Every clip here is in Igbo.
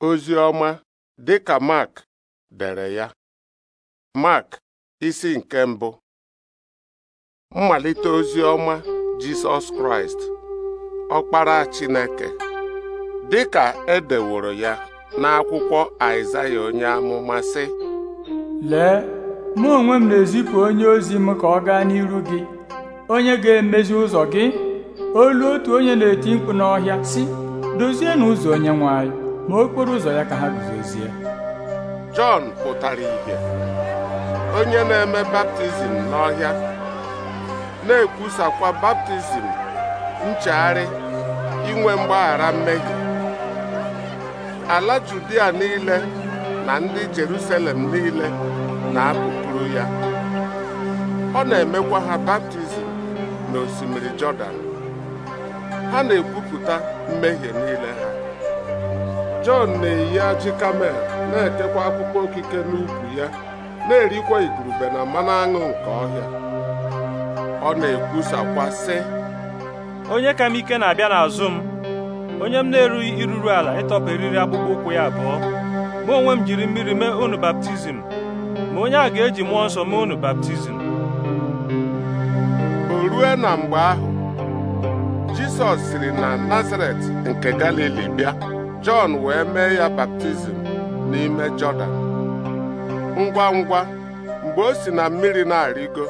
ozi ọma dị ka Mark dere ya Mark isi nke mbụ mmalite ozi ọma Jisọs Kraịst ọkpara Chineke dị ka edeworo ya n'akwụkwọ Aịzaya onye amụma sị lee mụ onwe m na-ezipụ onye ozi m ka ọ gaa n'iru gị onye ga-emezi ụzọ gị olu otu onye na-eti mkpu n'ọhịa si, dozienụ ụzọ onye nwanyị. ma okporo ụzọ ya ka ha guzozie Jọn pụtara ìhè onye na-eme baptizim n'ọhịa na-ekwusakwa baptizim nchegharị inwe mgbaghara mmehie ala Judia niile na ndị Jerusalem niile na-apụpụrụ ya ọ na-emekwa ha baptizim na osimiri Jọdan ha na-ekwupụta mmehie niile ha Jọn na-eyi ajị kamel na-ekekwa akpụkpọ okike n'ukwu ya na-erikwa igurube na mmanụ aṅụ nke ọhịa ọ na-ekwusakwa sị onye ka m ike na-abịa n'azụ m onye m na-erughị iruru ala ịtọpụ eriri akpụkpọ ụkwụ ya abụọ mụ onwe m jiri mmiri mee unu baptizim ma onye a ga-eji mmụọ nsọ mee unu baptizim o rue na mgbe ahụ Jisọs siri na Nazaret nke Galili bịa Jọn wee mee ya baptizim n'ime Jọdan ngwa ngwa mgbe o si na mmiri na-arịgo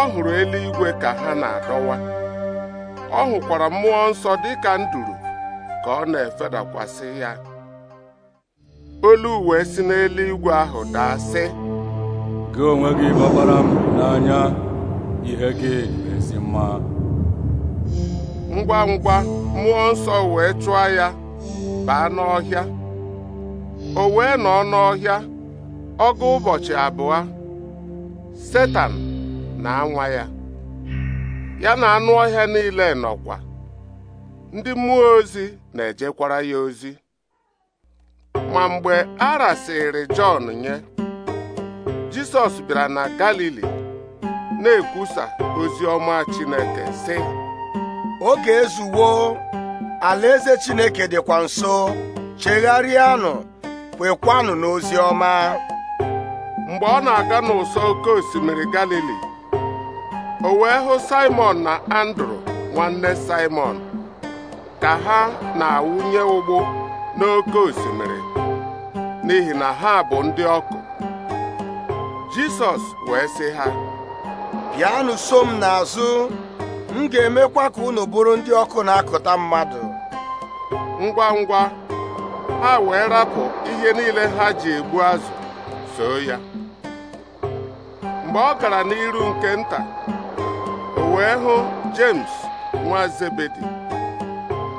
ọ hụrụ eluigwe ka ha na-adọwa ọ hụkwara mmụọ nsọ dị ka nduru ka ọ na-efedakwasị ya olu uwe si n'eluigwe ahụ daa sị gị onwe gị gbabara m n'anya ihe gị ezi mma ngwa ngwa mmụọ nsọ wee chụọ ya baa n'ọhịa o wee nọ n'ọhịa ọgụ ụbọchị abụọ setan na-anwa ya ya na anụ ọhịa niile nọkwa ndị mmụọ ozi na-ejekwara ya ozi ma mgbe a rasịrị Jọn nye Jisọs bịara na Galili na-ekwusa ozi ọma Chineke sị oge alaeze chineke dịkwa nso chegharịanụ kwekwanụ n'ozi ọma mgbe ọ na-aga n'ụsọ oke osimiri galili o wee hụ simon na andrew nwanne simon ka ha na-awụnye ụgbụ n'oke osimiri n'ihi na ha bụ ndị ọkụ jisọs wee sị ha bịanụ so m n'azụ m ga-emekwa ka unu bụrụ ndị ọkụ na-akụta mmadụ ngwa ngwa ha wee rapụ ihe niile ha ji egbu azụ soo ya mgbe ọ gara n'iru nke nta o wee hụ James nwa Zebedi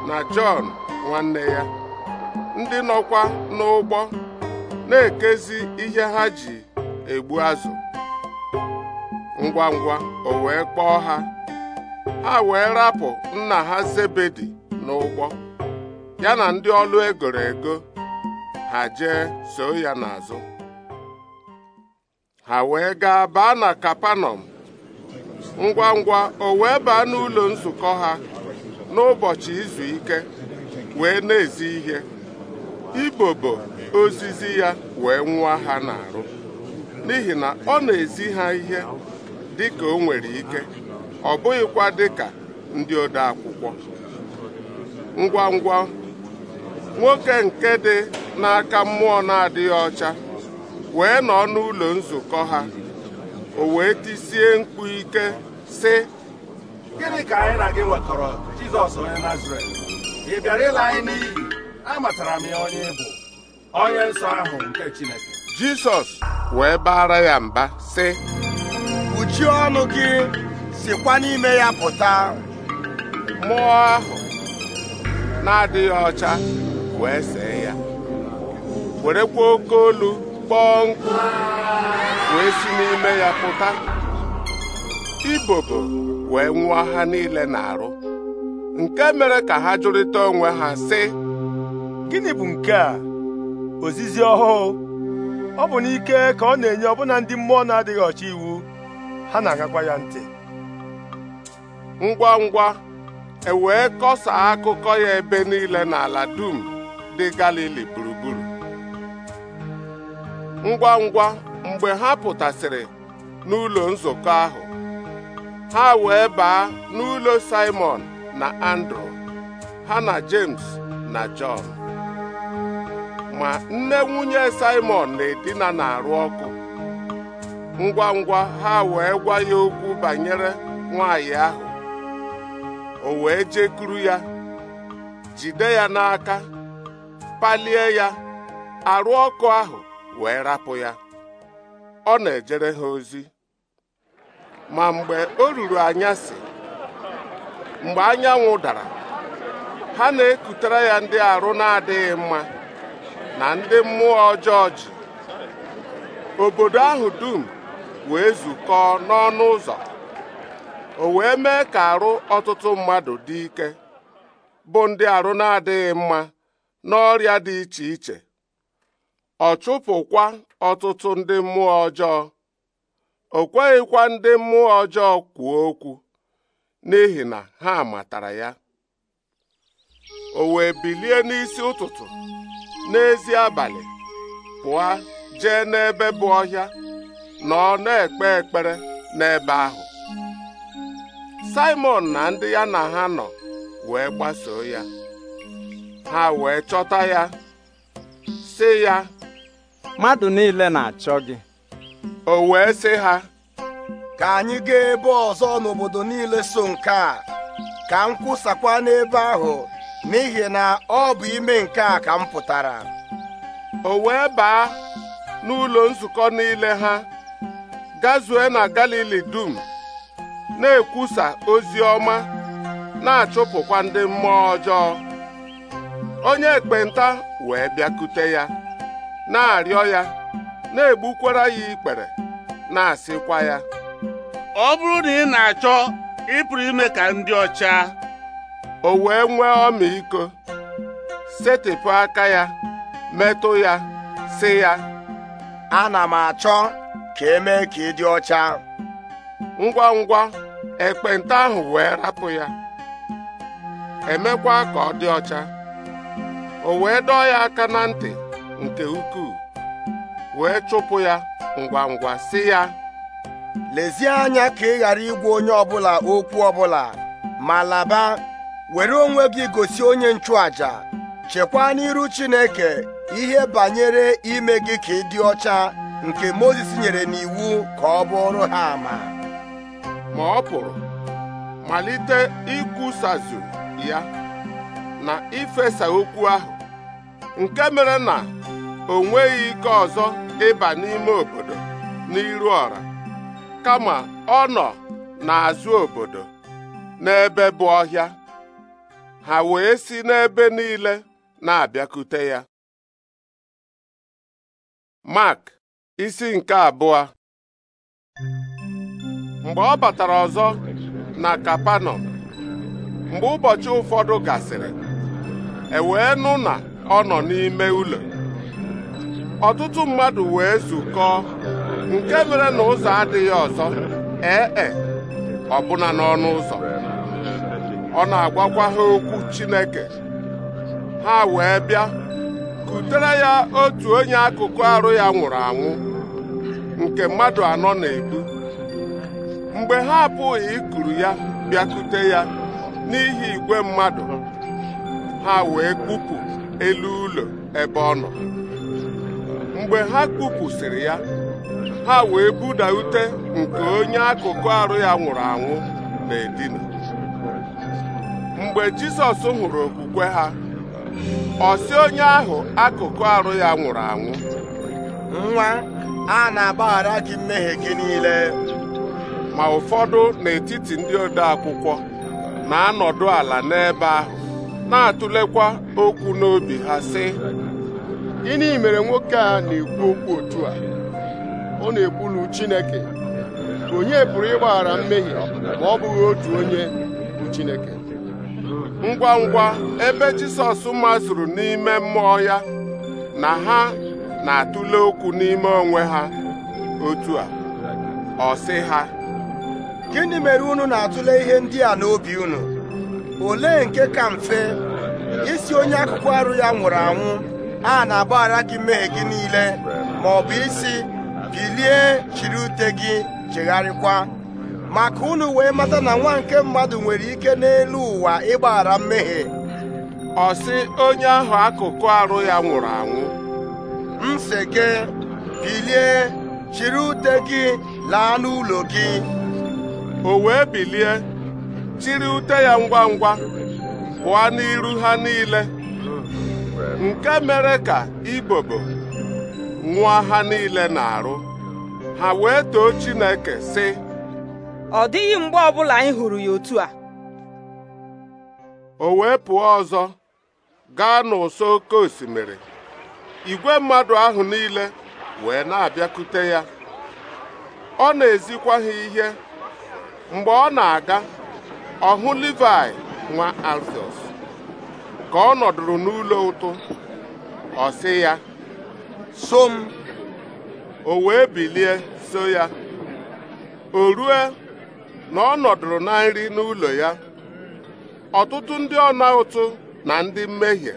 na Jọn nwanne ya ndị nọkwa n'ụgbọ na-ekezi ihe ha ji egbu azụ ngwa ngwa o wee kpọọ ha ha wee rapụ nna ha Zebedi n'ụgbọ ya na ndị ọlụ egoro ego ha jee so ya n'azụ ha wee gaa baa na kapanọm ngwa ngwa o wee baa n'ụlọ nzukọ ha n'ụbọchị izu ike wee na-ezi ihe ibobo ozizi ya wee nwa ha n'arụ n'ihi na ọ na-ezi ha ihe dị ka o nwere ike ọ bụghịkwa ka ndị ode akwụkwọ ngwa ngwa nwoke nke dị n'aka mmụọ na-adịghị ọcha wee nọ n'ụlọ nzukọ ha o wee tisie mkpu ike si: gịnị ka anyị na gị nwekọrọ Jizọs onye Nazaret ị bịara ịla anyị n'iyi amatara m ya onye bụ onye nsọ ahụ nke Chineke Jizọs wee baara ya mba si: kpuchie ọnụ gị sikwa n'ime ya pụta mmụọ ahụ na-adịghị ọcha wee see ya werekwa oke olu kpọọ nkụ wee si n'ime ya pụta ibobo wee nwụọ ha niile na-arụ nke mere ka ha jụrịta onwe ha sị gịnị bụ nke a ozizi ọhụụ ọ bụ n'ike ka ọ na-enye ọbụna ndị mmụọ na-adịghị ọcha iwu ha na-agakwa ya ntị ngwa ngwa e wee kọsaa akụkọ ya ebe niile n'ala dum ndị Galili gburugburu ngwa ngwa mgbe ha pụtasịrị n'ụlọ nzukọ ahụ ha wee baa n'ụlọ Simon na Andrew ha na James na John ma nne nwunye Simon na-edina na-arụ ọkụ ngwa ngwa ha wee gwa ya okwu banyere nwaanyị ahụ o wee jekuru ya jide ya n'aka palie ya arụ ọkụ ahụ wee rapụ ya ọ na-ejere ha ozi ma mgbe o ruru anyasị mgbe anyanwụ dara ha na-ekutere ya ndị arụ na-adịghị mma na ndị mmụọ ọjọọ ji obodo ahụ dum wee zukọọ n'ọnụ ụzọ o wee mee ka arụ ọtụtụ mmadụ dị ike bụ ndị arụ na-adịghị mma n'ọrịa dị iche iche ọ chụpụkwa ọtụtụ ndị mmụọ ọjọọ o kweghịkwa ndị mmụọ ọjọọ kwuo okwu n'ihi na ha matara ya o wee bilie n'isi ụtụtụ n'ezi abalị pụọ jee n'ebe bụ ọhịa na ọ na-ekpe ekpere n'ebe ahụ simon na ndị ya na ha nọ wee gbasoo ya ha wee chọta ya sị ya mmadụ niile na-achọ gị o wee sị ha ka anyị gaa ebe ọzọ n'obodo niile so nke a ka m kwụsakwa n'ebe ahụ n'ihi na ọ bụ ime nke a ka m pụtara o wee baa n'ụlọ nzukọ niile ha gazue na Galili dum na-ekwusa ozi ọma na-achụpụkwa ndị mmụọ ọjọọ onye ekpenta wee bịakute ya na-arịọ ya na-egbukwara ya ikpere na-asịkwa ya ọ bụrụ na ị na-achọ ịpụrụ ime ka ndị ọcha o wee nwee ọmịiko setịpụ aka ya metụ ya sị ya ana m achọ ka emee ka ị dị ọcha ngwa ngwa ekpenta ahụ wee rapụ ya emekwa ka ọ dị ọcha o wee dọọ ya aka na ntị nke ukwuu wee chụpụ ya ngwa ngwa si ya lezie anya ka ị ghara igwa onye ọbụla okwu ọbụla ma laba were onwe gị gosi onye nchụaja chekwaa n'iru Chineke ihe banyere ime gị ka ị dị ọcha nke Mozis nyere n'iwu ka ọ bụrụ ha ama ma ọ pụrụ malite ikwusazụ ya na ifesa okwu ahụ nke mere na o nweghị ike ọzọ ịba n'ime obodo n'iru ọra kama ọ nọ n'azụ obodo n'ebe bụ ọhịa ha wee si n'ebe niile na-abịakute ya mak isi nke abụọ mgbe ọ batara ọzọ na Kapanọm mgbe ụbọchị ụfọdụ gasịrị e wee nụ na ọ nọ n'ime ụlọ ọtụtụ mmadụ wee zukọọ nke mere na ụzọ adịghị ọzọ ee e, ọbụna n'ọnụ ụzọ ọ na-agwakwa ha okwu Chineke ha wee bịa kutere ya otu onye akụkụ arụ ya nwụrụ anwụ nke mmadụ anọ na-ebu mgbe ha abụghị ikuru ya bịakute ya n'ihi igwe mmadụ ha wee kpupụ elu ụlọ ebe ọ nọ mgbe ha kpupụsịrị ya ha wee buda ute nke onye akụkụ arụ ya nwụrụ anwụ na-edina mgbe jisọs hụrụ okwukwe ha ọ onye ahụ akụkụ arụ ya nwụrụ anwụ nwa a na-agbaghara gị mmehie gị niile ma ụfọdụ n'etiti ndị ode akwụkwọ na-anọdụ ala n'ebe ahụ na-atụlekwa okwu n'obi ha sị gịnị mere nwoke a na-ekwu okwu otu a ọ na-ekwulu Chineke onye pụrụ ịgbaghara mmehie ma ọ bụghị otu onye bụ Chineke ngwa ngwa ebe Jisọs masụrụ n'ime mmụọ ya na ha na-atụle okwu n'ime onwe ha otu a ọ sị ha gịnị mere unu na-atụle ihe ndị a n'obi unu olee nke ka mfe isi onye akụkụ arụ ya nwụrụ anwụ a na-agbaghara gị mee gị niile ma ọ bụ isi bilie chiri ute gị chegharịkwa maka unu wee mata na nwa nke mmadụ nwere ike n'elu ụwa ịgbaghara mmehie ọ sị onye ahụ akụkụ arụ ya nwụrụ anwụ m gị bilie chiri ute gị laa n'ụlọ gị o wee bilie Chiri ute ya ngwa ngwa pụọ n'iru ha niile nke mere ka ibobo nwụọ ha niile na-arụ ha wee too Chineke sị ọ dịghị mgbe ọbụla anyị hụrụ ya otu a o wee pụọ ọzọ gaa n'ụsọ oke osimiri igwe mmadụ ahụ niile wee na-abịakute ya ọ na-ezikwa ha ihe mgbe ọ na-aga ọ hụ nwa Alfios ka ọ nọdụrụ n'ụlọ ụtụ ọ sị ya so m o wee bilie so ya o rue na ọ nọdụrụ na nri n'ụlọ ya ọtụtụ ndị ọna ụtụ na ndị mmehie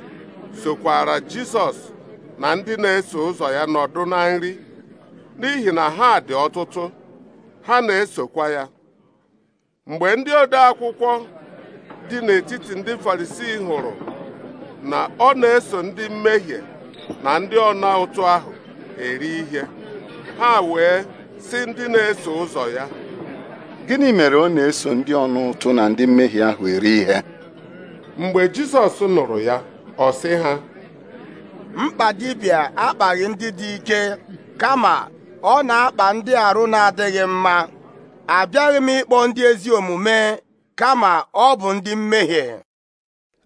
sokwara Jisọs na ndị na-eso ụzọ ya nọdụ na nri n'ihi na ha dị ọtụtụ ha na-esokwa ya mgbe ndị ode akwụkwọ dị n'etiti ndị farisii hụrụ na ọ na-eso ndị mmehie na ndị ọna ụtụ ahụ eri ihe ha wee sị ndị na-eso ụzọ ya gịnị mere ọ na-eso ndị ọna ụtụ na ndị mmehie ahụ eri ihe mgbe Jizọs nụrụ ya ọ sị ha mkpa dibịa akpaghị ndị dị ike kama ọ na-akpa ndị arụ na-adịghị mma abịaghị m ịkpọ ndị ezi omume kama ọ bụ ndị mmehie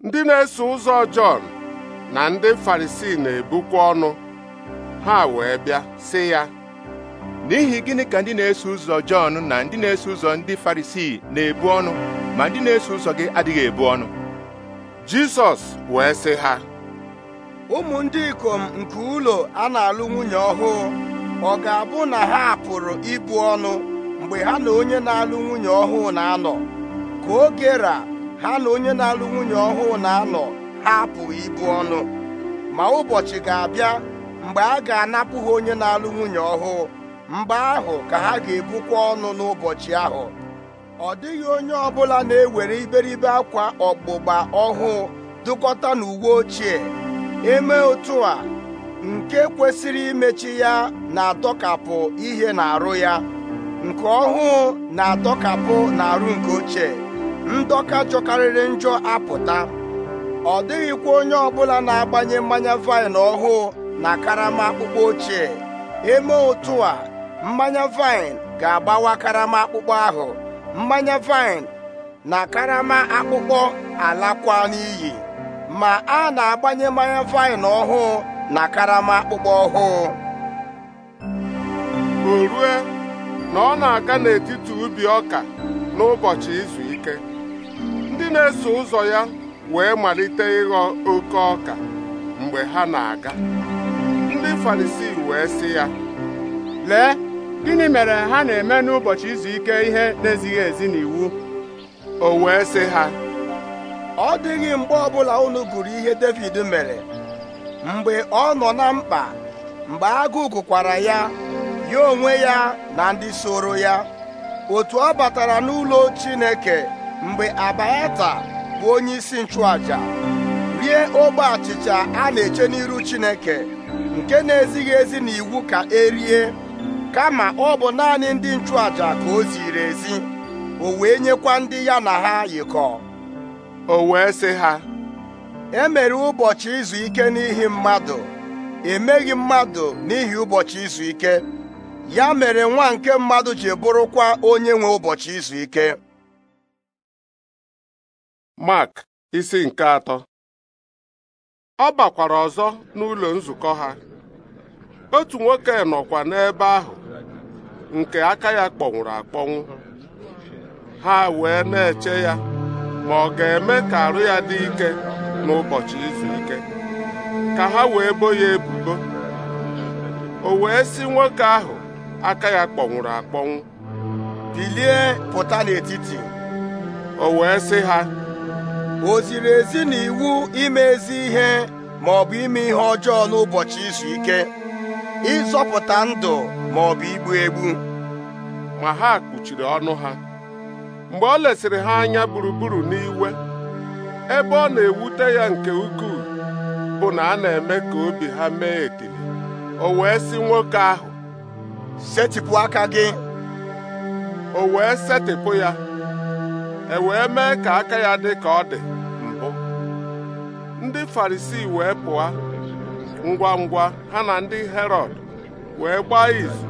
ndị na-eso ụzọ Jọn na ndị Farisii na-ebukwa ọnụ ha wee bịa sị ya n'ihi gịnị ka ndị na-eso ụzọ Jọn na ndị na-eso ụzọ ndị Farisii na-ebu ọnụ ma ndị na-eso ụzọ gị adịghị ebu ọnụ Jizọs wee sị ha ụmụ ndị ikom nke ụlọ a na-alụ nwunye ọhụụ ọ ga-abụ na ha pụrụ ibu ọnụ mgbe ha na onye na-alụ nwunye ọhụụ na-anọ ka oge ra ha na onye na-alụ nwunye ọhụụ na-anọ ha apụghị ibu ọnụ ma ụbọchị ga-abịa mgbe a ga-anapụ ha onye na-alụ nwunye ọhụụ mgbe ahụ ka ha ga-ebukwa ọnụ n'ụbọchị ahụ ọ dịghị onye ọbụla na-ewere iberibe akwa ọgbụgba ọhụụ dụkọta n'uwe ochie eme otu a nke kwesịrị imechi ya na-adọkapụ ihe na-arụ ya nke ọhụụ na-adọkapụ n'arụ nke ochie ndọka jọkarịrị njọ apụta ọ dịghịkwa onye ọbụla na-agbanye mmanya vaịn ọhụụ na karama akpụkpọ ochie eme otu a mmanya vaịn ga-agbawa karama akpụkpọ ahụ mmanya vaịn na karama akpụkpọ alakwa n'iyi ma a na-agbanye mmanya vaịn ọhụụ na karama akpụkpọ ọhụụ o na ọ na-aga n'etiti ubi ọka n'ụbọchị izu ike ndị na-eso ụzọ ya wee malite ịghọ oke ọka mgbe ha na-aga ndị farisii wee sị ya lee gịnị mere ha na-eme n'ụbọchị izu ike ihe na-ezighị ezi n'iwu o wee sị ha ọ dịghị mgbe ọbụla unu gụrụ ihe David mere mgbe ọ nọ na mkpa mgbe agụụ gụkwara ya ya onwe ya na ndị soro ya otu ọ batara n'ụlọ Chineke mgbe Abiata bụ onye isi nchụaja rie ogbe achịcha a na-eche n'iru Chineke nke na-ezighị ezi na iwu ka erie kama ọ bụ naanị ndị nchụaja ka o ziri ezi o wee nyekwa ndị ya na ha yikọ o wee sị ha e mere ụbọchị izu ike n'ihi mmadụ emeghị mmadụ n'ihi ụbọchị izu ike ya mere nwa nke mmadụ ji bụrụkwa onye nwe ụbọchị izu ike Mark isi nke atọ ọ bakwara ọzọ n'ụlọ nzukọ ha otu nwoke nọkwa n'ebe ahụ nke aka ya kpọnwụrụ akpọnwụ ha wee na-eche ya ma ọ ga-eme ka arụ ya dị ike n'ụbọchị izu ike ka ha wee bo ya ebubo o wee si nwoke ahụ aka ya kpọnwụrụ akpọnwụ bilie pụta n'etiti o wee sị ha o ziri ezi na iwu ime ezi ihe ma ọ bụ ime ihe ọjọọ n'ụbọchị izu ike ịzọpụta ndụ ma ọ bụ igbu egbu ma ha kpuchiri ọnụ ha mgbe ọ lesịrị ha anya gburugburu n'iwe ebe ọ na-ewute ya nke ukwuu bụ na a na-eme ka obi ha mee etili o wee sị nwoke ahụ setịpụ aka gị o wee setịpụ ya e wee mee ka aka ya dị ka ọ dị mbụ ndị farisi wee pụọ ngwa ngwa ha na ndị herod wee gbaa izu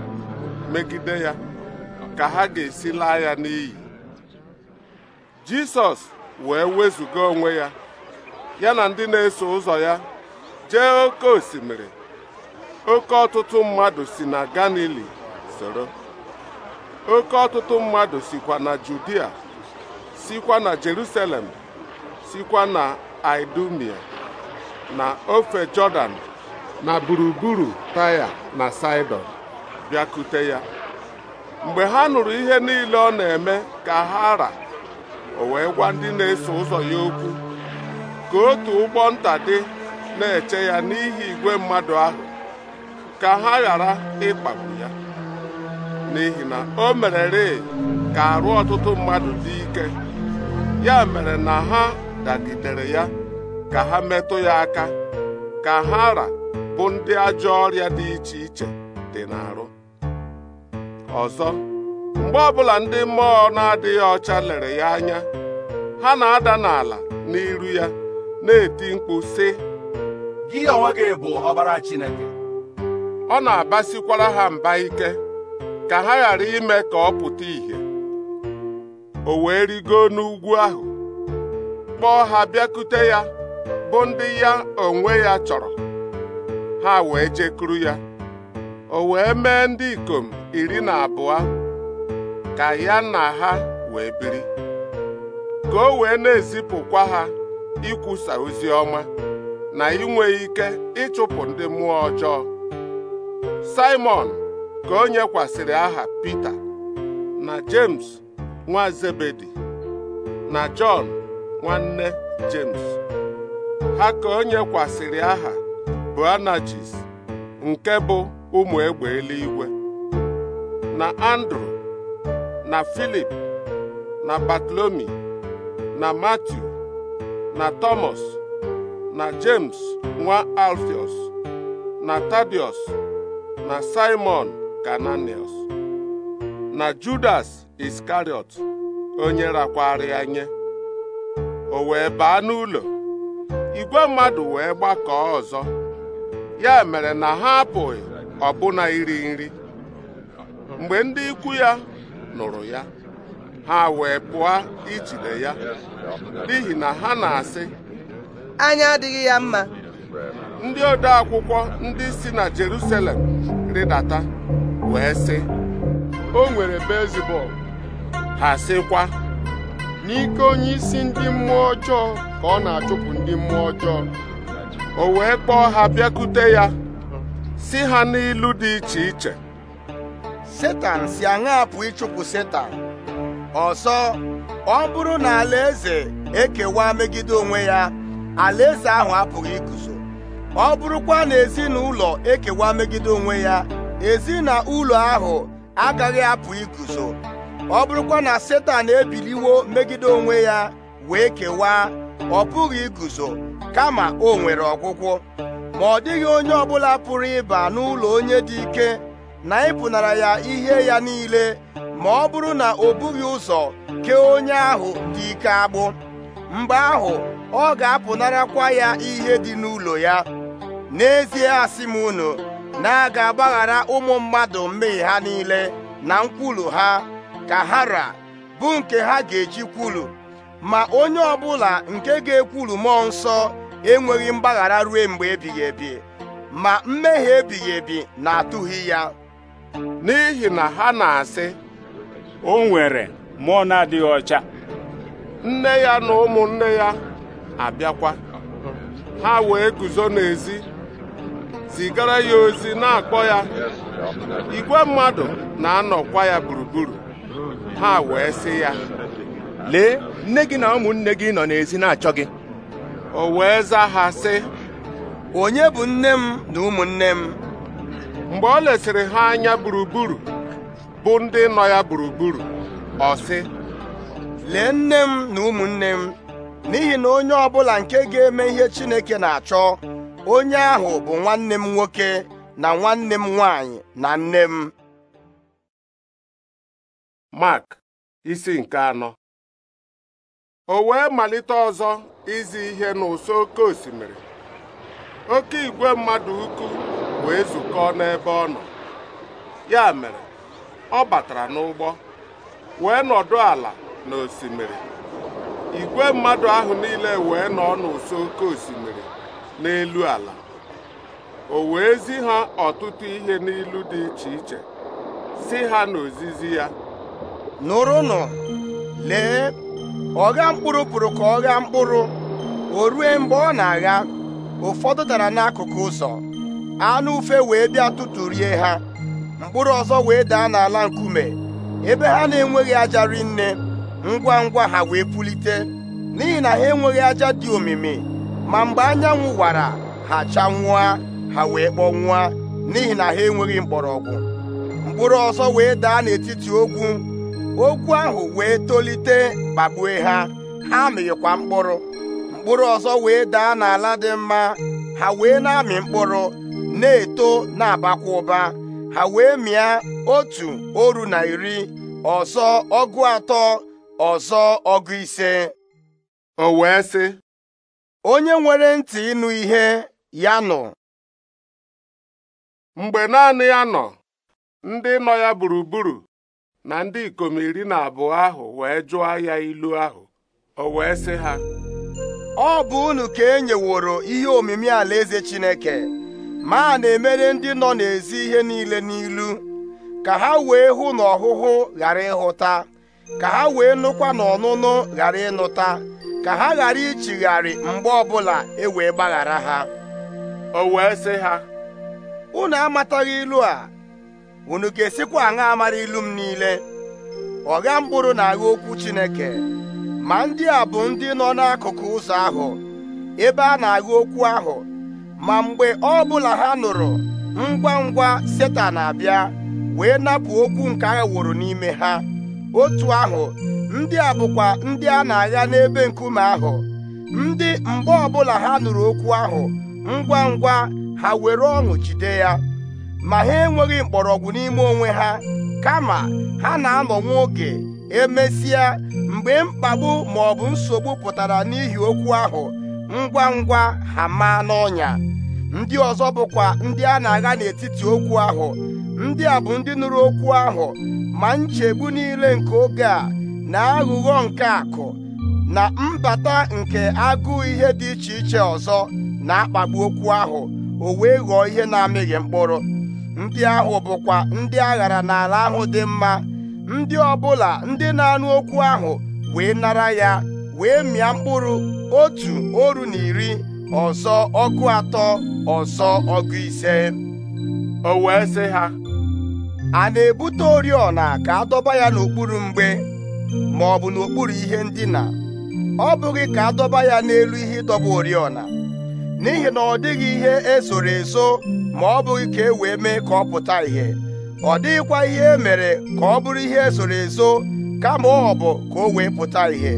megide ya ka ha ga-esi laa ya n'iyi Jisọs wee wezụga onwe ya ya na ndị na-eso ụzọ ya jee oke osimiri oke ọtụtụ mmadụ si na Galili soro oke ọtụtụ mmadụ sikwa na Judia sikwa na Jerusalem sikwa na Idumia na ofe jordan na gburugburu taya na saidon bịakute ya mgbe ha nụrụ ihe niile ọ na-eme ka ha ra o wee gwa ndị na-eso ụzọ ya okwu ka otu ụgbọ nta dị na-eche ya n'ihi igwe mmadụ ahụ ka ha ghara ịkpagbu n'ihi na o merere ka arụ ọtụtụ mmadụ dị ike ya mere na ha dagidere ya ka ha metụ ya aka ka haara bụ ndị ajọ ọrịa dị iche iche dị n'arụ ọzọ mgbe ọbụla ndị mmụọ na-adịghị ọcha lere ya anya ha na-ada n'ala n'iru ya na-eti mkpu sị gị onwe gị bụ ọbara Chineke ọ na-abasikwara ha mba ike ka ha ghara ime ka ọ pụta ìhè o wee rigo n'ugwu ahụ kpọọ ha bịakute ya bụ ndị ya onwe ya chọrọ ha wee jekuru ya o wee mee ndị ikom iri na abụọ ka ya na ha wee biri ka o wee na-ezipụkwa ha ikwusa ozi ọma na inwe ike ịchụpụ ndị mmụọ ọjọọ Simon ka o nyekwasịrị aha Pita na James nwa Zebedi na Jọn nwanne James ha ka o nyekwasịrị aha Boanajis nke bụ ụmụ egbe eluigwe na Andrew na Filip na Batlomi na Matiu na Thomas na James nwa Alfios na Tadius na Simon Kananius na Judas Iskariot onye rakwara ya nye o wee baa n'ụlọ igwe mmadụ wee gbakọọ ọzọ ya mere na ha apụghị ọbụna iri nri mgbe ndị ikwu ya nụrụ ya ha wee pụọ ijide ya n'ihi na ha na-asị anya adịghị ya mma ndị ode akwụkwọ ndị si na Jerusalem rịdata wee sị o nwere bezibọl ha sịkwa n'ike onye isi ndị mmụọ ọjọọ ka ọ na-achụpụ ndị mmụọ ọjọọ o wee kpọọ ha bịakute ya si ha n'ilu dị iche iche Setan si aṅa pụ ịchụpụ Setan ọsọ. ọ bụrụ na alaeze ekewa megide onwe ya alaeze ahụ apụghị iguzo ọ bụrụkwa na ezinụlọ ekewa megide onwe ya ezinụlọ ahụ agaghị apụ iguzo ọ bụrụkwa na setan ebiliwo megide onwe ya wee kewaa ọ pụghị iguzo kama o nwere ọgwụgwụ ma ọ dịghị onye ọbụla pụrụ ịba n'ụlọ onye dị ike na ịpụnara ya ihe ya niile ma ọ bụrụ na o bughị ụzọ kee onye ahụ dị ike agbụ mgbe ahụ ọ ga-apụnarakwa ya ihe dị n'ụlọ ya n'ezie asị m unu na a ga-agbaghara ụmụ mmadụ mmehie ha niile na nkwulu ha ka ha hara bụ nke ha ga-eji kwulu ma onye ọbụla nke ga-ekwulu mmụọ nsọ enweghị mgbaghara ruo mgbe ebighị ebi ma mmehie ebighị ebi na-atụghị ya n'ihi na ha na-asị o nwere mmụọ na-adịghị ọcha nne ya na ụmụnne ya abịakwa ha wee guzo n'ezi zigara ya ozi na-akpọ ya igwe mmadụ na-anọkwa ya gburugburu ha wee sị ya lee nne gị na ụmụnne gị nọ n'ezi na-achọ gị o wee za ha sị onye bụ nne m na ụmụnne m mgbe ọ lesịrị ha anya gburugburu bụ ndị nọ ya gburugburu ọ sị lee nne m na ụmụnne m n'ihi na onye ọ bụla nke ga-eme ihe Chineke na-achọ onye ahụ bụ nwanne m nwoke na nwanne m nwanyị na nne m Mark isi nke anọ o wee malite ọzọ izi ihe n'ụsọ oke osimiri oke igwe mmadụ ukwu wee zukọọ n'ebe ọ nọ ya mere ọ batara n'ụgbọ wee nọdụ ala n'osimiri igwe mmadụ ahụ niile wee nọ n'ụsọ oke osimiri n'elu ala o wee zi ha ọtụtụ ihe n'ilu dị iche iche si ha n'ozizi ya nụrụnụ lee ọgha mkpụrụ pụrụ ka ọ mkpụrụ o rue mgbe ọ na-agha ụfọdụ dara n'akụkụ ụzọ anụ ufe wee bịa tụtụrie ha mkpụrụ ọzọ wee daa n'ala nkume ebe ha na-enweghị aja rinne ngwa ngwa ha wee pulite n'ihi na ha enweghị aja dị omimi ma mgbe anyanwụ wara ha chanwụa ha wee kpọnwụa n'ihi na ha enweghị mgbọrọgwụ mkpụrụ ọzọ wee daa n'etiti ogwu ogwu ahụ wee tolite kpagbue ha ha mịghịkwa mkpụrụ mkpụrụ ọzọ wee daa n'ala dị mma ha wee na-amị mkpụrụ na-eto na-abakwa ụba ha wee mịa otu oru na iri ọzọ ọgụ atọ ọzọ ọgụ ise o wee sị onye nwere ntị ịnụ ihe ya nụ mgbe naanị ya nọ ndị nọ ya gburugburu na ndị ikom iri na abụọ ahụ wee jụọ ya ilu ahụ o wee sị ha ọ bụ unu ka e nyeworo ihe omimi alaeze Chineke ma a na-emere ndị nọ n'ezi ihe niile n'ilu ka ha wee hụ n'ọhụhụ ọhụhụ ghara ịhụta ka ha wee nụkwa na ọnụnụ ghara ịnụta ka ha ghara ichigharị mgbe ọbụla e wee gbaghara ha o wee sị ha unu amataghị ilu a unu ga-esikwa aṅa amara ilu m niile ọgha mkpụrụ na-agha okwu Chineke ma ndị a bụ ndị nọ n'akụkụ ụzọ ahụ ebe a na-agha okwu ahụ ma mgbe ọ bụla ha nụrụ ngwa ngwa Setan abịa wee napụ okwu nke wụrụ n'ime ha otu ahụ ndị a bụkwa ndị a na-agha n'ebe nkume ahụ ndị mgbe ọbụla ha nụrụ okwu ahụ ngwa ngwa ha were ọṅụ jide ya ma ha enweghị mkpọrọgwụ n'ime onwe ha kama ha na-anọ nwa oge emesịa mgbe mkpagbu ma ọ bụ nsogbu pụtara n'ihi okwu ahụ ngwa ngwa ha maa n'ọnya ndị ọzọ bụkwa ndị a na-agha n'etiti okwu ahụ ndị a bụ ndị nụrụ okwu ahụ ma nchegbu niile nke oge a na aghụghọ nke akụ na mbata nke agụ ihe dị iche iche ọzọ na-akpagbu okwu ahụ o wee ghọọ ihe na-amịghị mkpụrụ ndị ahụ bụkwa ndị aghara n'ala ahụ dị mma ndị ọbụla ndị na-anụ okwu ahụ wee nara ya wee mịa mkpụrụ otu oru na iri ọzọ ọgụ atọ ọzọ ọgụ ise o wee sị ha a na-ebute oriọna ka a dọba ya n'okpuru mgbe ma ọ bụ n'okpuru ihe ndina ọ bụghị ka a dọba ya n'elu ihe ịdọba oriọna n'ihi na ọ dịghị ihe esoro eso ma ọ bụghị ka e wee mee ka ọ pụta ihe, ọ dịghịkwa ihe e mere ka ọ bụrụ ihe esoro eso kama ọ bụ ka o wee pụta ihe,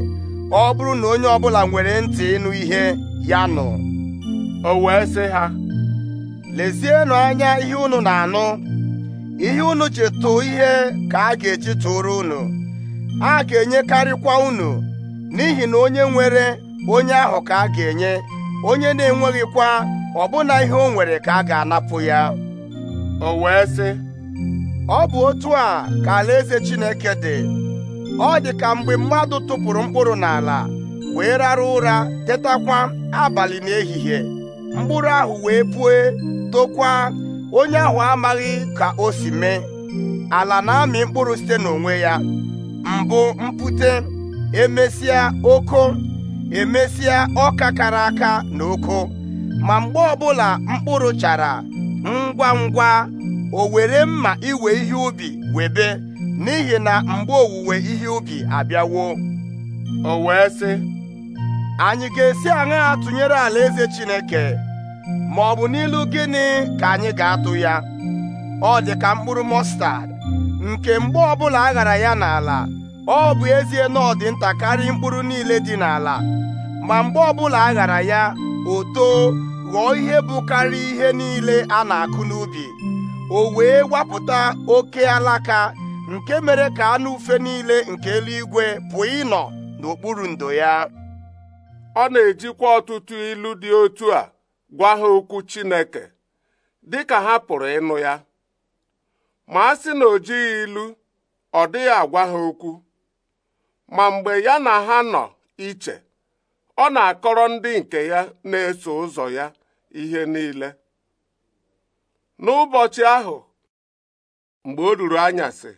ọ bụrụ na onye ọbụla nwere ntị ịnụ ihe ya nụ o wee sị ha lezienụ anya ihe unu na-anụ ihe unu chetụ ihe ka a ga-echi tụrụ unu a ga-enyekarịkwa unu n'ihi na onye nwere onye ahụ ka a ga-enye onye na-enweghịkwa ọbụna ihe o nwere ka a ga-anapụ ya o wee sị ọ bụ otu a ka alaeze Chineke dị ọ dị ka mgbe mmadụ tụpụrụ mkpụrụ n'ala wee rara ụra tetakwa abalị n'ehihie mkpụrụ ahụ wee pue tokwa onye ahụ amaghị ka o si mee ala na-amị mkpụrụ site n'onwe ya mbụ mpute emesịa oko emesịa ọka kara aka na oko ma mgbe ọbụla mkpụrụ chara ngwa ngwa o were mma iwe ihe ubi webe n'ihi na mgbe owuwe ihe ubi abịawo o wee sị anyị ga-esi aṅa tụnyere eze Chineke ma ọ bụ n'ilu gịnị ka anyị ga-atụ ya ọ dị ka mkpụrụ mọstad nke mgbe ọbụla a ghara ya n'ala ọ bụ ezie na ọ dị nta mkpụrụ niile dị n'ala ma mgbe ọbụla a ghara ya o too ghọọ ihe bụ karịa ihe niile a na-akụ n'ubi o wee wapụta oke alaka nke mere ka anụ ufe niile nke eluigwe pụọ ịnọ n'okpuru ndo ya ọ na-ejikwa ọtụtụ ilu dị otu a gwa ha okwu Chineke dịka ha pụrụ ịnụ ya ma a sị na o jighị ilu ọ dịghị agwa ha okwu ma mgbe ya na ha nọ iche ọ na-akọrọ ndị nke ya na-eso ụzọ ya ihe niile n'ụbọchị ahụ mgbe o ruru anyasị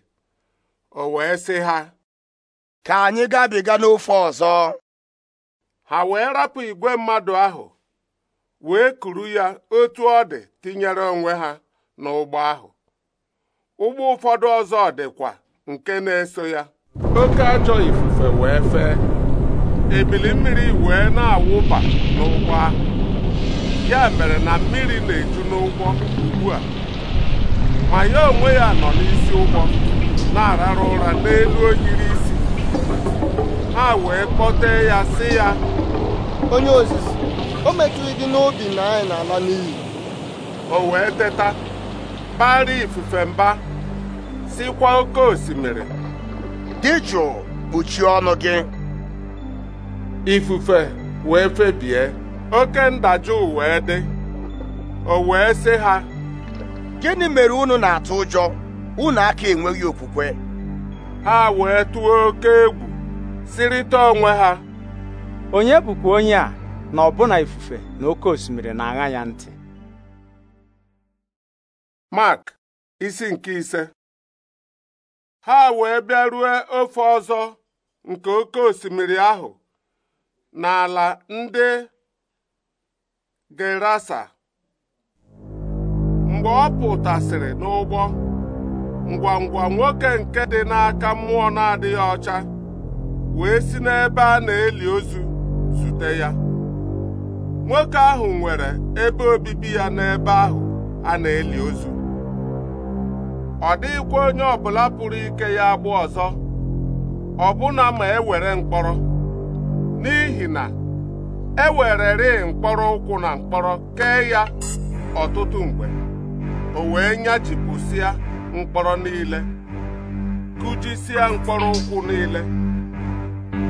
o wee sị ha ka anyị gabiga n'ofe ọzọ ha wee rapụ igwe mmadụ ahụ wee kuru ya otu ọ dị tinyere onwe ha n'ụgbọ ahụ ụgbọ ụfọdụ ọzọ dịkwa nke na-eso ya oke ajọ ifufe wee fee ebili mmiri wee na-awụba n'ụgbọ ahụ ya mere na mmiri na-eju n'ụgbọ ugbu a ma ya onwe ya nọ n'isi ụgbọ na-arara ụra n'elu oyiri isi ha wee kpọtee ya si ya onye ozizi o metụghị dị n'obi na anyị na-ala n'iyi o wee teta bara ifufe mba sikwa oke osimiri dị jụụ kpuchie ọnụ gị ifufe wee febie oke ndajụ wee dị o wee sị ha gịnị mere unu na-atụ ụjọ unu aka enweghị okwukwe ha wee tụọ oke egwu sirịta onwe ha onye bụkwa onye a na ọbụna ifufe na oke osimiri na-aṅa ya ntị Mark isi nke ise ha wee bịarue ofe ọzọ nke oke osimiri ahụ n'ala ndị Gerasa mgbe ọ pụtasịrị n'ụgbọ ngwangwa nwoke nke dị n'aka mmụọ na-adịghị ọcha wee si n'ebe a na-eli ozu zute ya nwoke ahụ nwere ebe obibi ya n'ebe ahụ a na-eli ozu ọ dịghịkwa onye ọbụla pụrụ ike ya agba ọzọ ọbụna ma ewere mkpọrọ n'ihi na e wererị mkpọrọ ụkwụ na mkpọrọ kee ya ọtụtụ mgbe o wee nyachipụsịa mkpọrọ niile kụjisịa mkpọrọ ụkwụ niile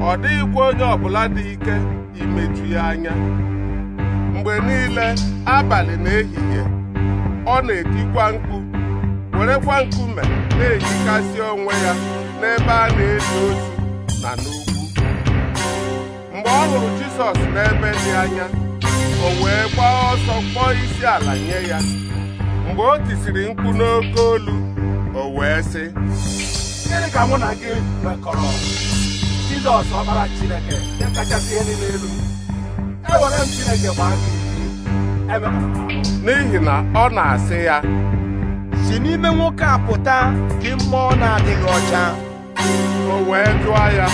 ọ dịghịkwa onye ọbụla dị ike imeju ya anya mgbe niile abalị na ehihie ọ na-etikwa mkpu werekwa nkume na-ejikasị onwe ya n'ebe a na-eli ozu na n'ugwu mgbe ọ hụrụ Jizọs n'ebe dị anya o wee gbaa ọsọ kpọọ isi ala nye ya mgbe o tisiri mkpu n'oke olu o wee sị gịnị ka mụ na gị mekọrọ Jizọs ọbara Chineke nke kachasị ihe niile elu ewere m Chineke gbaa gị e n'ihi na ọ na-asị ya si n'ime nwoke a pụta dị mmụọ na-adịghị ọcha o wee jụọ ya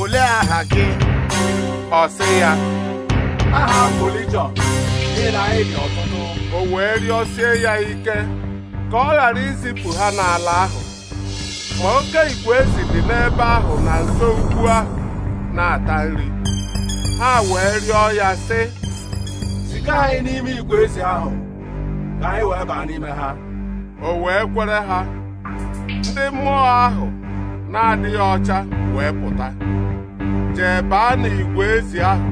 olee aha gị ọ sị ya aha m ọtụtụ. o wee rịọsie ya ike ka ọ ghara izipụ ha n'ala ahụ ma oke igwe dị n'ebe ahụ na nso ukwu ahụ na-ata nri ha wee rịọ ya sị ziga anyị n'ime igwe ahụ ka anyị wee baa n'ime ha o wee kwere ha ndị mmụọ ahụ na-adịghị ọcha wee pụta jee baa n'igwe ezi ahụ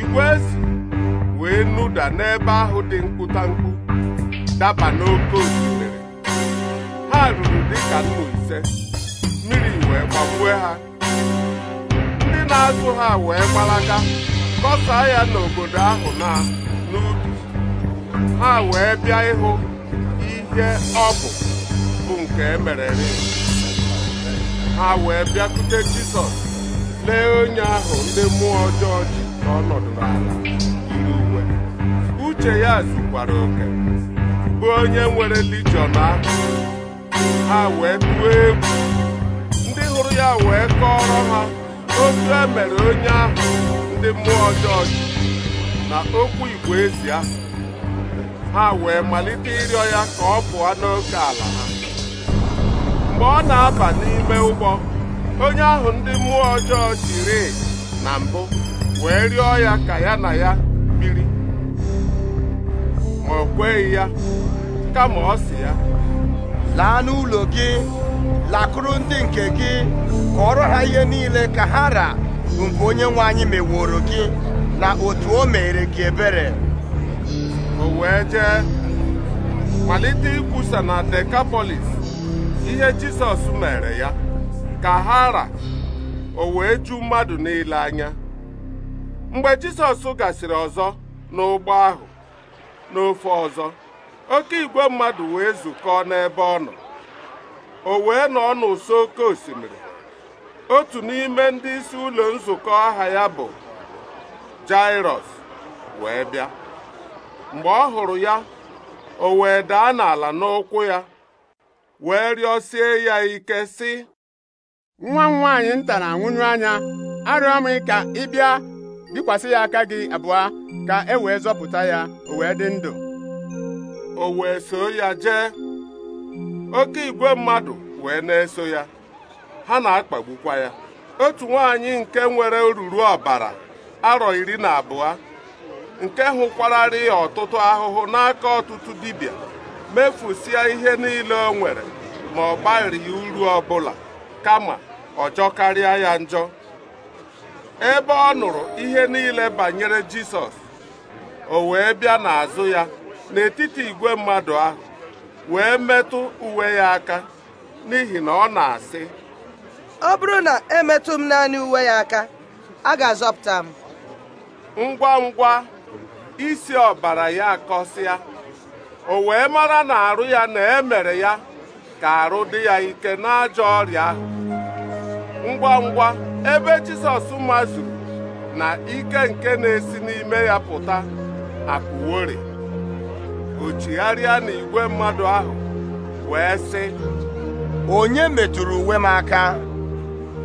igwe ezi wee nụda n'ebe ahụ dị mkpụtamkpụ daba n'oke osimiri ha ruru dịka nnu ise mmiri wee gbagbue ha ndị na-azụ ha wee gbalaga kọsaa ya n'obodo ahụ na n'ubi ha wee bịa ịhụ nke ọ bụ bụ nke emerere ha wee bịakwute Jisọs lee onye ahụ ndị mmụọ ọjọọ ji ka ọ nọdụrụ ala yiri uwe uche ya zukwara oke bụ onye nwere lijiọn ahụ ha wee tụọ egwu ndị hụrụ ya wee kọọrọ ha otu emere onye ahụ ndị mmụọ ọjọọ ji na okwu igwe ezi ha wee malite ịrịọ ya ka ọ pụọ n'oke ala ha mgbe ọ na-aba n'ime ụgbọ onye ahụ ndị mmụọ ọjọọ jiri na mbụ wee rịọ ya ka ya na ya biri ma o kweghị ya kama ọ sị ya laa n'ụlọ gị lakụrụ ndị nke gị kọọrọ ha ihe niile ka ha ra bụ onye nwe anyị meworo gị na otu o mere gị ebere o wee jee malite ikwusa na Dekapolis ihe Jisọs mere ya ka ha ra o wee ju mmadụ niile anya mgbe Jisọs gasịrị ọzọ n'ụgbọ ahụ n'ofe ọzọ oke igwe mmadụ wee zukọọ n'ebe ọ nọ o wee nọ n'ụsọ oke osimiri otu n'ime ndị isi ụlọ nzukọ aha ya bụ Jairọs wee bịa mgbe ọ hụrụ ya o wee daa n'ala n'ụkwụ ya wee rịọsie ya ike sị nwa m nwaanyị nta na-anwụnyụ anya arịọ m ka ị bịa bikwasị ya aka gị abụọ ka e wee zọpụta ya o wee dị ndụ o wee so ya jee oke igwe mmadụ wee na-eso ya ha na-akpagbukwa ya otu nwaanyị nke nwere oruru ọbara arọ iri na abụọ nke hụkwararị ọtụtụ ahụhụ n'aka ọtụtụ dibịa mefusie ihe niile o nwere ma ọ ya uru ọbụla kama ọjọ karịa ya njọ ebe ọ nụrụ ihe niile banyere Jisọs o wee bịa n'azụ ya n'etiti igwe mmadụ ahụ wee metụ uwe ya aka n'ihi na ọ na-asị ọ bụrụ na emetụ m naanị uwe ya aka a ga-azọpụta m ngwa ngwa isi ọbara ya akọsịa o wee mara na arụ ya na emere ya ka arụ dị ya ike n'ajọ ọrịa ahụ ngwa ngwa ebe Jizọs mazuru na ike nke na-esi n'ime ya pụta apụwori o chigharịa igwe mmadụ ahụ wee sị onye metụrụ uwe m aka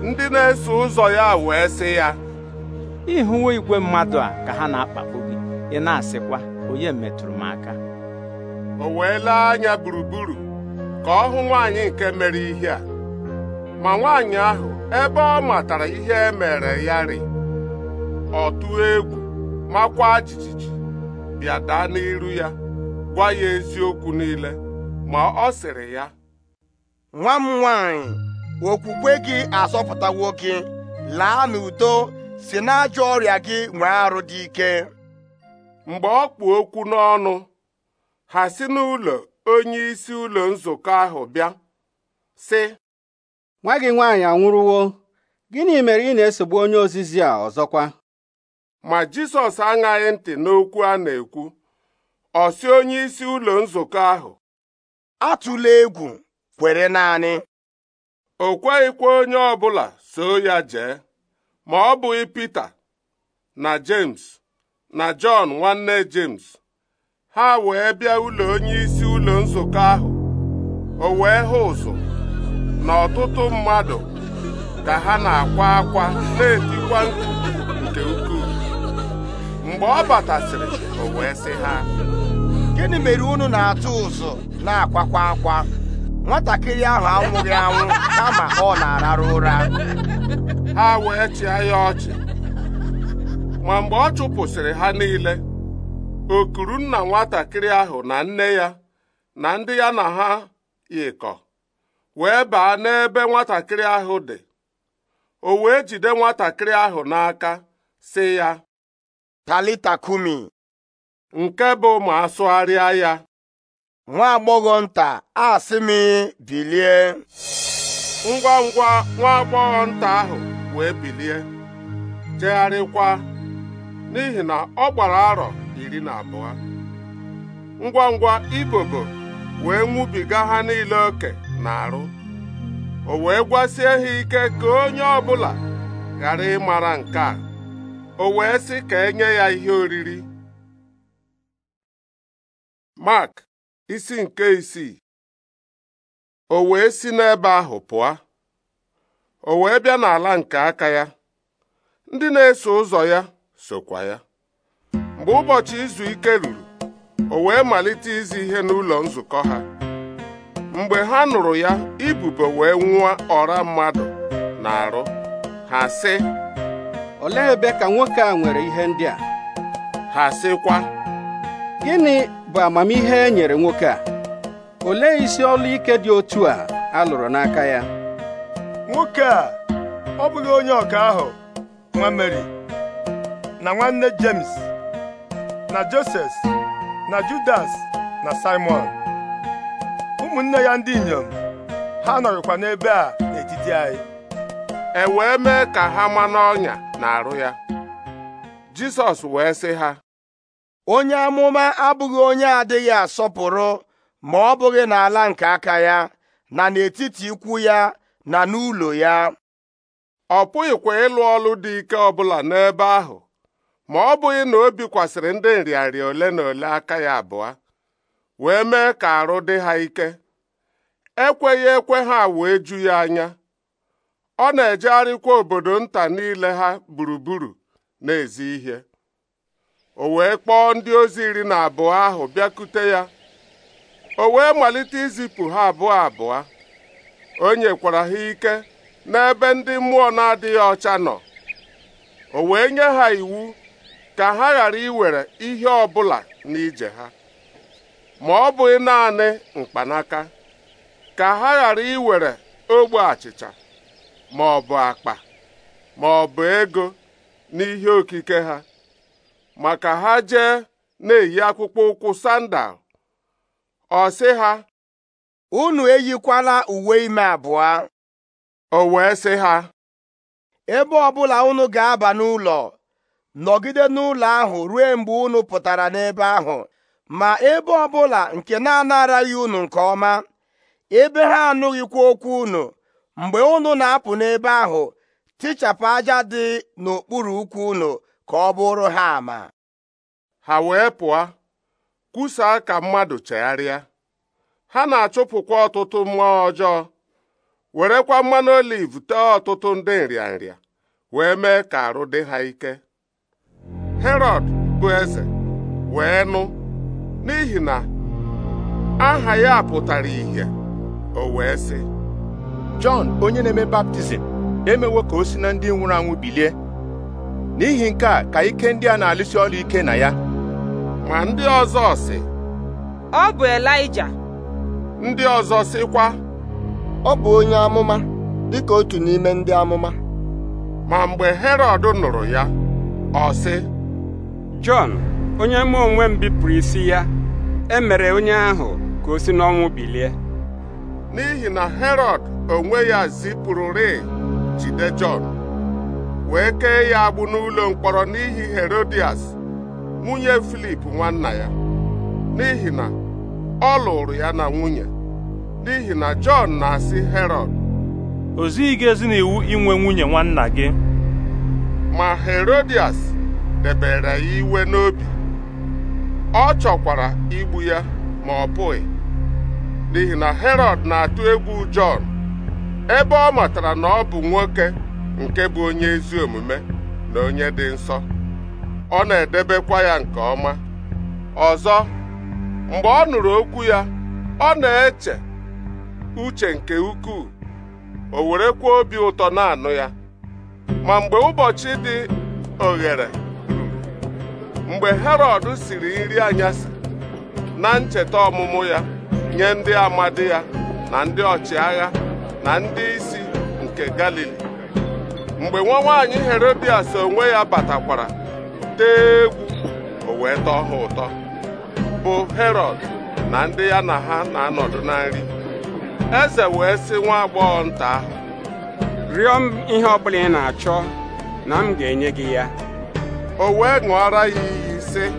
ndị na-eso ụzọ ya wee sị ya ịhụwo igwe mmadụ a ka ha na-akpagbu ị na-asịkwa onye metụrụ m aka o wee lee anya gburugburu ka ọ hụ nwaanyị nke mere ihe a ma nwaanyị ahụ ebe ọ matara ihe e mere ya rị ọ egwu makwa jijiji bịa daa n'iru ya gwa ya eziokwu niile ma ọ sịrị ya nwa m nwaanyị okwukwe gị azọpụtawo gị laa n'udo si n'ajọ ọrịa gị nwee arụ dị ike mgbe ọ kpụ okwu n'ọnụ ha si n'ụlọ onyeisi ụlọ nzukọ ahụ bịa sị nwa gị nwaanyị anwụrụwo gịnị mere ị na-esogbu onye ozizi a ọzọkwa ma Jisọs aṅaghị ntị n'okwu a na-ekwu ọ si onye isi ụlọ nzukọ ahụ atụla egwu kwere naanị o kweghịkwa onye ọbụla soo ya jee ma ọ bụghị Pita na James na Jọn nwanne James ha wee bịa ụlọ onyeisi ụlọ nzukọ ahụ o wee hụ ụzụ na ọtụtụ mmadụ ka ha na-akwa akwa na-etikwa nke ukwuu mgbe ọ batasịrị o wee sị ha gịnị mere unu na-atụ ụzụ na-akwakwa akwa nwatakịrị ahụ anwụghị anwụ kama ọ na ararụ ụra ha wee chịa ya ọchị ma mgbe ọ chụpụsịrị ha niile okuru nna nwatakịrị ahụ na nne ya na ndị ya na ha yikọ wee baa n'ebe nwatakịrị ahụ dị o wee jide nwatakịrị ahụ n'aka sị ya talita kumi nke bụ ma asụgharịa ya nwa agbọghọ nta a bilie ngwa ngwa nwa agbọghọ nta ahụ wee bilie jegharịkwa n'ihi na ọ gbara arọ iri na abụọ ngwa ngwa ibobo wee nwubiga ha niile oke na arụ o wee gwasie ha ike ka onye ọbụla ghara ịmara nke a o wee sị ka enye ya ihe oriri mak isi nke isii o wee si n'ebe ahụ pụọ o wee bịa n'ala nke aka ya ndị na-eso ụzọ ya sokwa ya mgbe ụbọchị izu ike ruru o wee malite izi ihe n'ụlọ nzukọ ha mgbe ha nụrụ ya ibube wee nwụọ ọra mmadụ na arụ ha sị olee ebe ka nwoke a nwere ihe ndị a ha sịkwa gịnị bụ amamihe e nyere nwoke a olee isi ọlụ ike dị otu a a lụrụ n'aka ya nwoke a ọ bụghị onye ọka ahụ nwa Mary. na nwanne James na Joses na Judas na Simon ụmụnne ya ndị inyom ha nọrịkwa n'ebe a n'etiti anyị e wee mee ka ha ma n'ọnya na-arụ ya Jisọs wee sị ha onye amụma abụghị onye adịghị asọpụrụ ma ọ bụghị n'ala nke aka ya na n'etiti ikwu ya na n'ụlọ ya ọ pụghịkwa ịlụ ọlụ dị ike ọbụla n'ebe ahụ ma ọ bụghị na o bikwasịrị ndị nrịarịa ole na ole aka ya abụọ wee mee ka arụ dị ha ike ekweghị ekwe ha wee ju ya anya ọ na-ejegharịkwa obodo nta niile ha gburugburu na-ezi ihe o wee kpọọ ndị ozi iri na abụọ ahụ bịakute ya o wee malite izipụ ha abụọ abụọ o nyekwara ha ike n'ebe ndị mmụọ na-adịghị ọcha nọ o wee nye ha iwu ka ha ghara iwere ihe ọbụla n'ije ha ma ọ bụghị naanị mkpanaka ka ha ghara iwere ogbe achịcha ma ọ bụ akpa ma ọ bụ ego n'ihe okike ha maka ha jee na-eyi akpụkpọ ụkwụ sandal ọ sị ha unu eyikwala uwe ime abụọ o wee sị ha ebe ọbụla unu ga-aba n'ụlọ nọgide n'ụlọ ahụ ruo mgbe unu pụtara n'ebe ahụ ma ebe ọbụla nke na-anaraghị unu nke ọma ebe ha anụghịkwa okwu unu mgbe unu na-apụ n'ebe ahụ tichapụ aja dị n'okpuru ukwu unu ka ọ bụrụ ha ama ha wee pụọ kwusaa ka mmadụ chegharịa ha na-achụpụkwa ọtụtụ mmụọ ọjọọ werekwa mmanụ oliv tee ọtụtụ ndị nrịanrịa wee mee ka arụ dị ha ike Herod bụ eze wee nụ n'ihi na aha ya pụtara ìhè o wee sị Jọn onye na-eme baptizim emewo ka o si na ndị nwụrụ anwụ bilie n'ihi nke a ka ike ndị a na-alụsi ọrụ ike na ya ma ndị ọzọ sị ọ bụ Elaịja ndị ọzọ sịkwa ọ bụ onye amụma dịka otu n'ime ndị amụma ma mgbe Herọd nụrụ ya ọ sị jon onye mụ onwe m bipụrụ isi ya emere onye ahụ ka o si n'ọnwụ bilie n'ihi na herod onwe ya zipụrụrị jide Jọn wee kee ya agbụ n'ụlọ mkpọrọ n'ihi Herodias nwunye Filip nwanna ya n'ihi na ọ lụrụ ya na nwunye n'ihi na Jọn na-asị herod o zighị gị ezi n'iwu inwe nwunye nwanna gị ma Herodias debere ya iwe n'obi ọ chọkwara igbu ya ma ọ pụghị n'ihi na Herọd na-atụ egwu Jọn ebe ọ matara na ọ bụ nwoke nke bụ onye ezi omume na onye dị nsọ ọ na-edebekwa ya nke ọma ọzọ mgbe ọ nụrụ okwu ya ọ na-eche uche nke ukwuu o werekwa obi ụtọ na-anụ ya ma mgbe ụbọchị dị oghere mgbe herọd siri nri anyasị na ncheta ọmụmụ ya nye ndị amadi ya na ndị ọchịagha na ndị isi nke galili mgbe nwa nwaanyị herodias onwe ya batakwara tee egwu o wee tọọ ha ụtọ bụ herọd na ndị ya na ha na-anọdụ na nri eze wee sị nwa agbọghọ nta ahụ rịọ m ihe ọbụla ị na-achọ na m ga-enye gị ya o wee ṅụọra ya iyi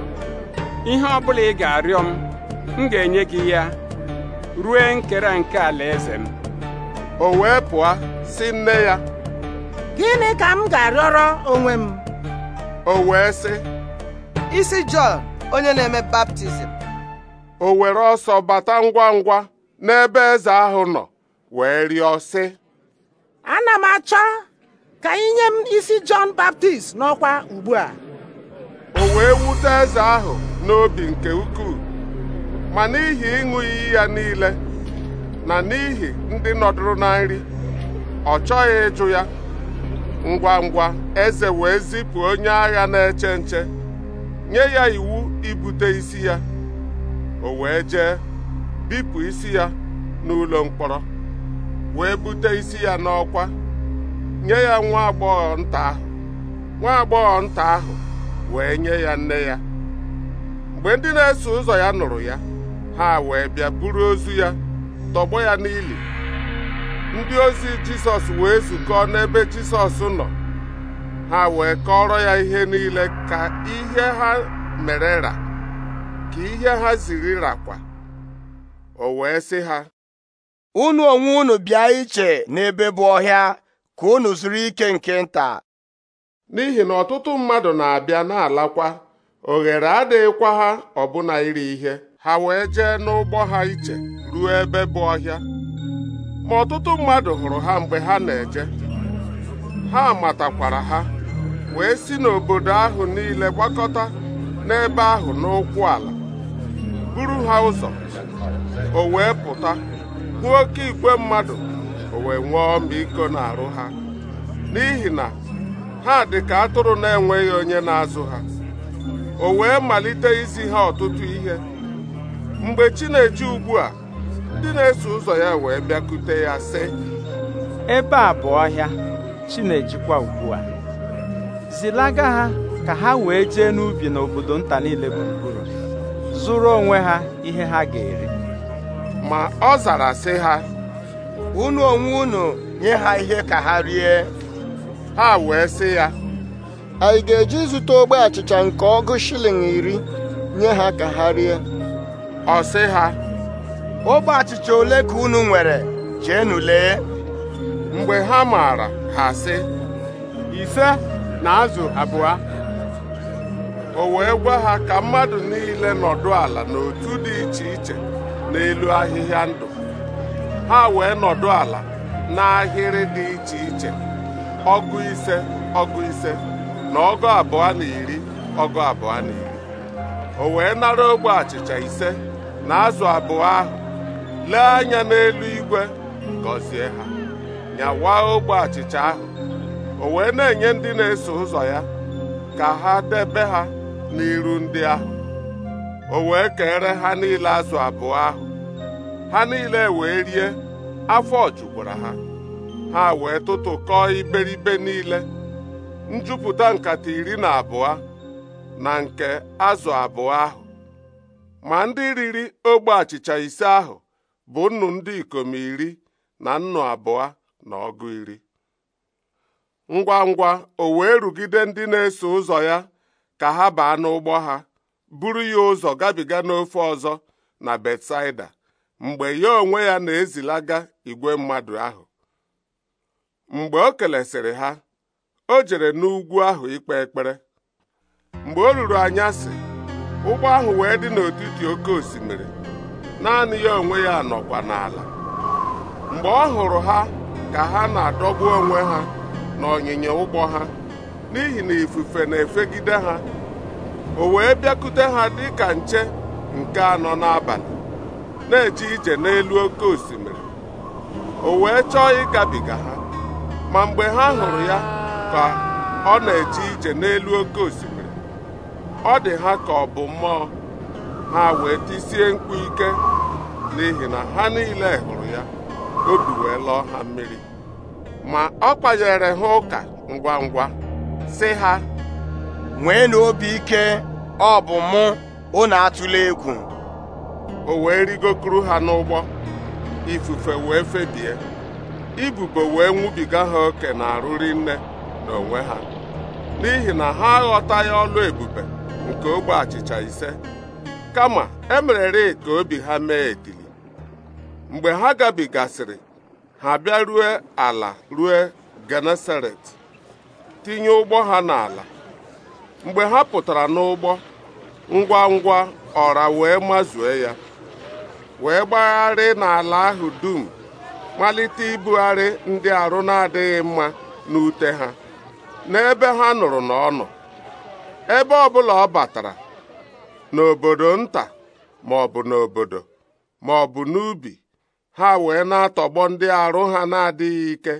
ihe ọ bụla ị ga-arịọ m m ga-enye gị ya rue nkere nke alaeze m o wee pụọ si nne ya gịnị ka m ga-arịọrọ onwe m o wee sị isi Jọn onye na-eme baptizim o were ọsọ bata ngwa ngwa n'ebe eze ahụ nọ wee rịọ sị ana m achọ ka inye m isi Jọn Baptist n'ọkwa ugbu a o wee wute eze ahụ n'obi nke ukwuu ma n'ihi ịṅụ iyi ya niile na n'ihi ndị nọdụrụ na nri ọ chọghị ịjụ ya ngwa ngwa eze wee zipụ onye agha na-eche nche nye ya iwu ibute isi ya o wee jee bipụ isi ya n'ụlọ mkpọrọ wee bute isi ya n'ọkwa nye ya nwa agbọghọ nta ahụ nwa agbọghọ nta ahụ wee nye ya nne ya mgbe ndị na-eso ụzọ ya nụrụ ya ha wee bịa buru ozu ya tọgbọ ya n'ili ndị ozi jisọs wee zukọọ n'ebe jisọs nọ ha wee kọrọ ya ihe niile ka ihe ha mere ra ka ihe ha ziri rakwa o wee sị ha unu onwe unu bịa iche n'ebe bụ ọhịa ka unu zuru ike nke nta n'ihi na ọtụtụ mmadụ na-abịa na-alakwa oghere adịghịkwa ha ọbụna iri ihe ha wee jee n'ụgbọ ha iche ruo ebe bụ ọhịa ma ọtụtụ mmadụ hụrụ ha mgbe ha na-eje ha matakwara ha wee si n'obodo ahụ niile gbakọta n'ebe ahụ n'ụkwụ ala buru ha ụzọ o wee pụta hụ oke igwe mmadụ o wee nwee ọmịiko n'arụ ha n'ihi na ha dị ka atụrụ na-enweghị onye na-azụ ha o wee malite izi ha ọtụtụ ihe mgbe chi na ugbu a ndị na-eso ụzọ ya wee bịakute ya sị ebe a bụ ọhịa chi na-ejikwa ugbu a zilaga ha ka ha wee jee n'ubi n'obodo nta niile gburugburu zụrụ onwe ha ihe ha ga-eri ma ọ zara sị ha unu onwe unu nye ha ihe ka ha rie ha wee sị ya anyị ga-eji zụta ogbe achịcha nke ọgụ shilling iri nye ha ka ha rie ọ sị ha ogbe achịcha ole ka unu nwere jeenu lee mgbe ha maara ha sị ise na azụ abụọ o wee gwa ha ka mmadụ niile nọdụ ala n'otu dị iche iche n'elu ahịhịa ndụ ha wee nọdụ ala n'ahịrị dị iche iche ọgụ ise ọgụ ise na ọgụ abụọ na iri ọgụ abụọ na iri o wee nara ogbe achịcha ise na azụ abụọ ahụ lee anya n'elu igwe gọzie ha nyawa ogbe achịcha ahụ o wee na-enye ndị na-eso ụzọ ya ka ha debe ha n'iru ndị ahụ o wee kere ha niile azụ abụọ ahụ ha niile wee rie afọ jukwara ha ha wee tụtụkọọ iberibe niile njupụta nkata iri na abụọ na nke azụ abụọ ahụ ma ndị riri ogbe achịcha ise ahụ bụ nnu ndị ikom iri na nnu abụọ na ọgụ iri ngwa ngwa o wee rugide ndị na-eso ụzọ ya ka ha baa n'ụgbọ ha buru ya ụzọ gabiga n'ofe ọzọ na Betsaida mgbe ya onwe ya na-ezilaga igwe mmadụ ahụ mgbe o kelesịrị ha o jere n'ugwu ahụ ikpe ekpere mgbe o ruru anya si, ụgbọ ahụ wee dị n'etiti oke osimiri naanị ya onwe ya nọkwa n'ala mgbe ọ hụrụ ha ka ha na-adọgbu onwe ha na n'ọnyịnya ụgbọ ha n'ihi na ifufe na-efegide ha o wee bịakute ha dị ka nche nke anọ n'abalị na-eje ije n'elu oke osimiri o wee chọọ ịgabiga ha ma mgbe ha hụrụ ya ka ọ na-eje ije n'elu oke osimiri ọ dị ha ka ọ bụ mmụọ ha wee tisie mkpu ike n'ihi na ha niile hụrụ ya obi wee lọọ ha mmiri ma ọ kpanyere ha ụka ngwa ngwa sị ha nwee obi ike ọ bụ mụ na atụla egwu o wee rigokuru ha n'ụgbọ ifufe wee febie ibubo wee nwubiga ha oke na-arụri nne n'onwe ha n'ihi na ha aghọtaghị ọlụ ebube nke ogbe achịcha ise kama emerere ka obi ha mee etili mgbe ha gabigasịrị ha bịa rue ala rue Genesaret tinye ụgbọ ha n'ala mgbe ha pụtara n'ụgbọ ngwa ngwa ọra wee mazue ya wee gbagharị n'ala ahụ dum malite ibugharị ndị arụ na-adịghị mma n'ute ha n'ebe ha nụrụ na ọ bụla ebe ọbụla ọ batara n'obodo nta ma ọ bụ n'obodo ma ọ bụ n'ubi ha wee na-atọgbọ ndị arụ ha na-adịghị ike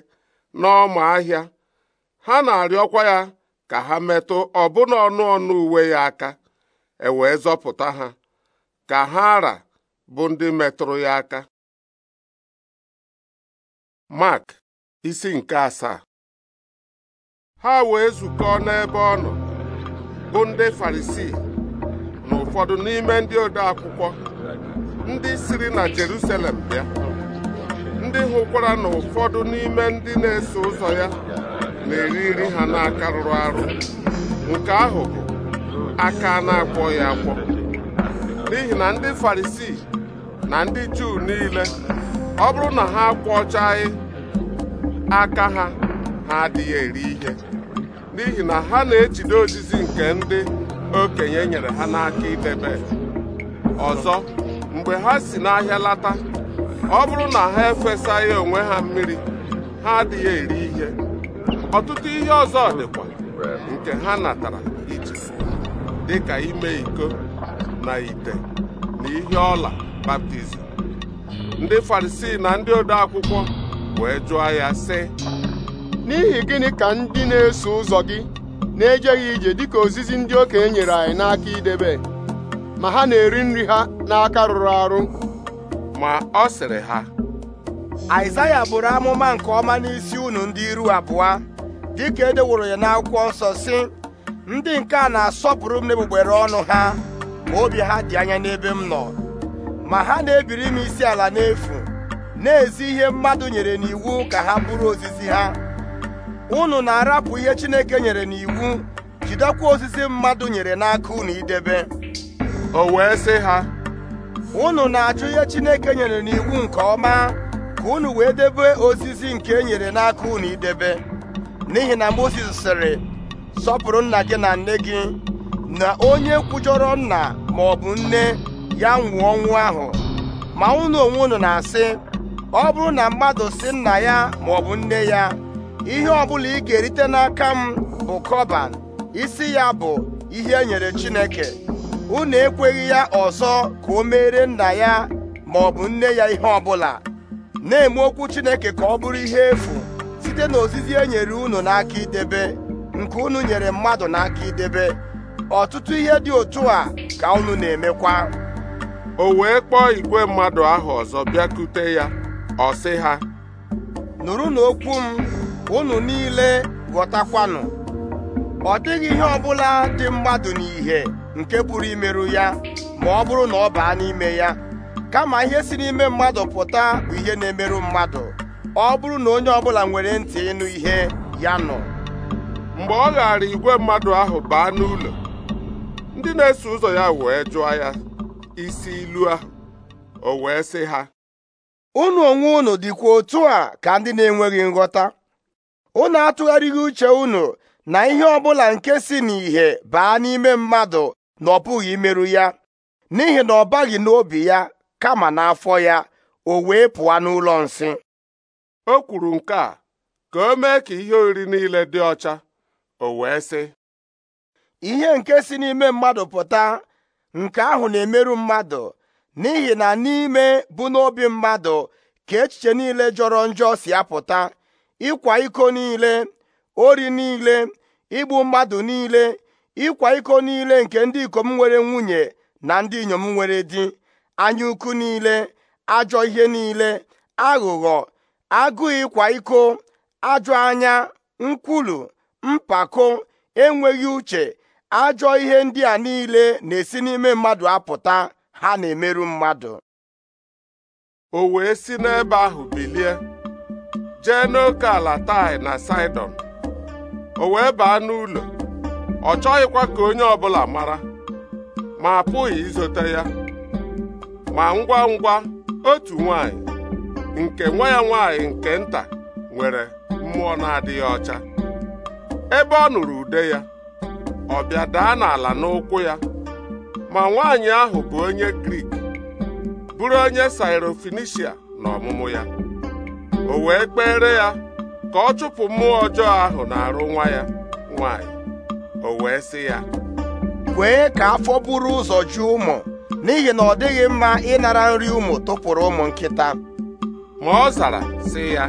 n'ọma ahịa ha na-arịọkwa ya ka ha metụ ọbụna ọnụ ọnụ uwe ya aka e zọpụta ha ka ha ara bụ ndị metụrụ ya aka Mark isi nke asaa ha wee zukọọ n'ebe ọ nọ bụ ndị farisi na ụfọdụ n'ime ndị ode akwụkwọ ndị siri na Jerusalem bịa ndị hụkwara na ụfọdụ n'ime ndị na-eso ụzọ ya na-eri nri ha n'aka rụrụ arụ nke ahụ bụ aka na-akwọ ya n'ihi na ndị farisi na ndị Juu niile ọ bụrụ na ha kwọchaghị aka ha ha adịghị eri ihe n'ihi na ha na-ejide ozizi nke ndị okenye nyere ha n'aka idebe ọzọ mgbe ha si n'ahịa lata ọ bụrụ na ha efesaghị onwe ha mmiri ha adịghị eri ihe ọtụtụ ihe ọzọ dịkwa nke ha natara iji dịka ime iko na ite na ihe ọla baptizim ndị farisii na ndị ode akwụkwọ wee jụọ ya sị n'ihi gịnị ka ndị na-eso ụzọ gị na-ejeghị ije dịka ozizi ndị okenye nyere anyị n'aka idebe ma ha na-eri nri ha n'aka rụrụ arụ ma ọ sịrị ha Aịzaya bụrụ amụma nke ọma n'isi unu ndị iru abụọ dịka edeworo ya n'akwụkwọ nsọ si ndị nke a na-asọpụrụ m n'egbugbere ọnụ ha ma obi ha dị anya n'ebe m nọ ma ha na-ebiri m isi ala n'efu na-ezi ihe mmadụ nyere n'iwu ka ha bụrụ ozizi ha unu na-arapụ ihe Chineke nyere n'iwu jidekwa osisi mmadụ nyere n'aka unu idebe o wee sị ha unu na-achụ ihe Chineke nyere n'iwu nke ọma ka unu wee debe ozizi nke e nyere n'aka unu idebe n'ihi na Mozis sịrị sọpụrụ nna gị na nne gị na onye kwujọrọ nna ma bụ nne ya nwụọ ọnwụ ahụ ma ụnụ onwe unu na-asị ọ bụrụ na mmadụ si nna ya ma ọ bụ nne ya ihe ọbụla ị ga-erite n'aka m bụ kọban isi ya bụ ihe e nyere Chineke unu ekweghị ya ọzọ ka o meere nna ya ma ọ bụ nne ya ihe ọbụla na-eme okwu Chineke ka ọ bụrụ ihe efu site n'ozizi e nyere unu n'aka idebe nke unu nyere mmadụ n'aka idebe ọtụtụ ihe dị otu a ka unu na-emekwa o wee kpọọ igwe mmadụ ahụ ọzọ bịakute ya ọ sị ha Nụrụ okwu m unu niile ghọtakwanụ ọ dịghị ihe ọbụla dị mmadụ n'ihe nke pụrụ imerụ ya ma ọ bụrụ na ọ baa n'ime ya kama ihe si n'ime mmadụ pụta bụ ihe na-emerụ mmadụ ọ bụrụ na onye ọbụla nwere ntị ịnụ ihe ya nọ mgbe ọ ghara igwe mmadụ ahụ baa n'ụlọ ndị na-eso ụzọ ya wee jụọ ya isi ilu ahụ o wee sị ha unu onwe unu dịkwa otu a ka ndị na-enweghị nghọta unu atụgharịghị uche unu na ihe ọbụla nke si n'ìhè baa n'ime mmadụ na ọ pụghị imerụ ya n'ihi na ọ baghị n'obi ya kama n'afọ ya o wee pụọ n'ụlọ nsị o kwuru nke a ka o mee ka ihe oriri niile dị ọcha o wee sị ihe nke si n'ime mmadụ pụta nke ahụ na-emerụ mmadụ n'ihi na n'ime bụ n'obi mmadụ ka echiche niile jọrọ njọ si apụta ịkwa iko niile ori niile igbu mmadụ niile ịkwa iko niile nke ndị ikom nwere nwunye na ndị inyom nwere di anya ukwu niile ajọ ihe niile aghụghọ agụụ ịkwa iko ajọ anya nkwulu mpako enweghị uche ajọ ihe ndị a niile na-esi n'ime mmadụ apụta ha na-emerụ mmadụ o wee si n'ebe ahụ bilie jee n'oke ala tai na saidon o wee baa n'ụlọ ọ chọghịkwa ka onye ọbụla mara ma apụghị izote ya ma ngwa ngwa otu nwanyị nke nwa ya nwanyị nke nta nwere mmụọ na-adịghị ọcha ebe ọ nụrụ ude ya ọ bịa daa n'ala n'ụkwụ ya ma nwaanyị ahụ bụ onye Grik bụrụ onye Sairofenisia na ọmụmụ ya o wee kpere ya ka ọ chụpụ mmụọ ọjọọ ahụ na-arụ nwa ya nwaanyị o wee sị ya kwee ka afọ buru ụzọ ju ụmụ n'ihi na ọ dịghị mma ịnara nri ụmụ tụpụrụ ụmụ nkịta ma ọ zara sị ya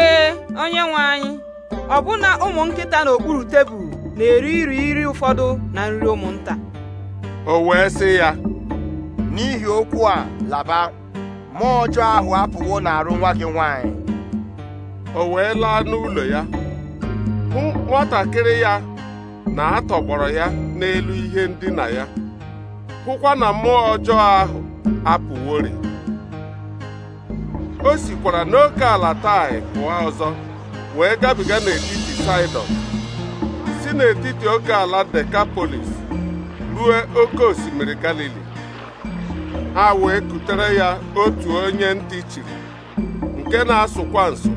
ee onye nwe anyị ọbụna ụmụ nkịta n'okpuru tebụl na-eri iri iri ụfọdụ na nri ụmụnta o wee sị ya n'ihi okwu a laba mmụọ ọjọọ ahụ apụwo na arụ nwa gị nwanyị o wee laa n'ụlọ ya hụ nwatakịrị ya na atọgbọrọ ya n'elu ihe ndina ya hụkwa na mmụọ ọjọọ ahụ apụworị o sikwara n'oke ala tai pụọ ọzọ wee gabiga n'etiti Saịdọn n'etiti oke ala Dekapolis ruo oke osimiri Galili ha wee kutere ya otu onye ntị chiri nke na-asụkwa nso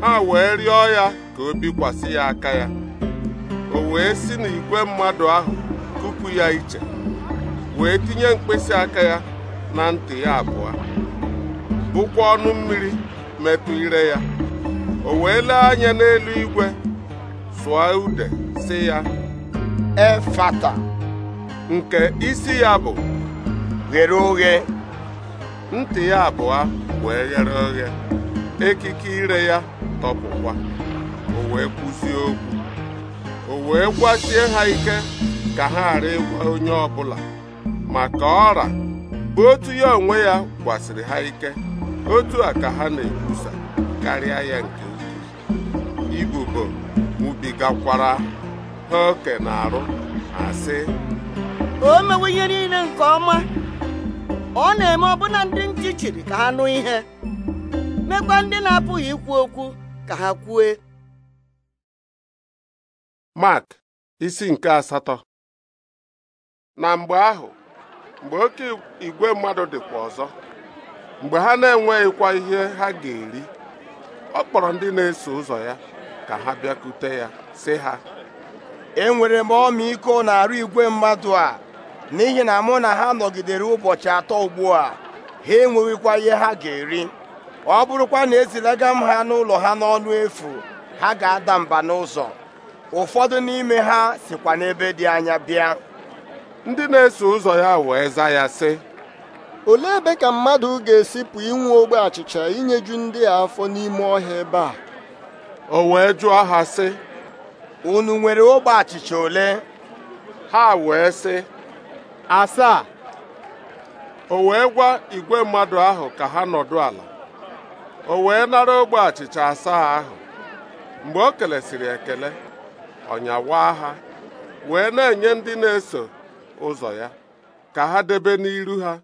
ha wee rịọ ya ka o bikwasị ya aka ya o wee si n'igwe mmadụ ahụ kupu ya iche wee tinye mkpịsị aka ya na ntị ya abụọ bụkwa ọnụ mmiri metụ ire ya o wee lee anya n'elu igwe sụọ ude ya efata nke isi ya bụ ghere oghe ntị ya abụọ wee ghere oghe ekike ire ya tọpụkwa o wee kwusie okwu o wee gwasie ha ike ka ha ghara ịgwa onye ọbụla maka ọra bụ otu ya onwe ya gwasịrị ha ike otu a ka ha na-ekwusa karịa ya nke ukwuu ibubo nwubigakwara ha oke na-arụ asị o mewe ihe niile nke ọma ọ na-eme ọbụna ndị ntị chiri ka ha nụ ihe mekwa ndị na-apụghị ikwu okwu ka ha kwue Mark isi nke asatọ na mgbe ahụ mgbe oke igwe mmadụ dịkwa ọzọ mgbe ha na-enweghịkwa ihe ha ga-eri ọ kpọrọ ndị na-eso ụzọ ya ka ha bịakute ya sị ha enwere m ọmịiko na-arụ igwe mmadụ a n'ihi na mụ na ha nọgidere ụbọchị atọ ugbu a ha enweghịkwa ihe ha ga-eri ọ bụrụkwa na ezilaga m ha n'ụlọ ha n'ọnụ efu ha ga-ada mba n'ụzọ ụfọdụ n'ime ha sikwa n'ebe dị anya bịa ndị na-eso ụzọ ya wee za ya sị olee ebe ka mmadụ ga esipụ inwe ogbe achịcha inyeju ndị a afọ n'ime ọhịa ebe a o wee jụọ ha sị unu nwere ogbe achịcha ole ha wee sị asaa o wee gwa igwe mmadụ ahụ ka ha nọdụ ala o wee nara ogbe achịcha asaa ahụ mgbe o kelesiri ekele ọnyawaa ha wee na-enye ndị na-eso ụzọ ya ka ha debe n'iru ha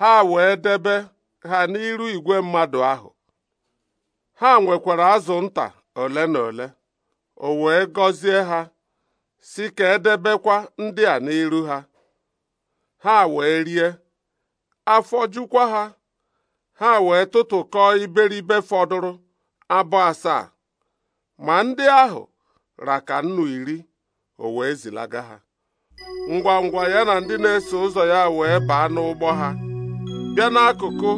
ha wee debe ha n'iru igwe mmadụ ahụ ha nwekwara azụ nta ole na ole o wee gọzie ha si ka edebekwa ndị a n'iru ha ha wee rie afọ jukwa ha ha wee tụtụkọọ iberibe fọdụrụ abụ asaa ma ndị ahụ raka nnu iri o wee zilaga ha ngwa ngwa ya na ndị na-eso ụzọ ya wee baa n'ụgbọ ha bịa n'akụkụ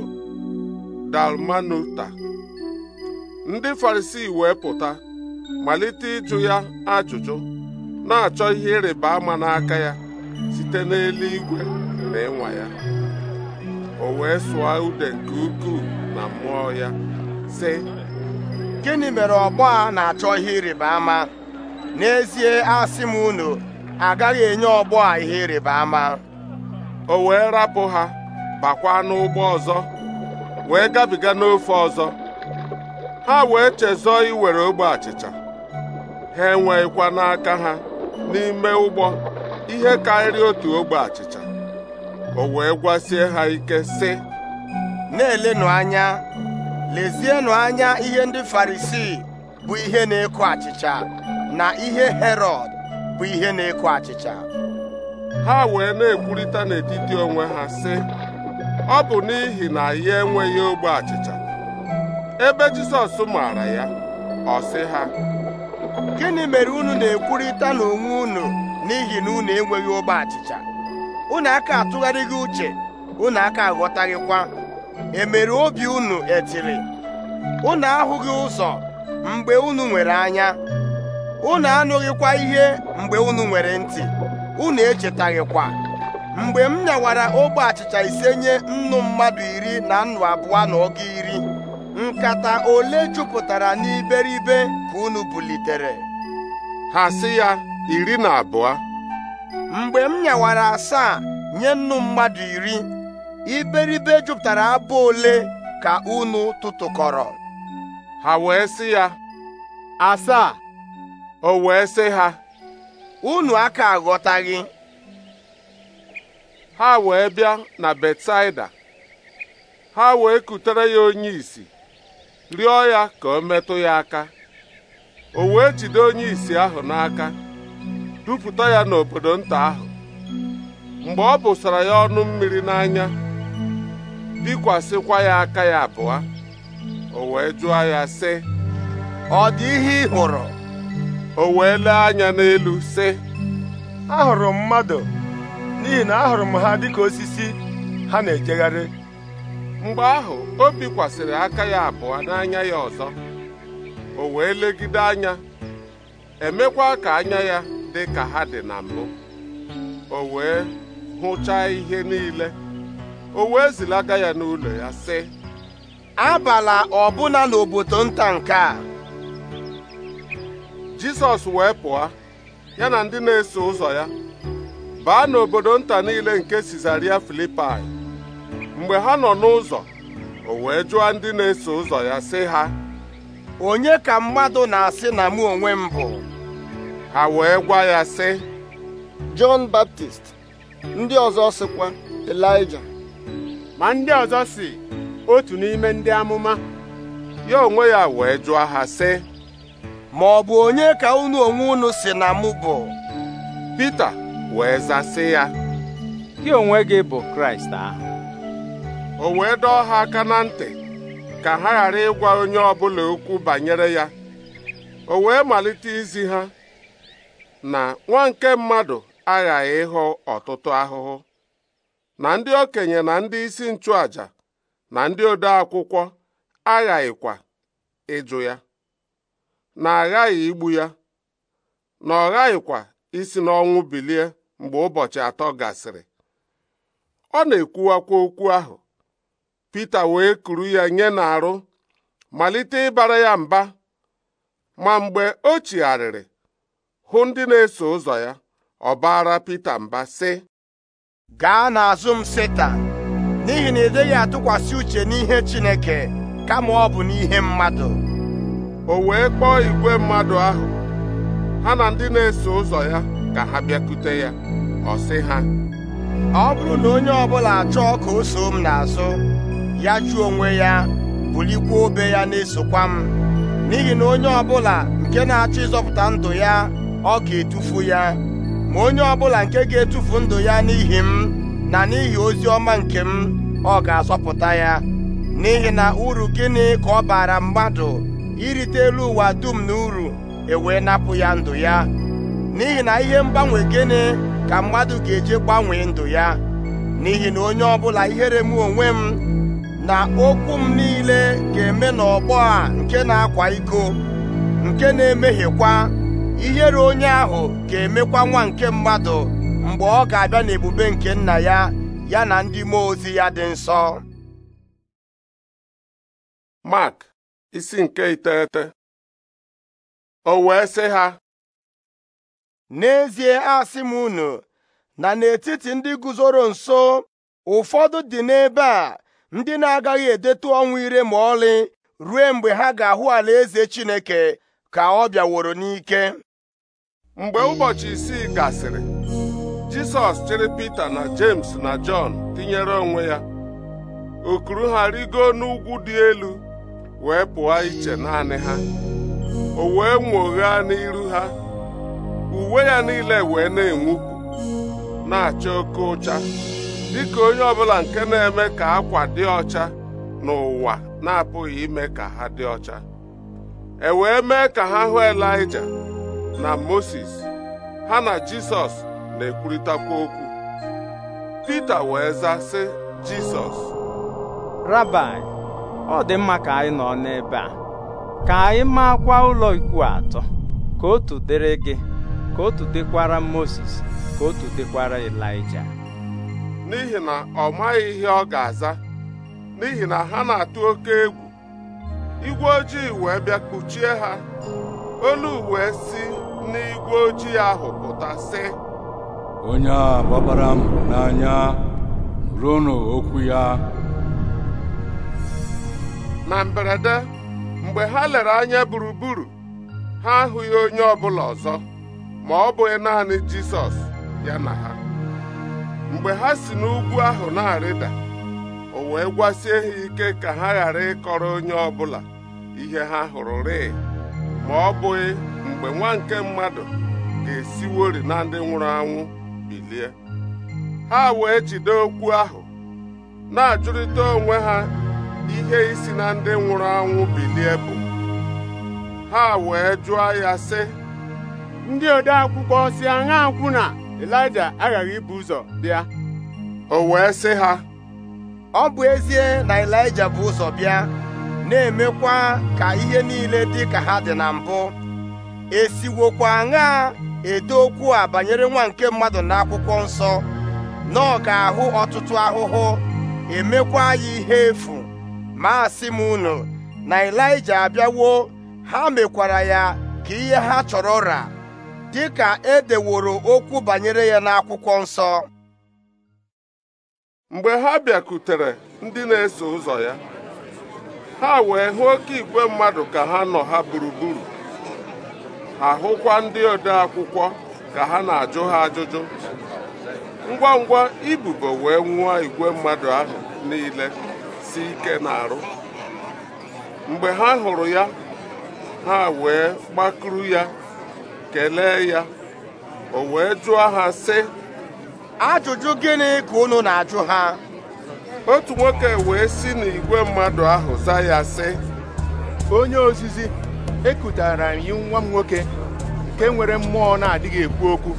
dalmanuta ndị Farisii wee pụta malite ịjụ ya ajụjụ na-achọ ihe ịrịba ama n'aka ya site n'eluigwe na ịnwa ya o wee sụọ ude nke ukwuu na mmụọ ya sị gịnị mere ọgbọ a na-achọ ihe ịrịba ama n'ezie asị m unu agaghị enye ọgbọ a ihe ịrịba ama o wee rapụ ha bakwa n'ụgbọ ọzọ wee gabiga n'ofe ọzọ ha wee chezọọ iwere ogbe achịcha ha enweghịkwa n'aka ha n'ime ụgbọ ihe karịrị otu ogbe achịcha o wee gwasie ha ike sị na-elenụ anya lezienụ anya ihe ndị farisii bụ ihe na-eko achịcha na ihe herọd bụ ihe na-eko achịcha ha wee na-ekwurịta n'etiti onwe ha sị ọ bụ n'ihi na ya enweghị ogbe achịcha ebe Jisọs maara ya ọ sị ha gịnị mere unu na-ekwurịta n'onwe unu n'ihi na unu enweghị ụgbọ achịcha unu aka atụgharịghị uche unu aka aghọtaghịkwa emere obi unu etiri unu ahụghị ụzọ mgbe unu nwere anya unu anụghịkwa ihe mgbe unu nwere ntị unu echetaghịkwa mgbe m nyawara ogbe achịcha ise nye nnu mmadụ iri na nnu abụọ na ọgụ iri nkata ole jupụtara n'iberibe ka unu bulitere ha sị ya iri na abụọ mgbe m nyawara asaa nye nnu mmadụ iri iberibe jupụtara abụ ole ka unu tụtụkọrọ ha wee sị ya asaa o wee sị ha unu aka aghọtaghị ha wee bịa na Betsaida ha wee kutere ya onye isi rịọ ya ka o metụ ya aka o wee jide onye isi ahụ n'aka dupụta ya n'obodo nta ahụ mgbe ọ bụsara ya ọnụ mmiri n'anya bikwasịkwa ya aka ya abụọ o wee jụọ ya sị ọ dị ihe ị hụrụ o wee lee anya n'elu sị ahụrụ m mmadụ n'ihi na ahụrụ m ha dịka osisi ha na-ejegharị mgbe ahụ o bikwasịrị aka ya abụọ n'anya ya ọzọ o wee legide anya emekwa ka anya ya dị ka ha dị na mbụ o wee hụchaa ihe niile o wee zilaga ya n'ụlọ ya sị abala ọbụla n'obodo nta nke a Jisọs wee pụọ ya na ndị na-eso ụzọ ya baa n'obodo nta niile nke Sizaria Filipai mgbe ha nọ n'ụzọ o wee jụọ ndị na-eso ụzọ ya sị ha onye ka mmadụ na-asị na mụ onwe m bụ ha wee gwa ya sị Jọn Baptist ndị ọzọ sịkwa Elija ma ndị ọzọ si otu n'ime ndị amụma ya onwe ya wee jụọ ha sị ma ọ bụ onye ka unu onwe unu si na mụ bụ Pita wee zasị ya gị onwe gị bụ Kraịst ahụ o wee dọọ ha aka na ntị ka ha ghara ịgwa onye ọbụla okwu banyere ya o wee malite izi ha na nwa nke mmadụ aghaghị ịhụ ọtụtụ ahụhụ na ndị okenye na ndị isi nchụaja na ndị ode akwụkwọ aghaghịkwa ịjụ ya na aghaghị igbu ya na ọ ghaghịkwa isi n'ọnwụ bilie mgbe ụbọchị atọ gasịrị ọ na-ekwuwakwa okwu ahụ Pita wee kuru ya nye n'arụ malite ịbara ya mba ma mgbe o chigharịrị hụ ndị na-eso ụzọ ya ọ baara Pita mba sị gaa n'azụ m Setan n'ihi na ị dịghị atụkwasị uche n'ihe Chineke kama ọ bụ n'ihe mmadụ o wee kpọọ igwe mmadụ ahụ ha na ndị na-eso ụzọ ya ka ha bịakute ya ọ sị ha ọ bụrụ na onye ọbụla achọọ ka o soo m n'azụ ya chụọ onwe ya bulikwa obe ya na-esokwa m n'ihi na onye ọbụla nke na-achọ ịzọpụta ndụ ya ọ ga-etufu ya ma onye ọbụla nke ga-etufu ndụ ya n'ihi m na n'ihi ozi ọma nke m ọ ga-azọpụta ya n'ihi na uru gịnị ka ọ bara mmadụ irite elu ụwa dum na uru ewee napụ ya ndụ ya n'ihi na ihe mgbanwe gịnị ka mmadụ ga-eji gbanwee ndụ ya n'ihi na onye ọbụla ihere m onwe m na okwu m niile ga-eme n'ọgbọ a nke na-akwa iko nke na-emehiekwa ihere onye ahụ ga-emekwa nwa nke mmadụ mgbe ọ ga-abịa n'ebube nke nna ya ya na ndị mmụọ ozi ya dị nsọ Mark isi nke iteghete o wee sị ha n'ezie asị m unu na n'etiti ndị guzoro nso ụfọdụ dị n'ebe a ndị na-agaghị edetu ọnwụ ire ma ọlị ruo mgbe ha ga-ahụ ala eze Chineke ka ọ bịaworo n'ike mgbe ụbọchị isii gasịrị Jisọs chịrị Pita na James na Jọn tinyere onwe ya okuru ha rigo n'ugwu dị elu wee pụọ iche naanị ha o wee nwoghaa n'iru ha uwe ya niile wee na-enwupụ na-acha oke ụcha dịka onye ọbụla nke na-eme ka akwa dị ọcha n'ụwa na-apụghị ime ka ha dị ọcha e wee mee ka ha hụ elija na Moses ha na Jisọs na-ekwurịtakwa okwu Pita wee za sị Jisọs Rabai ọ dị mma ka anyị nọ n'ebe a ka anyị maakwa ụlọ ikwu atọ ka otu dịrị gị ka otu dịkwara Moses ka otu dịkwara elija. n'ihi na ọ maghị ihe ọ ga-aza n'ihi na ha na-atụ oke egwu igwe ojii wee bịa kpuchie ha olu wee si n'igwe ojii ahụ pụta sị onye a gbabara m n'anya ruonụ okwu ya na mberede mgbe ha lere anya gburugburu ha ahụghị onye ọ bụla ọzọ ma ọ bụghị naanị Jisọs ya na ha mgbe ha si n'ugwu ahụ na-arịda o wee gwasie ha ike ka ha ghara ịkọrọ onye ọbụla ihe ha hụrụ rịị ma ọ bụghị mgbe nwa nke mmadụ ga-esiwori na ndị nwụrụ anwụ bilie ha wee jide okwu ahụ na-ajụrịta onwe ha ihe isi na ndị nwụrụ anwụ bilie bụ ha wee jụọ ya sị ndị ode si aṅa akwụ na elija aghaghị ibu ụzọ bịa o wee sị ha ọ bụ ezie na elija bụ ụzọ bịa na-emekwa ka ihe niile dị ka ha dị na mbụ esiwokwa aṅaa edo okwu a banyere nwa nke mmadụ na akwụkwọ nsọ na ọ ga-ahụ ọtụtụ ahụhụ emekwa ya ihe efu ma asị m unu na elija abịawo ha mekwara ya ka ihe ha chọrọ ụra. dị ka e deworo okwu banyere ya n'akwụkwọ nsọ mgbe ha bịakutere ndị na-eso ụzọ ya ha wee hụ oke igwe mmadụ ka ha nọ ha gburugburu Ahụkwa ndị ode akwụkwọ ka ha na-ajụ ha ajụjụ ngwa ngwa ibubo wee nwụọ igwe mmadụ ahụ niile si ike na-arụ mgbe ha hụrụ ya ha wee gbakuru ya kelee ya o wee jụọ ha sị ajụjụ gịnị ka unu na-ajụ ha otu nwoke wee si n'igwe mmadụ ahụ za ya sị onye ozizi ekutara anyị nwa m nwoke nke nwere mmụọ na-adịghị ekwu okwu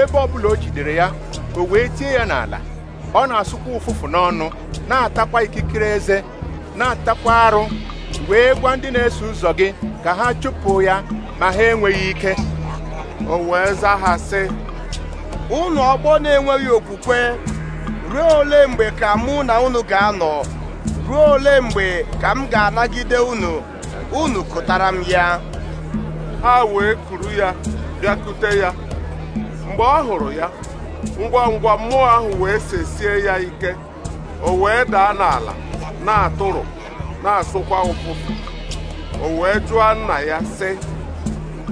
ebe ọ bụla o jidere ya o wee tie ya n'ala ọ na-asụkwa ụfụfụ n'ọnụ na-atakwa ikikere eze na-atakwa arụ wee gwa ndị na-eso ụzọ gị ka ha chụpụ ya ma ha enweghị ike o wee zaa ha unu ọgbọ na-enweghị okwukwe ruo ole mgbe ka mụ na unu ga-anọ ruo ole mgbe ka m ga-anagide unu unu kụtara m ya ha wee kuru ya bịakute ya mgbe ọ hụrụ ya ngwa ngwa mmụọ ahụ wee sesie ya ike o wee daa n'ala na atụrụ na-asụkwa ụfụfụ o wee jụọ nna ya sị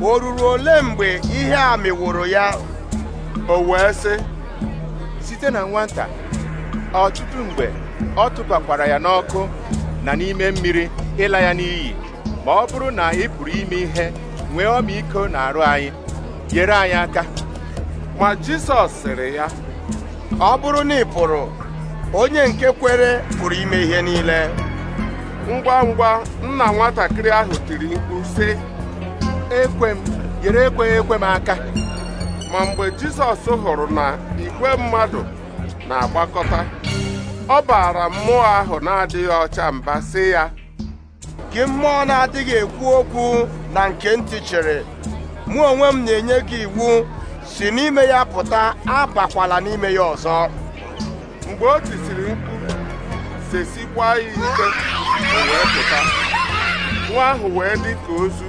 o ruru ole mgbe ihe a mịwụrụ ya o wee sị site na nwata ọtụtụ mgbe ọ tụbakwara ya n'ọkụ na n'ime mmiri ịla ya n'iyi ma ọ bụrụ na ị pụrụ ime ihe nwee ọmịiko na arụ anyị nyere anyị aka ma Jisọs sịrị ya ọ bụrụ na ị pụrụ onye nke kwere pụrụ ime ihe niile ngwa ngwa nna nwatakịrị ahụ tiri mkpu sị ekwe m ekweghị ekwe m aka ma mgbe jizọs hụrụ na igwe mmadụ na-agbakọta ọ bara mmụọ ahụ na-adịghị ọcha mba sị ya gị mmụọ na-adịghị ekwu okwu na nke ntị chịrị mụ onwe m na-enye gị iwu si n'ime ya pụta abakwala n'ime ya ọzọ mgbe o tisiri mkpu sesikwa ya ike wee pụta nwa ahụ wee dị ka ozu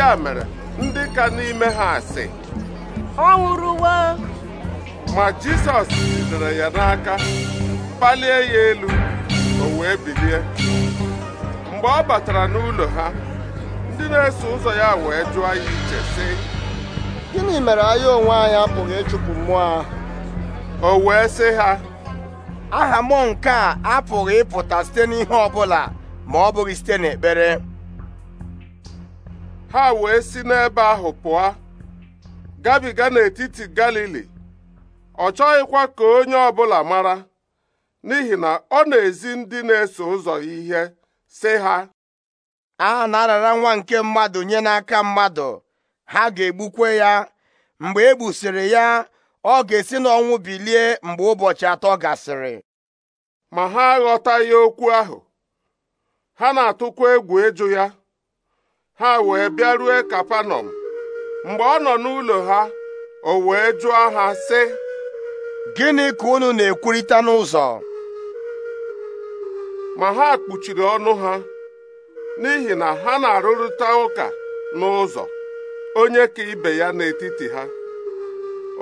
ya mere ndị ka n'ime ha asị ọ nwụrụwo ma Jizọs jidere ya n'aka kpalie ya elu o wee bilie mgbe ọ batara n'ụlọ ha ndị na-eso ụzọ ya wee jụọ ya iche sị gịnị mere anyị onwe anyị apụghị ịchụpụ mmụọ ahụ o wee sị ha aha mụ nke a apụghị ịpụta site n'ihe ọ ma ọ bụghị site n'ekpere ha wee si n'ebe ahụ pụọ gabiga n'etiti Galili ọ chọghịkwa ka onye ọbụla mara n'ihi na ọ na-ezi ndị na-eso ụzọ ihe sị ha a na-arara nwa nke mmadụ nye n'aka mmadụ ha ga-egbukwe ya mgbe e gbusịrị ya ọ ga-esi n'ọnwụ bilie mgbe ụbọchị atọ gasịrị ma ha aghọtaghị okwu ahụ ha na-atụkwa egwu ịjụ ya ha wee bịarue kapanọm mgbe ọ nọ n'ụlọ ha o wee jụọ ha sị gịnị ka unu na-ekwurịta n'ụzọ ma ha kpuchiri ọnụ ha n'ihi na ha na-arụrịta ụka n'ụzọ onye ka ibe ya n'etiti ha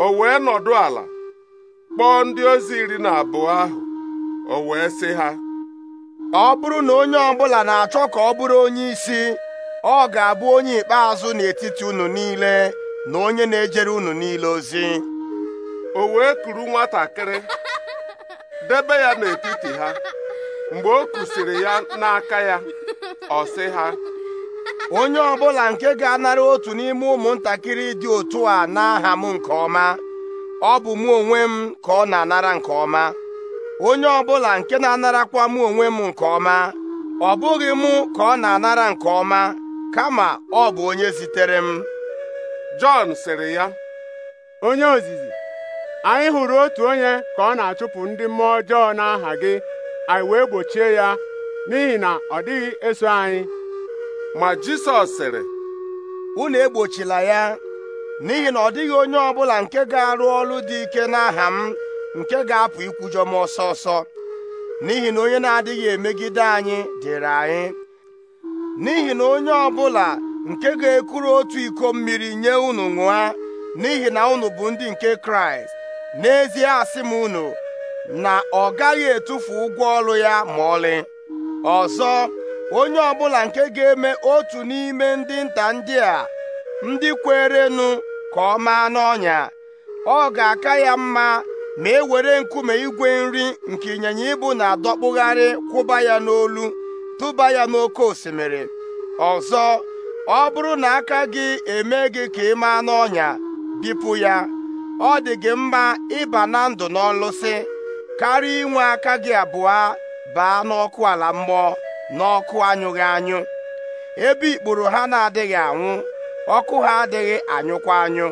o wee nọdụ ala kpọọ ndị ozi iri na abụọ ahụ o wee sị ha ọ bụrụ na onye ọbụla na-achọ ka ọ bụrụ onye isi ọ ga-abụ onye ikpeazụ n'etiti unu niile na onye na-ejere unu niile ozi o wee kuru nwatakịrị debe ya n'etiti ha mgbe o kwụsịrị ya n'aka ya ọ sị ha onye ọbụla nke ga-anara otu n'ime ụmụntakịrị dị otu a n'aha m nke ọma ọ bụ mụ onwe m ka ọ na-anara nke ọma onye ọbụla nke na-anarakwa mụ onwe m nke ọma ọ bụghị mụ ka ọ na-anara nke ọma kama ọ bụ onye zitere m Jọn sịrị ya onye ozizi anyị hụrụ otu onye ka ọ na-achụpụ ndị mmụọ ọjọọ n'aha gị anyị wee gbochie ya n'ihi na ọ dịghị eso anyị ma Jisọs sịrị unu egbochila ya n'ihi na ọ dịghị onye ọbụla nke ga-arụ ọrụ dị ike n'aha m nke ga-apụ ikwujọ m ọsọ ọsọ n'ihi na onye na-adịghị emegide anyị dịrị anyị n'ihi na onye ọbụla nke ga-ekuru otu iko mmiri nye unu nwụa n'ihi na unu bụ ndị nke kraịst n'ezie asị m unu na ọ gaghị etufu ụgwọ ọrụ ya ma ọlị ọzọ onye ọbụla nke ga-eme otu n'ime ndị nta ndị a ndị kwerenụ ka ọ maa n'ọnya ọ ga-aka ya mma ma e were nkume igwe nri nke ịnyịnya ibu na-adọkpụgharị kwụba ya n'olu tụba ya n'oké osimiri ọzọ ọ bụrụ na aka gị eme gị ka ị maa n'ọnya bipụ ya ọ dị gị mma ịba na ndụ n'ọlụsị karịa inwe aka gị abụọ baa n'ọkụ ala mmụọ n'ọkụ anyụghị anyụ ebe ikpuru ha na-adịghị anwụ ọkụ ha adịghị anyụkwa anyụ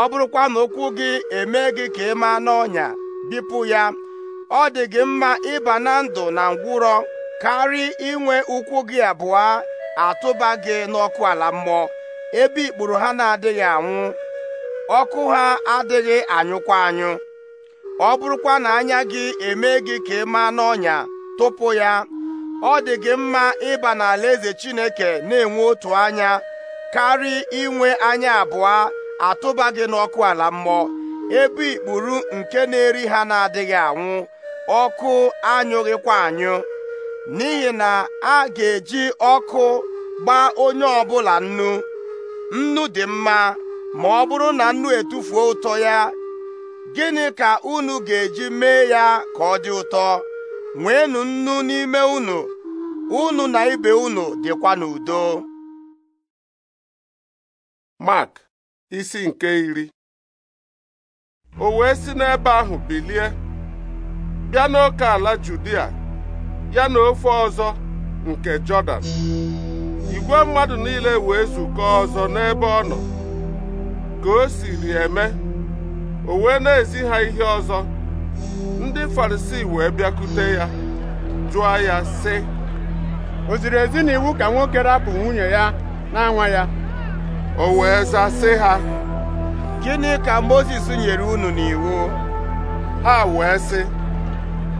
ọ bụrụkwa na ụkwụ gị eme gị ka ị maa n'ọnya bipụ ya ọ dị gị mma ịba na ndụ na ngwụrọ karị inwe ụkwụ gị abụọ atụba gị n'ọkụ ala mmụọ ebe ikpuru ha na-adịghị anwụ ọkụ ha adịghị anyụkwa anyụ ọ bụrụkwa na anya gị eme gị ka ị n'ọnya tụpụ ya ọ dị gị mma ịba n'ala eze Chineke na-enwe otu anya karị inwe anya abụọ atụba gị n'ọkụ ala mmụọ ebe ikpuru nke na-eri ha na-adịghị anwụ ọkụ anyụghịkwa anyụ n'ihi na a ga-eji ọkụ gbaa onye ọbụla nnu nnu dị mma ma ọ bụrụ na nnu etufuo ụtọ ya gịnị ka unu ga-eji mee ya ka ọ dị ụtọ nwee nnu n'ime unu unu na ibe unu dịkwa n'udo Mark isi nke iri o wee si n'ebe ahụ bilie bịa n'oke ala Judia ya na ofe ọzọ nke Jọdan igwe mmadụ niile wee zukọ ọzọ n'ebe ọ nọ ka o siri eme o wee na-ezi ha ihe ọzọ ndị Farisii wee bịakute ya jụọ ya sị o ziri ezi ka nwoke rapụ nwunye ya na-anwa ya o wee za sị ha gịnị ka Mozis nyere unu n'iwu ha wee sị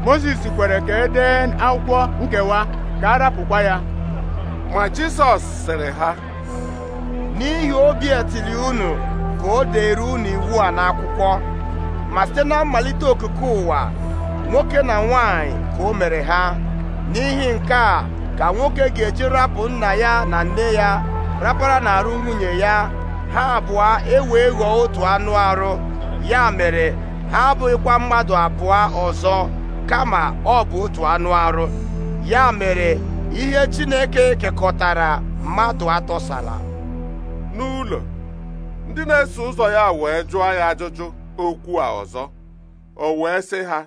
Moses kwere ka e dee akwụkwọ nkewa ka a rapụkwa ya ma Jisọs sịrị ha n'ihi obi etiri unu ka o dere unu iwu a n'akwụkwọ ma site na mmalite okike ụwa nwoke na nwanyị ka o mere ha n'ihi nke a ka nwoke ga-eji rapụ nna ya na nne ya rapara n'arụ nwunye ya ha abụọ ewee ghọọ otu anụ arụ ya mere ha abụghịkwa mmadụ abụọ ọzọ kama ọ bụ otu anụ arụ ya mere ihe Chineke kekọtara mmadụ atọsala n'ụlọ ndị na-eso ụzọ ya wee jụọ ya ajụjụ okwu a ọzọ o wee sị ha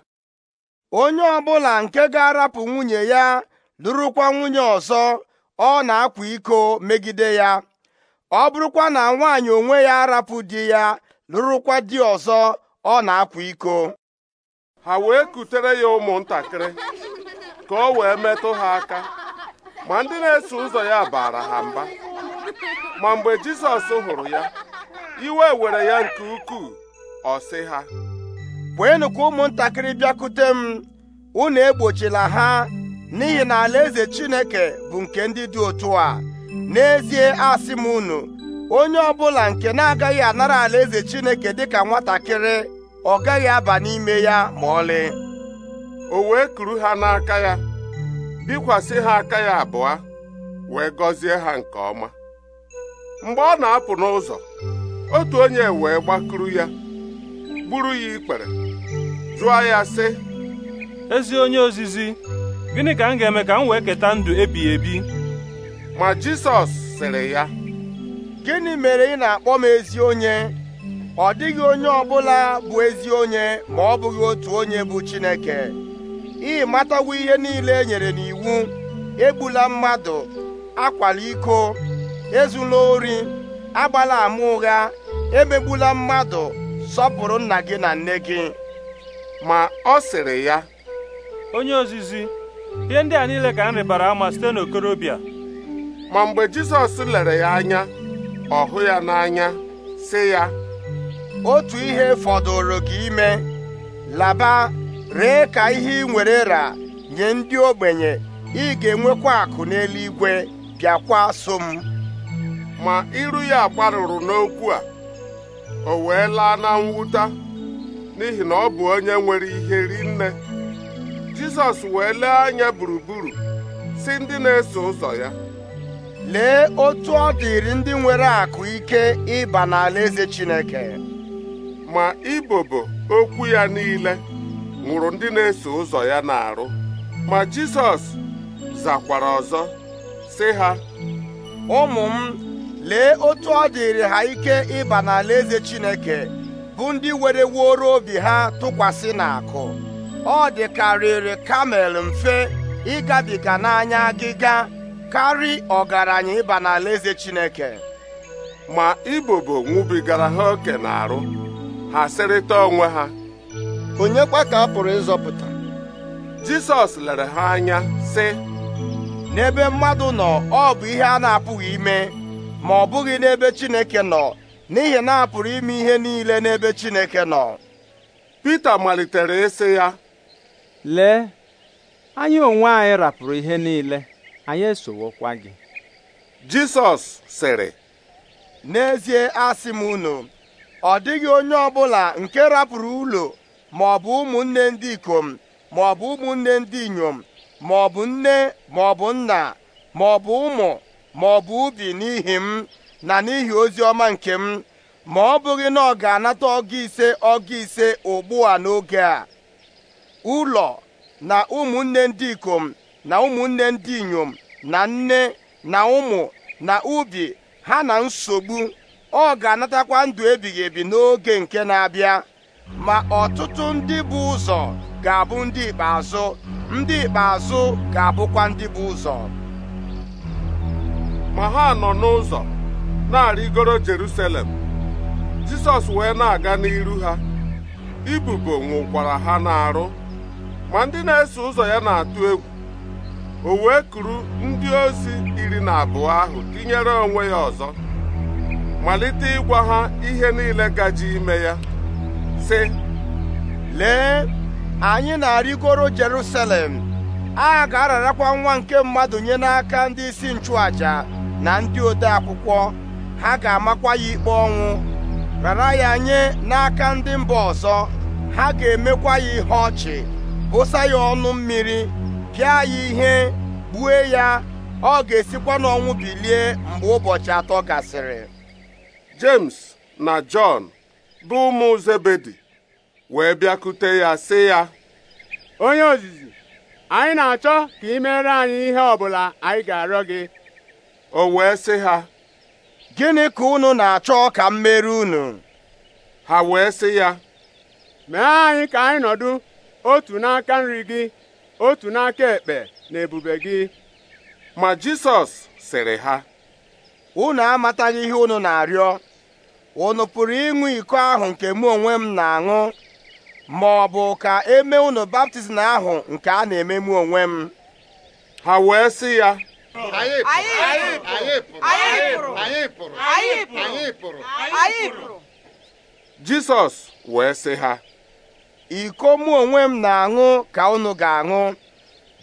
onye ọbụla nke ga-arapụ nwunye ya lụrụkwa nwunye ọzọ ọ na-akwa iko megide ya ọ bụrụkwa na nwaanyị onwe ya arapụ di ya lụrụkwa di ọzọ ọ na-akwa iko ha wee kutere ya ụmụntakịrị ka o wee metụ ha aka ma ndị na-eso ụzọ ya bara ha mba ma mgbe jisọs hụrụ ya iwe were ya nke ukwuu ọ sị ha wee ka ụmụntakịrị bịakute m unu egbochila ha n'ihi na alaeze Chineke bụ nke ndị dị otu a n'ezie asị m unu onye ọbụla nke na-agaghị anara alaeze Chineke dịka nwatakịrị ọ gaghị aba n'ime ya ma ọlị o wee kuru ha n'aka ya bikwasị ha aka ya abụọ wee gọzie ha nke ọma mgbe ọ na-apụ n'ụzọ otu onye wee gbakuru ya gburu ya ikpere jụọ ya sị ezi onye ozizi gịnị ka m ga-eme ka m wee keta ndụ ebighị ebi ma Jisọs sịrị ya gịnị mere ị na-akpọ m ezi onye ọ dịghị onye ọbụla bụ ezi onye ma ọ bụghị otu onye bụ Chineke ị matawo ihe niile e nyere n'iwu egbula mmadụ akwala iko ezula ori agbala ama ụgha emegbula mmadụ sọpụrụ nna gị na nne gị ma ọ sịrị ya onye ozizi ihe ndị a niile ka m ama site n'okorobịa ma mgbe Jizọs lere ya anya ọ ya n'anya sị ya otu ihe fọdụrụ gị ime laba ree ka ihe ị nwere ra nye ndị ogbenye ị ga-enwekwa akụ n'eluigwe bịakwa so m ma iru ya gbarụrụ n'okwu a o wee laa na mwute n'ihi na ọ bụ onye nwere ihe rinne Jizọs wee lee anya gburugburu si ndị na-eso ụzọ ya lee otu ọ dịrị ndị nwere akụ ike ịba n'alaeze Chineke ma ibobo okwu ya niile nwụrụ ndị na-eso ụzọ ya na-arụ ma Jizọs zakwara ọzọ sị ha ụmụ m lee otu ọ dịrị ha ike ịba n'alaeze Chineke bụ ndị were wuoro obi ha tụkwasị n'akụ ọ dịkarịrị kamel mfe ịgabiga n'anya agịga karị ọgaranya ịba n'alaeze Chineke ma ibobo nwụbigara ha oke arụ ha sịrịta onwe ha onye kwa ka a pụrụ ịzọpụta Jisọs lere ha anya sị n'ebe mmadụ nọ ọ bụ ihe a na-apụghị ime ma ọ bụghị n'ebe Chineke nọ n'ihi na a pụrụ ime ihe niile n'ebe Chineke nọ Pita malitere ịsị ya lee anyị onwe anyị rapụrụ ihe niile anyị esowokwa gị Jisọs sịrị n'ezie asị m unu ọ dịghị onye ọbụla nke rapụrụ ụlọ ma ọ bụ ụmụnne ndị ikom ma ọ bụ ụmụnne ndị inyom ma ọ bụ nne ma ọ bụ nna ma ọ bụ ụmụ ma ọ bụ ubi n'ihi m na n'ihi ozi ọma nke m ma ọ bụghị na ọ ga-anata ọgụ ise ọgụ ise ugbu a n'oge a ụlọ na ụmụnne ndị ikom na ụmụnne ndị inyom na nne na ụmụ na ubi ha na nsogbu ọ ga-anatakwa ndụ ebighị ebi n'oge nke na-abịa ma ọtụtụ ndị bụ ụzọ ga-abụ ndị ikpeazụ ndị ikpeazụ ga-abụkwa ndị bụ ụzọ ma ha nọ n'ụzọ na-arịgoro Jerusalem Jisọs wee na-aga n'iru ha ibubo nwụkwara ha n'arụ ma ndị na-eso ụzọ ya na-atụ egwu o wee kuru ndị ozi iri na abụọ ahụ tinyere onwe ya ọzọ malite ịgwa ha ihe niile gaji ime ya sị lee anyị na-arịgoro Jerusalem a ga-ararakwa nwa nke mmadụ nye n'aka ndị isi nchụaja na ndị ode akwụkwọ ha ga-amakwa ya ikpe ọnwụ rara ya nye n'aka ndị mba ọzọ ha ga-emekwa ya ihe ọchị bụsa ya ọnụ mmiri pịa ya ihe gbue ya ọ ga-esikwa n'ọnwụ bilie mgbe ụbọchị atọ gasịrị James na Jọn bụ ụmụ Zebedi wee bịakute ya sị ya onye ozizi anyị na-achọ ka ị mere anyị ihe ọbụla anyị ga-arịọ gị o wee sị ha gịnị ka unu na-achọ ka m mere unu ha wee sị ya mee anyị ka anyị nọdụ otu n'aka nri gị otu n'aka ekpe na ebube gị ma Jisọs sịrị ha unu amataghị ihe unu na-arịọ unu pụrụ ịṅụ iko ahụ nke mụ onwe m na-aṅụ ma ọ bụ ka eme unu baptizim ahụ nke a na-eme mụ onwe m ha wee sị ya jisọs wee sị ha iko mụ onwe m na-aṅụ ka unu ga-aṅụ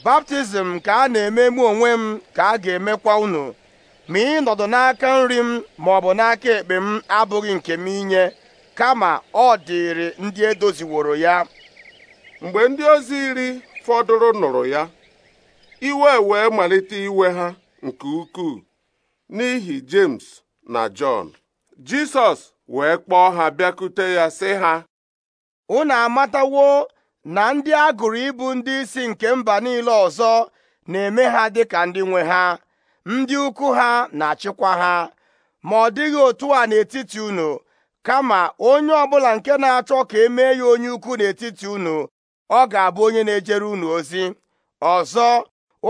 baptizim ka a na-eme mụ onwe m ka a ga-emekwa unu ma ị nọdụ n'aka nri m ma ọ bụ n'aka ekpe m abụghị nke m inye kama ọ dịrị ndị edoziworo ya mgbe ndị ozi iri fọdụrụ nụrụ ya iwe wee malite iwe ha nke ukwuu n'ihi James na John Jisọs wee kpọọ ha bịakute ya sị ha unu amatawo na ndị a gụrụ ndị isi nke mba niile ọzọ na-eme ha dịka ndị nwe ha ndị ukwu ha na-achịkwa ha ma ọ dịghị otu a n'etiti unu kama onye ọbụla nke na-achọ ka e mee ya onye ukwu n'etiti unu ọ ga-abụ onye na-ejere unu ozi ọzọ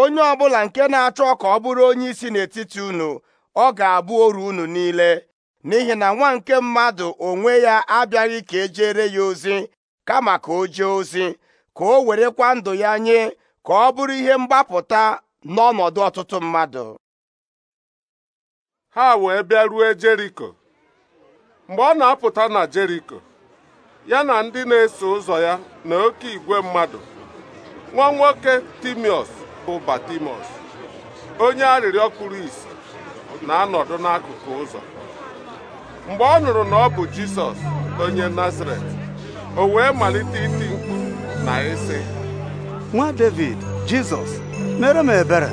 onye ọbụla nke na-achọ ka ọ bụrụ onye isi n'etiti unu ọ ga-abụ oru unu niile n'ihi na nwa nke mmadụ onwe ya abịaghị ka e jere ya ozi kama ka o jee ozi ka o werekwa ndụ ya nye ka ọ bụrụ ihe mgbapụta n'ọnọdụ ọtụtụ mmadụ ha wee bịa rue Jeriko mgbe ọ na-apụta na Jeriko ya na ndị na-eso ụzọ ya na oke igwe mmadụ nwa nwoke Timiọs bụ Batimọs onye arịrịọ kpuru isi na-anọdụ n'akụkụ ụzọ mgbe ọ nụrụ na ọ bụ Jisọs onye Nazaret o wee malite iti mkpu na ịsị nwa David Jizọs mere m ebere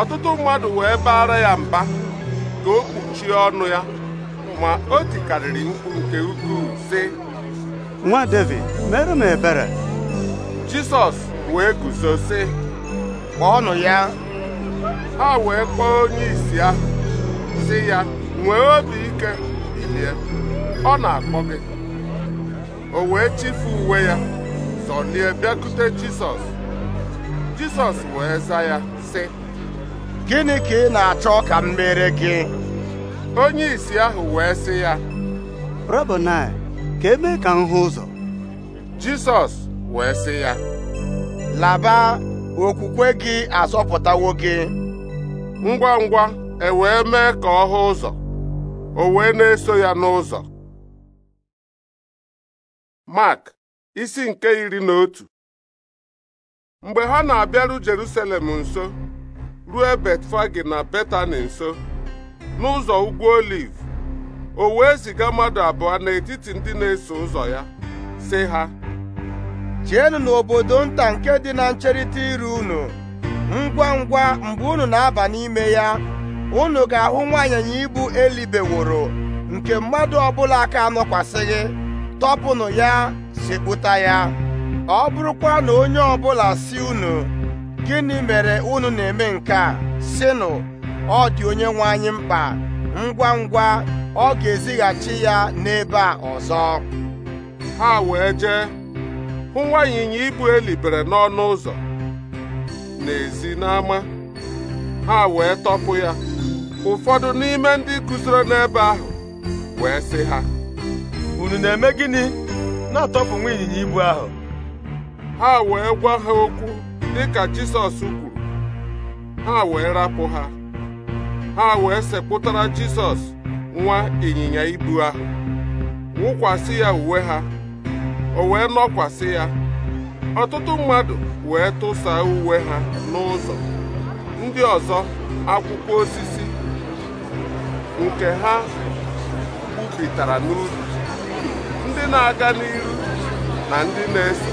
ọtụtụ mmadụ wee baara ya mba ka o kpuchie ọnụ ya ma o tikarịrị mkpu nke ukwuu sị nwa David mere m ebere Jisọs wee guzo sị kpọọnụ ya ha wee kpọọ onye isi ahụ si ya nwee obi ike bilie ọ na-akpọ gị o wee chifu uwe ya zọlie bịakute Jisọs Jizọs wee za ya sị gịnị ka ị na-achọ ka m mere gị onye isi ahụ wee sị ya Rabonai ka eme ka m hụ ụzọ Jizọs wee sị ya laba okwukwe gị azọpụtawo gị ngwa ngwa e wee mee ka ọ hụ ụzọ o wee na-eso ya n'ụzọ Mark isi nke iri na otu mgbe ha na-abịaru Jerusalem nso ruo Betfagi na Betani nso n'ụzọ ugwu Oliv o wee ziga mmadụ abụọ n'etiti ndị na-eso ụzọ ya sị ha Jeenu n'obodo nta nke dị na ncherịta iru unu ngwa ngwa mgbe unu na-aba n'ime ya unu ga-ahụ nwaanyịnya ibu elibeworo nke mmadụ ọbụla aka anọkwasịghị tọpụnụ ya sekpụta ya ọ bụrụkwa na onye ọbụla si unu gịnị mere unu na-eme nke a nụ ọ dị onye nwe anyị mkpa ngwa ngwa ọ ga-ezighachi ya n'ebe a ọzọ ha wee jee hụ nwa ịnyịnya ibu elibere n'ọnụ ụzọ ezi n'ama ha wee tọpụ ya ụfọdụ n'ime ndị kụziri n'ebe ahụ wee sị ha unu na-eme gịnị na-atọpụ nwa ịnyịnya ibu ahụ ha wee gwa ha okwu dịka Jizọs kwuru ha wee rapụ ha ha wee sekpụtara Jisọs nwa ịnyịnya ibu ahụ wụkwasị ya uwe ha o wee nọkwasị ya ọtụtụ mmadụ wee tụsa uwe ha n'ụzọ ndị ọzọ akwụkwọ osisi nke ha gbupịtara n'ubi ndị na-aga n'iru na ndị na-eso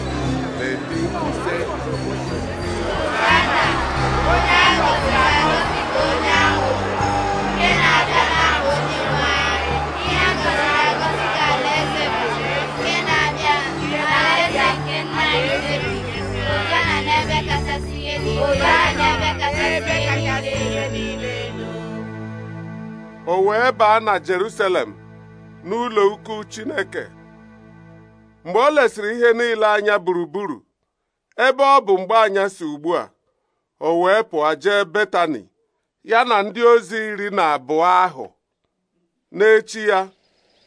o wee baa na Jerusalem n'ụlọ ukwu Chineke mgbe o lesịrị ihe niile anya gburugburu ebe ọ bụ mgbe si ugbu a o wee pụọ jee Betani ya na ndị ozi iri na abụọ ahụ n'echi ya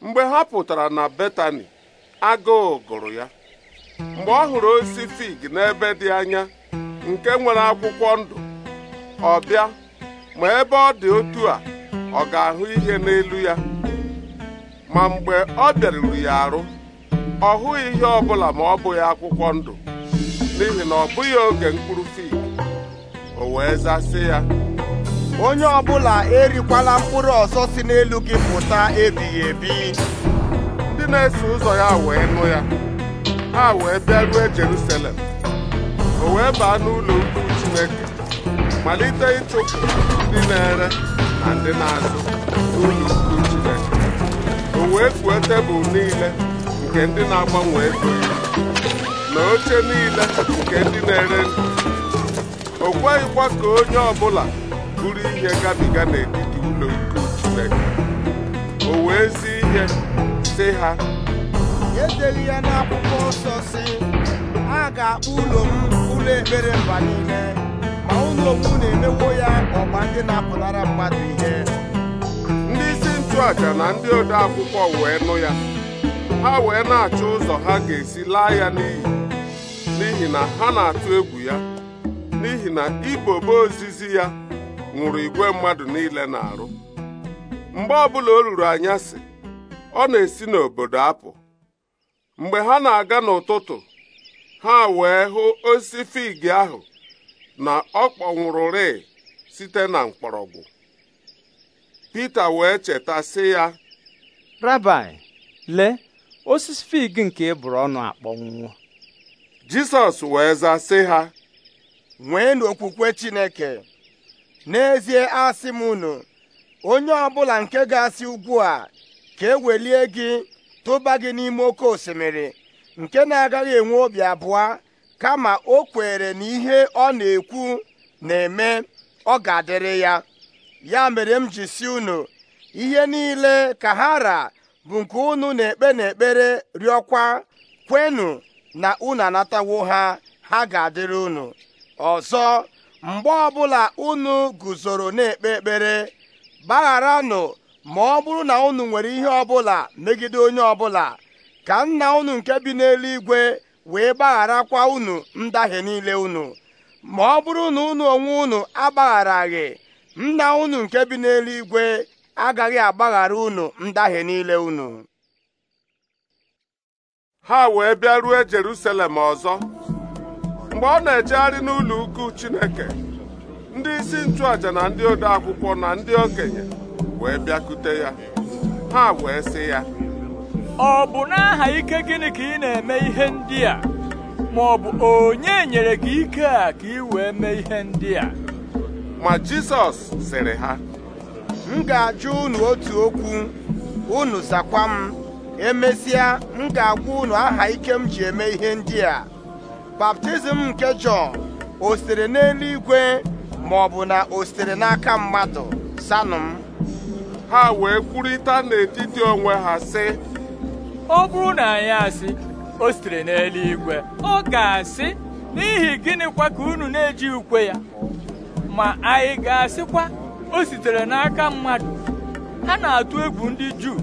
mgbe ha pụtara na Betani agụụ gụrụ ya mgbe ọ hụrụ osisi fig n'ebe dị anya nke nwere akwụkwọ ndụ ọ bịa ma ebe ọ dị otu a ọ ga-ahụ ihe n'elu ya ma mgbe ọ bịaruru ya arụ ọ hụghị ihe ọbụla ma ọ bụghị akwụkwọ ndụ n'ihi na ọ bụghị oge mkpụrụ fig o wee zasị ya onye ọbụla erikwala mkpụrụ ọzọ si n'elu gị pụta ebighị ebi ndị na-eso ụzọ ya wee nụ ya ha wee bịa ruo Jerusalem o wee baa n'ụlọ ukwu Chineke malite ịchụpụ ndị na-ere na ndị na n'ụlọ ukwu Chineke o wee tebụl niile nke ndị na-agbanwe ego na oche niile nke ndị na-ere ndụ o kweghịkwa ka onye ọbụla bụrụ ihe gabiga n'etiti ụlọ ikwu Chineke o wee zi ihe sị ha edeli ya n'akwụkwọ nsọ si a ga-akpọ ụlọ m ụlọ ekpere mba niile ma ụlọ okwu na-emewo ya ọgba ndị na-apụnara mmadụ ihe ndị isi nchụaja na ndị ode akwụkwọ wee nụ ya ha wee na-achọ ụzọ ha ga-esi laa ya n'iyi n'ihi na ha na-atụ egwu ya n'ihi na ibobo ozizi ya ṅụrụ igwe mmadụ niile na-arụ mgbe ọbụla o ruru anyasị ọ na-esi n'obodo apụ mgbe ha na-aga n'ụtụtụ ha wee hụ osisi fig ahụ na ọ kpọnwụrụrị site na mkpọrọgwụ Pita wee cheta sị ya lee osisi fig nke e bụrụ ọnụ akpọnwụwo jesus wee zaa sị ha nwee okwukwe chineke n'ezie asị m unu onye ọbụla nke ga-asị ugbu a ka ewelie gị tụba gị n'ime oke osimiri nke na-agaghị enwe obi abụọ kama o kwere na ihe ọ na-ekwu na-eme ọ ga-adịrị ya ya mere m ji si unu ihe niile ka ha ra bụ nke unu na-ekpe n'ekpere rịọkwa kwenụ na unu anatawo ha ha ga-adịrị unu ọzọ mgbe ọbụla unu guzoro na-ekpe ekpere gbagharanụ ma ọ bụrụ na unu nwere ihe ọbụla megide onye ọbụla ka nna unu nke bi n'eluigwe wee gbagharakwa unu ndahie niile unu ma ọ bụrụ na unu onwe unu agbagharaghị nna unu nke bi n'eluigwe agaghị agbaghara unu ndahie niile unu ha wee bịa ruo Jerusalem ọzọ mgbe ọ na-ejegharị n'ụlọ ukwu Chineke ndị isi nchụaja na ndị ode akwụkwọ na ndị okenye wee bịakute ya ha wee sị ya ọ bụ n'aha ike gịnị ka ị na-eme ihe ndị a ma ọ bụ onye nyere gị ike a ka ị wee mee ihe ndị a ma Jisọs sịrị ha m ga-ajụ unu otu okwu unu zakwa m emesịa m ga-agwa unu aha ike m ji eme ihe ndị a baptizim nke Jọn o sitere n'eluigwe ma ọ bụ na o sitere n'aka mmadụ sanụ ha wee kwurịta n'etiti onwe ha sị ọ bụrụ na anyị asị o sitere n'eluigwe ọ ga-asị n'ihi gịnịkwa ka unu na-eji ukwe ya ma anyị ga-asịkwa o sitere n'aka mmadụ ha na-atụ egwu ndị Juu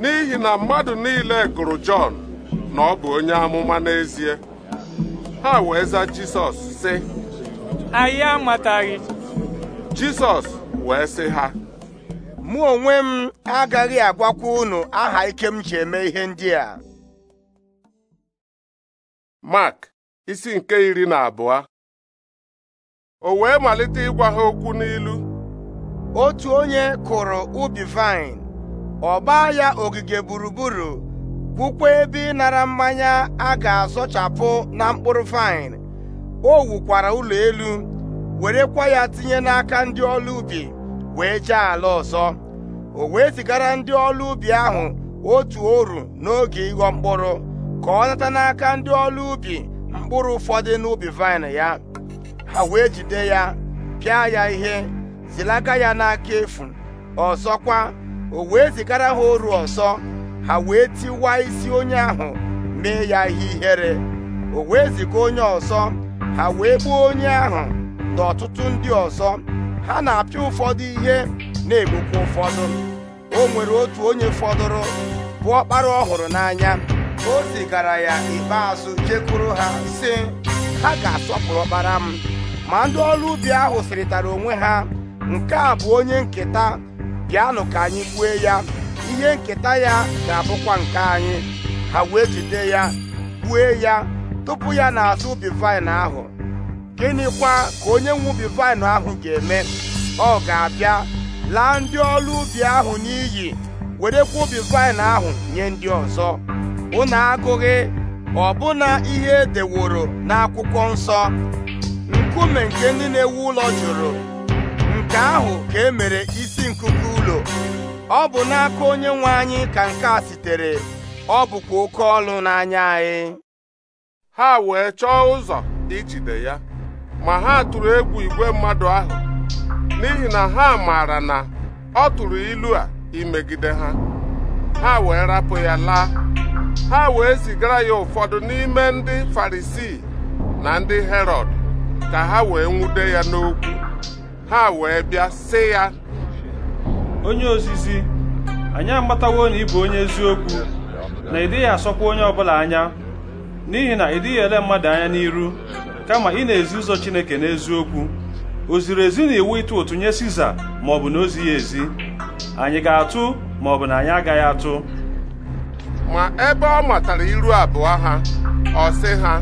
n'ihi na mmadụ niile gụrụ Jọn na ọ bụ onye amụma n'ezie ha wee za Jisọs sị anyị amataghị Jisọs wee sị ha mụ onwe m agaghị agwakwa unu aha ike m ji eme ihe ndị a Mark isi nke iri na abụọ o wee malite ịgwa ha okwu n'ilu otu onye kụrụ ubi vine ọ ya ogige gburugburu gwukwa ebe ịnara mmanya a ga-azọchapụ na mkpụrụ vine o wukwara ụlọ elu werekwa ya tinye n'aka ndị ọlụ ubi wee jee ala ọzọ o wee zigara ndị ọlụ ubi ahụ otu oru n'oge ịghọ mkpụrụ ka ọ nata n'aka ndị ọlụ ubi mkpụrụ ụfọdụ n'ubi vine ya ha wee jide ya pịa ya ihe zilaga ya n'aka efu ọzọkwa o wee zigara ha oru ọzọ ha wee tiwa isi onye ahụ mee ya ihe ihere o wee ziga onye ọzọ ha wee gbuo onye ahụ na ọtụtụ ndị ọzọ ha na-apịa ụfọdụ ihe na-egbukwa ụfọdụ o nwere otu onye fọdụrụ bụ ọkpara ọhụrụ n'anya o zigara ya ikpeazụ jekwuru ha sị ha ga-asọpụrụ ọkpara m ma ndị ọrụ ubi ahụ sịrịtara onwe ha nke a bụ onye nketa bịanụ ka anyị gbue ya ihe nketa ya ga-abụkwa nke anyị ha wee jide ya gbue ya tupu ya na-azụ ubi vaịn ahụ gịnịkwa ka onye nwe ubi vaịn ahụ ga-eme ọ ga-abịa laa ndị ọrụ ubi ahụ n'iyi werekwa ubi vaịn ahụ nye ndị ọzọ Ụnụ agụghị ọbụna ihe edeworo n'akwụkwọ nsọ nkume nke ndị na-ewu ụlọ jụrụ nke ahụ ka e mere isi nkuku ụlọ ọ bụ n'aka onye nwe anyị ka nke a sitere ọ bụkwa oke ọlụ n'anya anyị ha wee chọọ ụzọ ijide ya ma ha tụrụ egwu igwe mmadụ ahụ n'ihi na ha maara na ọ tụrụ ilu a imegide ha ha wee rapụ ya laa ha wee zigara ya ụfọdụ n'ime ndị Farisii na ndị Herọd ka ha wee nwude ya n'okwu ha wee bịa sị ya onye ozizi anyị amatawo na ị bụ onye eziokwu na ị dịghị asọkwa onye ọbụla anya n'ihi na ị ele mmadụ anya n'iru kama ị na-ezi ụzọ Chineke n'eziokwu o ziri ezi na iwu ịtụ ụtụ nye Siza ma ọ bụ na ozi ya ezi anyị ga-atụ ma ọ bụ na anyị agaghị atụ ma ebe ọ matara iru abụọ ha ọ sị ha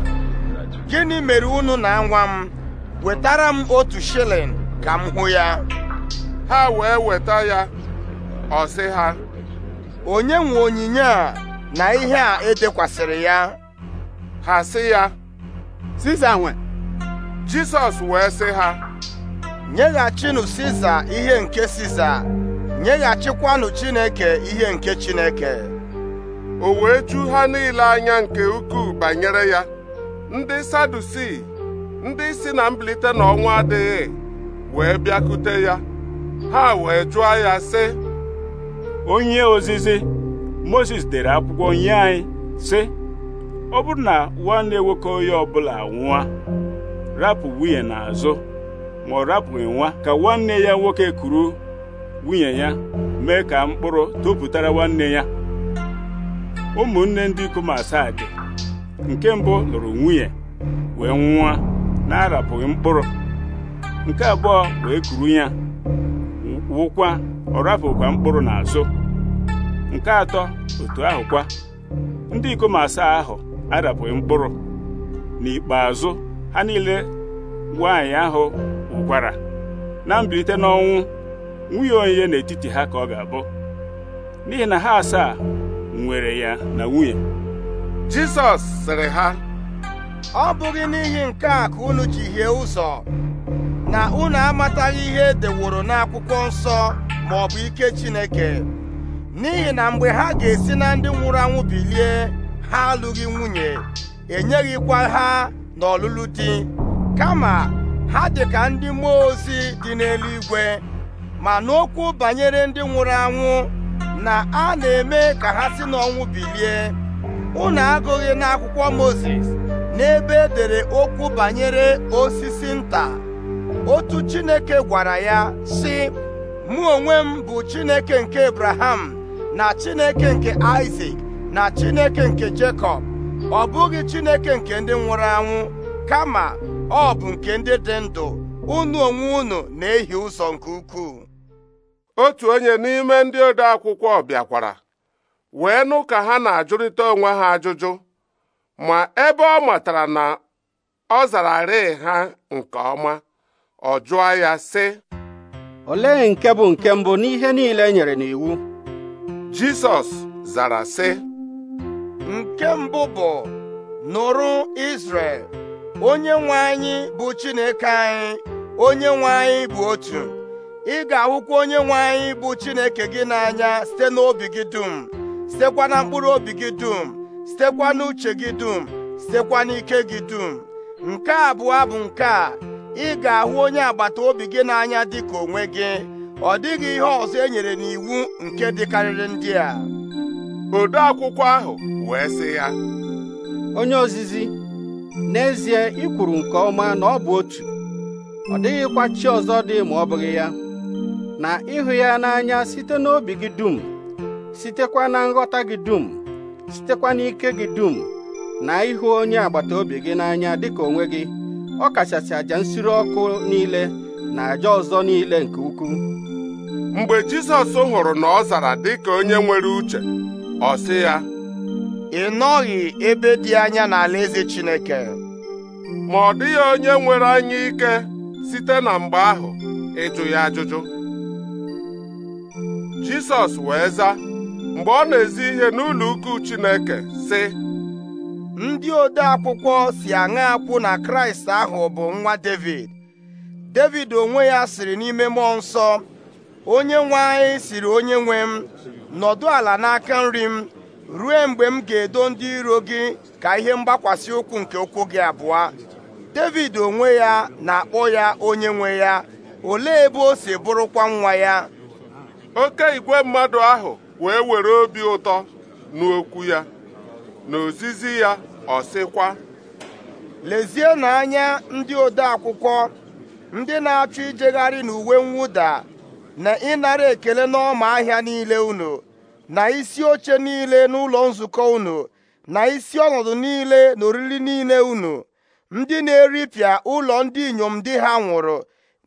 gịnị mere unu na nwa m wetara m otu shilling ka m hụ ya ha wee weta ya ọ sị ha onye nwe onyinye a na ihe a edekwasịrị ya ha sị ya Siza nwe Jizọs wee sị ha nyeghachinụ Siza ihe nke Siza nyeghachikwanụ Chineke ihe nke Chineke o wee ju ha niile anya nke ukwuu banyere ya ndị Sadusii ndị si na mbilite n'ọnwa adịghị wee bịakute ya ha wee jụọ ya sị onye ozizi Moses dere akwụkwọ nye anyị sị ọ bụrụ na nwanne nwoke onye ọbụla nwa rapụ nwunye n'azụ ma ọ rapụghị nwa ka nwanne ya nwoke kuru nwunye ya mee ka mkpụrụ tuputara nwanne ya ụmụnne ndị ikom asaa dị nke mbụ lụrụ nwunye wee nwa na-arapụghị mkpụrụ nke abụọ wee kuru ya wụkwa ọ rafụkwa mkpụrụ n'azụ nke atọ otu ahụ kwa ndị ikom asaa ahụ arapụghị mkpụrụ n'ikpeazụ ha niile nwaanyị ahụ wụkwara na mbilite n'ọnwụ nwunye onye n'etiti ha ka ọ ga-abụ n'ihi na ha asaa nwere ya na nwunye Jizọs sịrị ha ọ bụghị n'ihi nke a ka unu ji ụzọ na unu amataghị ihe edeworo n'akwụkwọ nsọ ma ọ bụ ike Chineke n'ihi na mgbe ha ga-esi na ndị nwụrụ anwụ bilie ha alụghị nwunye enyeghịkwa ha n'ọlụlụ di kama ha dị ka ndị mmụọ ozi dị n'eluigwe ma n'okwu banyere ndị nwụrụ anwụ na a na-eme ka ha si n'ọnwụ bilie unu agụghị n'akwụkwọ Mozis n'ebe edere okwu banyere osisi nta otu chineke gwara ya sị mụ onwe m bụ chineke nke ebraham na chineke nke isak na chineke nke Jekọb ọ bụghị chineke nke ndị nwụrụ anwụ kama ọ bụ nke ndị dị ndụ unu onwe unu na-ehi ụzọ nke ukwuu otu onye n'ime ndị ode akwụkwọ bịakwara wee nụ ka ha na-ajụrịta onwe ha ajụjụ ma ebe ọ matara na ọ zara rịị ha nke ọma ọ jụọ ya sị olee nke bụ nke mbụ n'ihe niile e nyere n'iwu Jizọs zara sị nke mbụ bụ nụrụ Izrel onye nwe anyị bụ Chineke anyị onye nwe anyị bụ otu ị ga-ahụkwa onye nwe anyị bụ Chineke gị n'anya site n'obi gị dum sitekwa na mkpụrụ obi gị dum sitekwa n'uche gị dum sitekwa n'ike gị dum nke abụọ bụ nke a ị ga-ahụ onye agbata obi gị n'anya dị ka onwe gị ọ dịghị ihe ọzọ e nyere n'iwu nke dịkarịrị ndị a ode akwụkwọ ahụ wee sị ya onye ozizi n'ezie ị kwuru nke ọma na ọ bụ otu ọ dịghịkwa chi ọzọ dị ma ọ bụghị ya na ịhụ ya n'anya site n'obi gị dum sitekwa na nghọta gị dum sitekwa n'ike gị dum na ịhụ onye agbata obi gị n'anya dịka onwe gị ọ kachasị àjà nsure ọkụ niile na àjà ọzọ niile nke ukwuu mgbe Jizọs hụrụ na ọ zara dị ka onye nwere uche ọ sị ya ị nọghị ebe dị anya n'alaeze Chineke ma ọ dịghị onye nwere anya ike site na mgbe ahụ ịjụ ya ajụjụ Jisọs wee zaa mgbe ọ na-ezi ihe n'ụlọ ukwu Chineke sị ndị ode akwụkwọ si aṅa akwụ na kraịst ahụ bụ nwa devid devid onwe ya siri n'ime mmụọ nsọ onye nwe anyị siri onye nwe m nọdụ ala n'aka nri m ruo mgbe m ga-edo ndị iro gị ka ihe mgbakwasị ụkwụ nke ụkwụ gị abụọ devid onwe ya na-akpọ ya onye nwe ya olee ebe o si bụrụkwa nwa ya oke igwe mmadụ ahụ wee were obi ụtọ n'okwu ya n'ozizi ya ọ sịkwa lezienụ anya ndị ode akwụkwọ ndị na-achọ ijegharị n'uwe mwụda na ịnara ekele n'ọma ahịa niile unu na isi oche niile n'ụlọ nzukọ unu na isi ọnọdụ niile na oriri niile unu ndị na-eripịa ụlọ ndị inyom di ha nwụrụ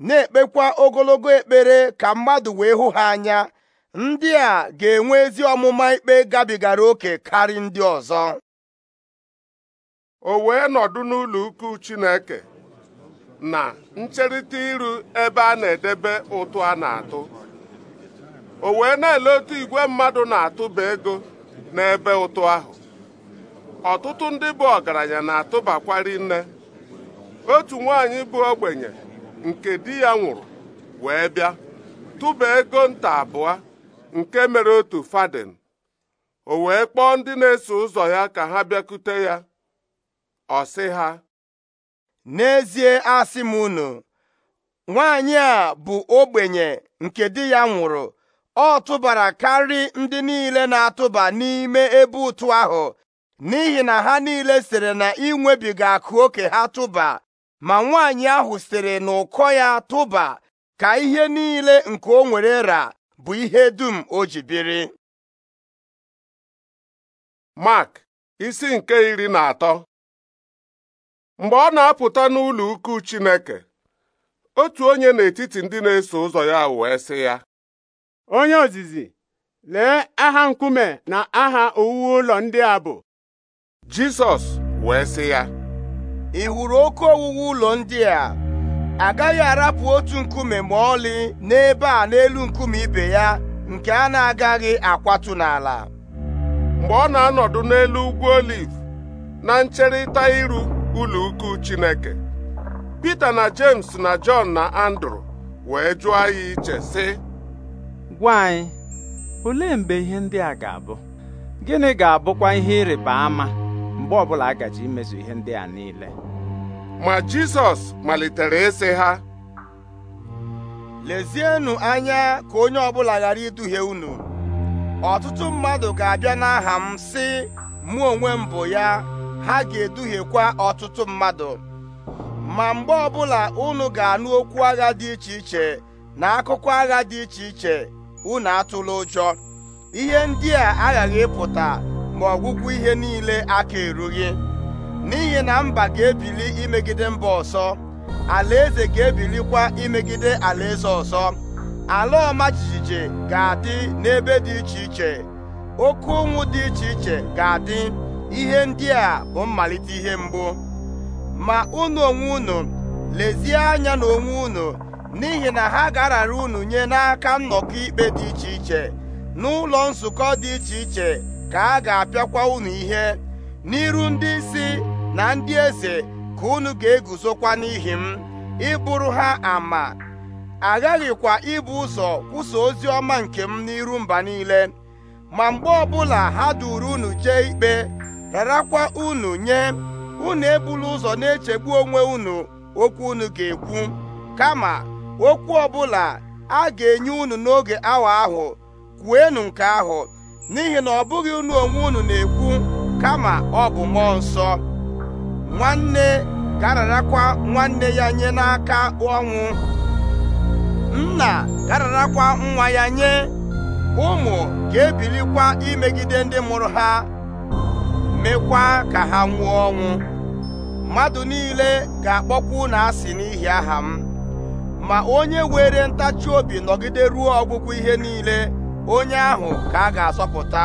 na-ekpekwa ogologo ekpere ka mmadụ wee hụ ha anya ndị a ga-enwe ezi ọmụma ikpe gabigara oke karị ndị ọzọ o wee nọdụ n'ụlọ ukwu Chineke na ncherịta iru ebe a na-edebe ụtụ a na-atụ o wee na-ele otu igwe mmadụ na-atụba ego n'ebe ụtụ ahụ ọtụtụ ndị bụ ọgaranya na-atụbakwari nne otu nwaanyị bụ ogbenye nke di ya nwụrụ wee bịa tụba ego nta abụọ nke mere otu Faden, o wee kpọọ ndị na-eso ụzọ ya ka ha bịakute ya ọ sị ha n'ezie asị m unu nwaanyị a bụ ogbenye nke di ya nwụrụ ọ tụbara karị ndị niile na-atụba n'ime ebe ụtụ ahụ n'ihi na ha niile sịrị na inwebiga akụ oke ha tụba ma nwaanyị ahụ sịrị na ụkọ ya tụba ka ihe niile nke o nwere ra bụ ihe dum o ji biri Mark isi nke iri na atọ mgbe ọ na-apụta n'ụlọ ukwu Chineke otu onye n'etiti ndị na-eso ụzọ ya wee sị ya onye ozizi lee aha nkume na aha owuwe ụlọ ndị a bụ Jisọs wee sị ya ị hụrụ oke owuwe ụlọ ndị a agaghị arapụ otu nkume ma ọlị n'ebe a n'elu nkume ibe ya nke a na-agaghị akwatụ n'ala mgbe ọ na-anọdụ n'elu ugwu oliv na ncherịta iru ụlọ ukwu Chineke Pita na James na Jọn na Andrew wee jụọ ya iche sị gwa anyị olee mgbe ihe ndị a ga-abụ gịnị ga-abụkwa ihe ịrịba ama mgbe ọbụla a gaji imezu ihe ndị a niile ma Jizọs malitere ịsị ha lezienụ anya ka onye ọbụla ghara iduhie unu ọtụtụ mmadụ ga-abịa n'aha m si mụ onwe m bụ ya ha ga-eduhiekwa ọtụtụ mmadụ ma mgbe ọbụla unu ga-anụ okwu agha dị iche iche na akụkụ agha dị iche iche unu atụla ụjọ ihe ndị a aghaghị ịpụta ma ọgwụgwụ ihe niile aka erughị n'ihi na mba ga-ebili imegide mba ọsọ alaeze ga-ebilikwa imegide alaeze ọsọ ala ọma jijiji ga-adị n'ebe dị iche iche oke ụnwụ dị iche iche ga-adị ihe ndị a bụ mmalite ihe mbụ ma unu onwe unu lezie anya na onwe unu n'ihi na ha ga-arara unu nye n'aka nnọkọ ikpe dị iche iche n'ụlọ nzukọ dị iche iche ka a ga-apịakwa unu ihe n'iru ndị isi na ndị eze ka unu ga-eguzokwa n'ihi m ịbụrụ ha ama aghaghịkwa ibu ụzọ kwụsa ozi ọma nke m n'iru mba niile ma mgbe ọbụla ha duru unu jee ikpe rarakwa unu nye unu ebula ụzọ na-echegbu onwe unu okwu unu ga-ekwu kama okwu ọbụla a ga-enye unu n'oge awa ahụ enu nke ahụ n'ihi na ọ bụghị unu onwe unu na-ekwu kama ọ bụ mmụọ nsọ nwanne gararakwa nwanne ya nye n'aka ọnwụ nna gararakwa nwa ya nye ụmụ ga-ebilikwa imegide ndị mụrụ ha mekwa ka ha nwụọ ọnwụ mmadụ niile ga na "a asị n'ihi aha m ma onye were ntachi obi nọgide ruo ọgwụgwụ ihe niile onye ahụ ka a ga-asọpụta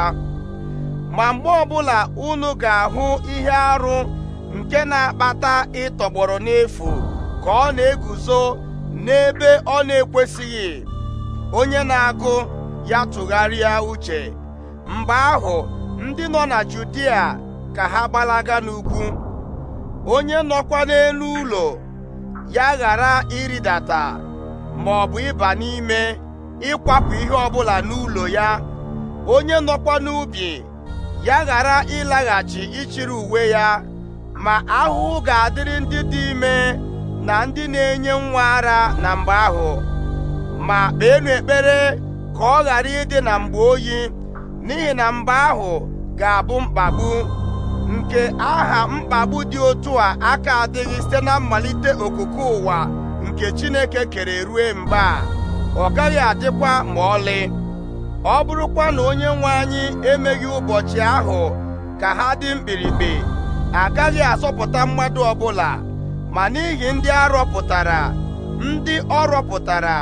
ma mgbe ọbụla unu ga-ahụ ihe arụ nke na-akpata ịtọgbọrọ n'efu ka ọ na-eguzo n'ebe ọ na-ekwesịghị onye na-agụ ya tụgharịa uche mgbe ahụ ndị nọ na Judia ka ha gbalaga n'ugwu onye nọkwa n'elu ụlọ ya ghara ịrịdata ma ọ bụ ịba n'ime ịkwapụ ihe ọbụla n'ụlọ ya onye nọkwa n'ubi ya ghara ịlaghachi ịchịrị uwe ya ma ahụhụ ga-adịrị ndị dị ime na ndị na-enye nwa ara na mgbe ahụ ma kpeenụ ekpere ka ọ ghara ịdị na mgbe oyi n'ihi na mgbe ahụ ga-abụ mkpagbu nke aha mkpagbu dị otu a aka adịghị site na mmalite okoko ụwa nke Chineke kere rue mgbe ọ gaghị adịkwa ma ọlị ọ bụrụkwa na onye nwe anyị emeghị ụbọchị ahụ ka ha dị mkpirikpi agaghị asọpụta mmadụ ọbụla ma n'ihi ndị arọpụtara ndị ọ rọpụtara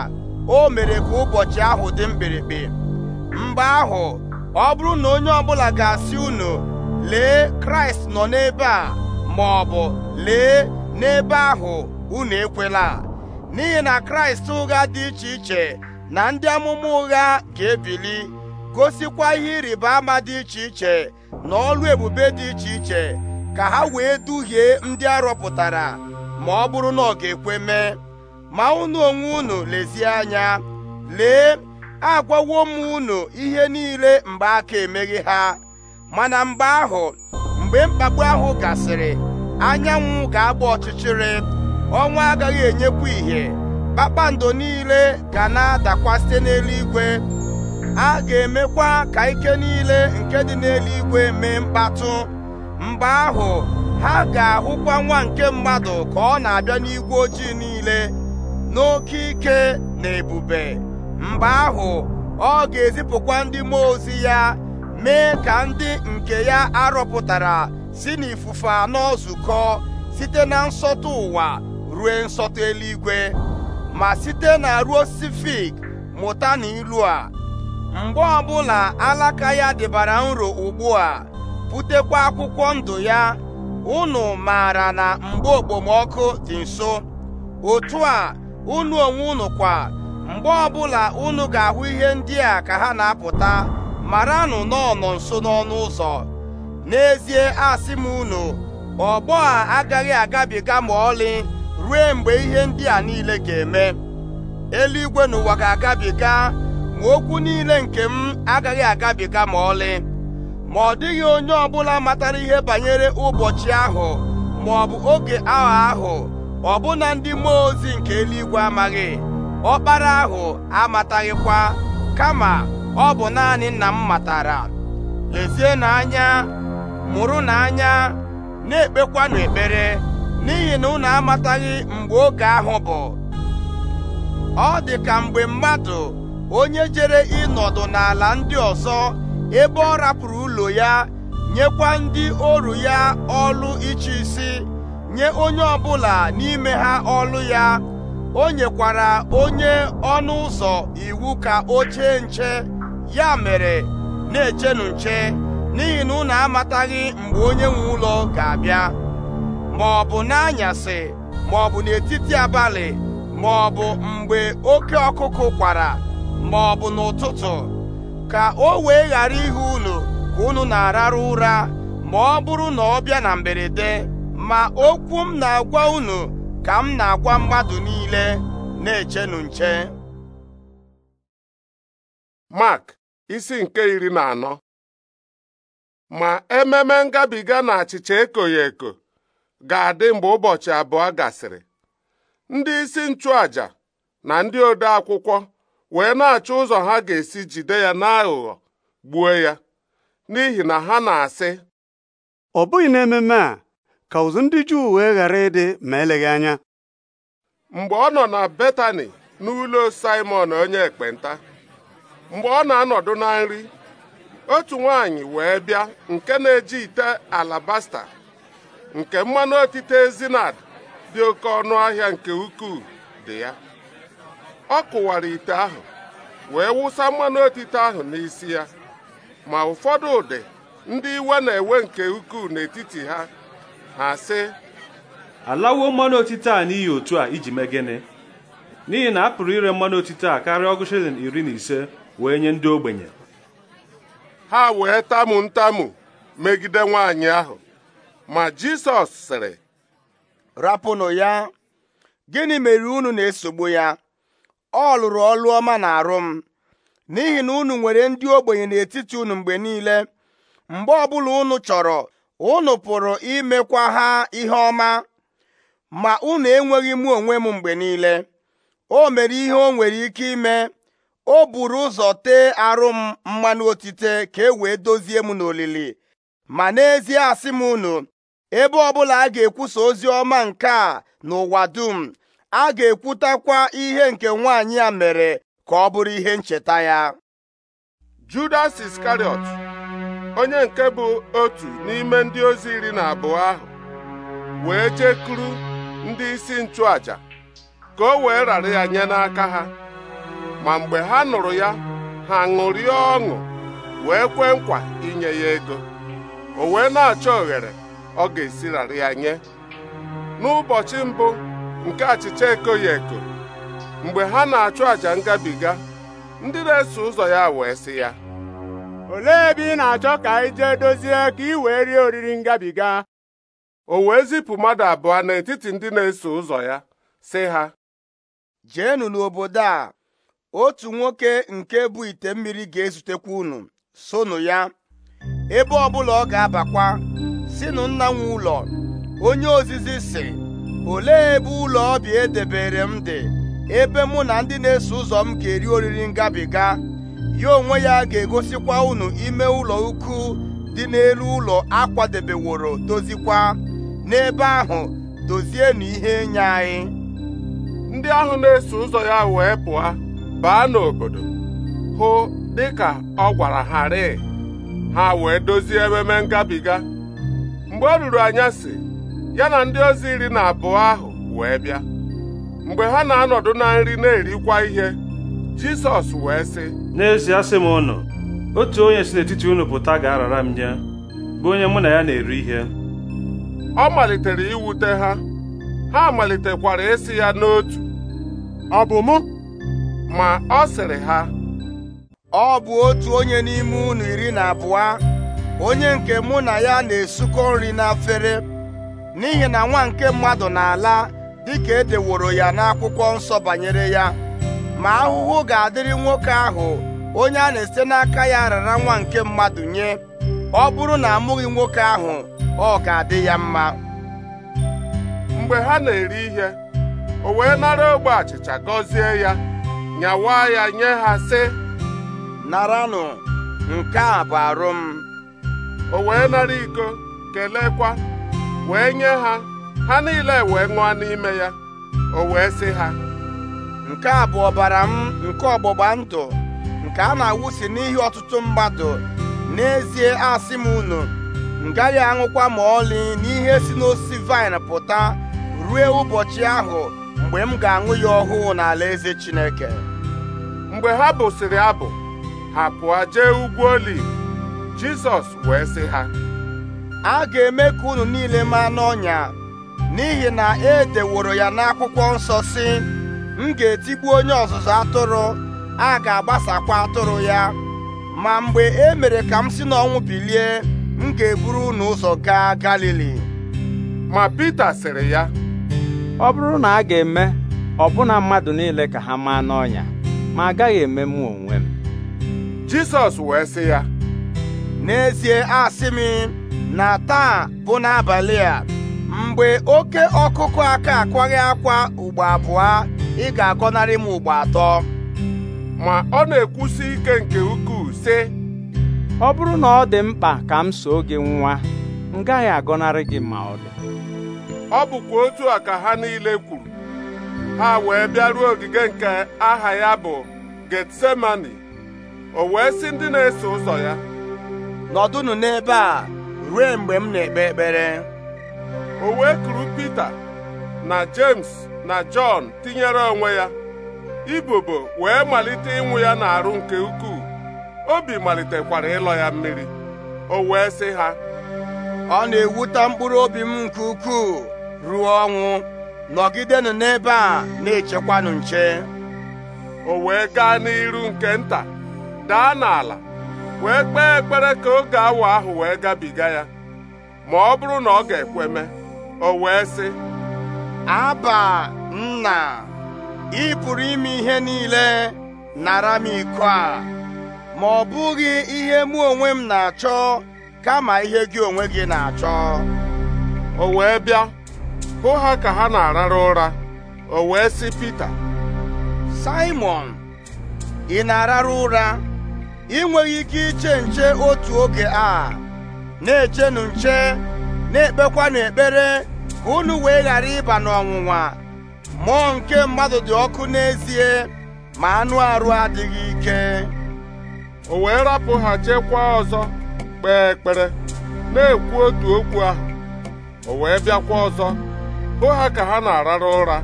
o mere ka ụbọchị ahụ dị mkpirikpi mgbe ahụ ọ bụrụ na onye ọbụla ga-asị unu lee kraịst nọ n'ebe a ma ọ bụ lee n'ebe ahụ unu ekwela n'ihi na kraịst ụgha dị iche iche na ndị amụma ụgha ga-ebili gosikwa ihe ịrịba ama dị iche iche na ọlụ ebube dị iche iche ka ha wee duhie ndị arọpụtara ma ọ bụrụ na ọ ga-ekwe mee ma unu onwe unu lezie anya lee agwawo m unu ihe niile mgbe aka emeghị ha mana mgbe ahụ mgbe mkpagbu ahụ gasịrị anyanwụ ga-agba ọchịchịrị ọnwa agaghị enyekwu ìhè kpakpando niile ga na-adakwa site n'eluigwe a ga-emekwa ka ike niile nke dị n'eluigwe mee mkpatụ mgbe ahụ ha ga-ahụkwa nwa nke mmadụ ka ọ na-abịa n'igwe ojii niile n'oke ike na ebube mgbe ahụ ọ ga-ezipụkwa ndị mmụọ ozi ya mee ka ndị nke ya arọpụtara si n'ifufe anọ site na nsọtụ ụwa rue nsọtụ eluigwe ma site na ruo sifik mụta na ilu a mgbe ọbụla alaka ya dịbara nro ugbu a butekwa akwụkwọ ndụ ya unu maara na mgbe okpomọkụ dị nso otu a unu onwe unu kwa mgbe ọbụla unu ga-ahụ ihe ndị a ka ha na-apụta maranụ nọ nso n'ọnụ ụzọ n'ezie asị m unu ọgbọ a agaghị agabiga ma ọlị ruo mgbe ihe ndị a niile ga-eme eluigwe na ụwa ga-agabiga ma okwu niile nke m agaghị agabiga ma ọlị ma ọ dịghị onye ọ bụla matara ihe banyere ụbọchị ahụ ma ọ bụ oge ahụ ahụ ọbụna ndị mmụọ ozi nke eluigwe amaghị ọkpara ahụ amataghịkwa kama ọ bụ naanị nna m matara lezie n'anya mụrụ n'anya na-ekpekwanụ ekpere n'ihi na unu amataghị mgbe oge ahụ bụ ọ dị ka mgbe mmadụ onye jere ịnọdụ n'ala ndị ọzọ ebe ọ rapụrụ ụlọ ya nyekwa ndị oru ya ọlụ iche isi nye onye ọbụla n'ime ha ọlụ ya o nyekwara onye ọnụ ụzọ iwu ka o chee nche ya mere na-echenu nche n'ihi na unu amataghị mgbe onye nwe ụlọ ga-abịa ma ọ bụ n'anyasị ma ọ bụ n'etiti abalị ma ọ bụ mgbe oke ọkụkụ kwara ma ọ bụ n'ụtụtụ ka o wee ghara ihe unu ka unu na arara ụra ma ọ bụrụ na ọ bịa na mberede ma okwu m na-agwa unu ka m na-agwa mmadụ niile na-echenu nche Mark isi nke iri na anọ ma ememe ngabiga na achịcha eko ga-adị mgbe ụbọchị abụọ gasịrị ndị isi nchụàjà na ndị ode akwụkwọ wee na-achọ ụzọ ha ga-esi jide ya n'aghụghọ gbuo ya n'ihi na ha na-asị ọ bụghị n'ememe a ka ụzụ ndị Juu wee ghara ịdị ma eleghị anya mgbe ọ nọ na Betani n'ụlọ Simon onye ekpenta mgbe ọ na-anọdụ na nri otu nwaanyị wee bịa nke na-eji ite alabasta nke mmanụ otite ezinad dị oke ọnụ ahịa nke ukwuu dị ya ọ kụwara ite ahụ wee wụsa mmanụ otite ahụ n'isi ya ma ụfọdụ ụdị ndị iwe na-ewe nke ukwuu n'etiti ha ha sị alawo mmanụ otite a n'ihi otu a iji mee n'ihi na a pụrụ ire mmanụ otite a karịa ọgụ shilling iri na ise wee nye ndị ogbenye ha wee tamu ntamu megide nwaanyị ahụ ma Jisọs sịrị rapụnụ ya gịnị mere unu na-esogbu ya ọ lụrụ ọlụ ọma na arụ m n'ihi na unu nwere ndị ogbenye n'etiti unu mgbe niile mgbe ọbụla unu chọrọ unu pụrụ imekwa ha ihe ọma ma unu enweghị mụ onwe m mgbe niile o mere ihe o nwere ike ime o buru ụzọ tee arụ m mmanụ otite ka e wee dozie m n'olili ma n'ezie asị m unu ebe ọbụla a ga-ekwusa ozi ọma nke a n'ụwa dum a ga-ekwutakwa ihe nke nwaanyị a mere ka ọ bụrụ ihe ncheta ya Judas Iskariot onye nke bụ otu n'ime ndị ozi iri na abụọ ahụ wee jekuru ndị isi nchụaja ka o wee rara ya nye n'aka ha ma mgbe ha nụrụ ya ha ṅụrịa ọṅụ wee kwee nkwa inye ya ego o wee na-achọ oghere ọ ga-esirarị ya nye n'ụbọchị mbụ nke achịcha ekoghị eko mgbe ha na-achụ àjà ngabiga ndị na-eso ụzọ ya wee sị ya olee ebe ị na-achọ ka anyị jee dozie ka ị wee rie oriri ngabiga o wee zipụ mmadụ abụọ n'etiti ndị na-eso ụzọ ya sị ha jeenụ n'obodo a otu nwoke nke bụ ite mmiri ga-ezutekwa unu sonụ ya ebe ọbụla ọ ga-abakwa sinụ nna nwe ụlọ onye ozizi si olee ebe ụlọ ọbịa edebere m dị ebe mụ na ndị na-eso ụzọ m ga-eri oriri ngabiga ya onwe ya ga-egosikwa unu ime ụlọ ukwu dị n'elu ụlọ akwadebeworo dozikwa n'ebe ahụ dozie na ihe nye anyị ndị ahụ na-eso ụzọ ya wee pụọ baa n'obodo hụ dịka ọ gwara ha ha wee dozie ememe ngabiga mgbe ọ ruru anyasị ya na ndị ozi iri na abụọ ahụ wee bịa mgbe ha na-anọdụ na nri na-erikwa ihe Jisọs wee sị n'ezie asị m ụnụ otu onye si n'etiti unu pụta ga-arara m nye bụ onye mụ na ya na-eri ihe ọ malitere iwute ha ha malitekwara esi ya n'otu ọ bụ mụ ma ọ sịrị ha ọ bụ otu onye n'ime unu iri na abụọ onye nke mụ na ya na-esukọ nri n'afere n'ihi na nwa nke mmadụ na-ala dịka edeworo ya n'akwụkwọ nsọ banyere ya ma ahụhụ ga-adịrị nwoke ahụ onye a na-esite n'aka ya rara nwa nke mmadụ nye ọ bụrụ na amụghị nwoke ahụ ọ ga-adị ya mma mgbe ha na-eri ihe o wee nara ogbe achịcha gọzie ya nyawa ya nye ha sị naranụ nke a bụ arụ m o wee nara iko kelekwa wee nye ha ha niile wee ṅụọ n'ime ya o wee sị ha nke a bụ ọbara m nke ọgbụgba ndụ nke a na-awụsi n'ihi ọtụtụ mmadụ n'ezie asị m unu m gaghị aṅụkwa ma ọlị n'ihe si n'osisi vaịn pụta ruo ụbọchị ahụ mgbe m ga-aṅụ ya ọhụụ n'ala eze Chineke mgbe ha bụsịrị abụ ha pụọ jee ugwu oliv Jizọs wee sị ha a ga-eme ka unu niile maa n'ọnya n'ihi na e deworo ya n'akwụkwọ nsọ si m ga-etigbu onye ọzụzụ atụrụ a ga-agbasakwa atụrụ ya ma mgbe e mere ka m si n'ọnwụ bilie m ga-eburu unu ụzọ gaa Galili ma Pita sịrị ya ọ bụrụ na a ga-eme ọbụna mmadụ niile ka ha maa n'ọnya ma agaghị eme m onwe m Jizọs wee sị ya n'ezie asị m na taa bụ n'abalị a mgbe oke ọkụkụ aka akwaghị akwa ugbo abụọ ị ga-agọnarị m ugbo atọ ma ọ na-ekwusi ike nke ukwuu sị ọ bụrụ na ọ dị mkpa ka m soo gị nwa m gaghị agọnarị gị ma ọ dị ọ bụkwa otu a ka ha niile kwuru ha wee bịaruo ogige nke aha ya bụ Getsemani o wee sị ndị na-eso ụzọ ya nọdụnụ n'ebe a ruo mgbe m na-ekpe ekpere o wee kuru Pita na James na Jọn tinyere onwe ya ibobo wee malite ịnwụ ya n'arụ nke ukwuu obi malitekwara ịlọ ya mmiri o wee sị ha ọ na-ewuta mkpụrụ obi m nke ukwuu ruo ọnwụ nọgidenụ n'ebe a na-echekwanụ nche o wee gaa n'iru nke nta daa n'ala wee kpee ekpere ka oge awa ahụ wee gabiga ya ma ọ bụrụ na ọ ga-ekweme o wee sị aba nna ị pụrụ ime ihe niile nara m iko a ma ọ bụghị ihe mụ onwe m na-achọ kama ihe gị onwe gị na-achọ o wee bịa hụ ha ka ha na-arara ụra o wee sị Pita Simon ị na-arara ụra ị nweghị ike iche nche otu oge a na-echenụ nche na-ekpekwanụ ekpere ka unu wee ghara ịba n'ọnwụnwa mmụọ nke mmadụ dị ọkụ n'ezie ma anụ arụ adịghị ike o wee rapụ ha chekwa ọzọ kpee ekpere na-ekwu otu okwu ahụ o wee bịakwa ọzọ hụ ha ka ha na-arara ụra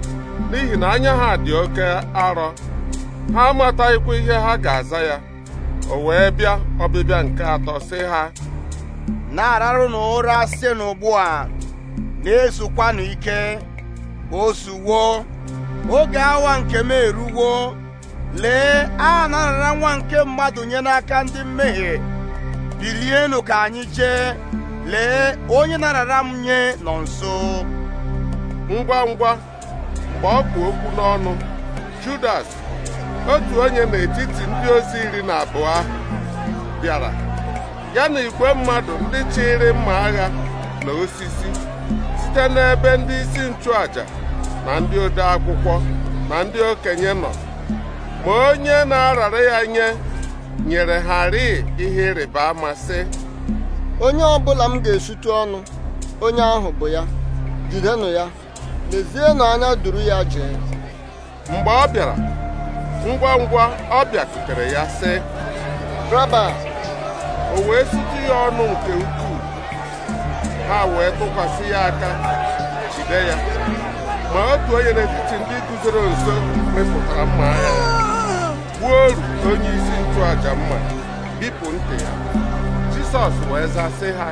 n'ihi na anya ha dị oke arọ ha amataghịkwa ihe ha ga-aza ya o wee bịa ọbịbịa nke atọ sị ha na na ụra asị n'ugbu a na-esokwanụ ike o oge awa nke m eruwo lee a na nwa nke mmadụ nye n'aka ndị mmehie bilienụ ka anyị jee lee onye narara m nye nọ nso ngwa ngwa mgbe ọ bụ okwu n'ọnụ Judas otu onye n'etiti ndị ozi iri na abụọ ahụ bịara ya na igwe mmadụ ndị chịrị mma agha na osisi site n'ebe ndị isi nchụaja na ndị ode akwụkwọ na ndị okenye nọ ma onye na-arara ya nye nyere ha rịị ihe ịrịba ama sị onye ọbụla m ga esutu ọnụ onye ahụ bụ ya jidenụ ya lezienụ anya duru ya jee mgbe ọ bịara ngwa ngwa ọ bịakwutere ya sị raba o wee sutu ya ọnụ nke ukwuu ha wee tụkwasị ya aka jide ya ma otu onye n'etiti ndị guzoro nso mepụtara mma agha gbuo oru onye isi ntụaja mma bipụ ntị ya jisọs wee zasị ha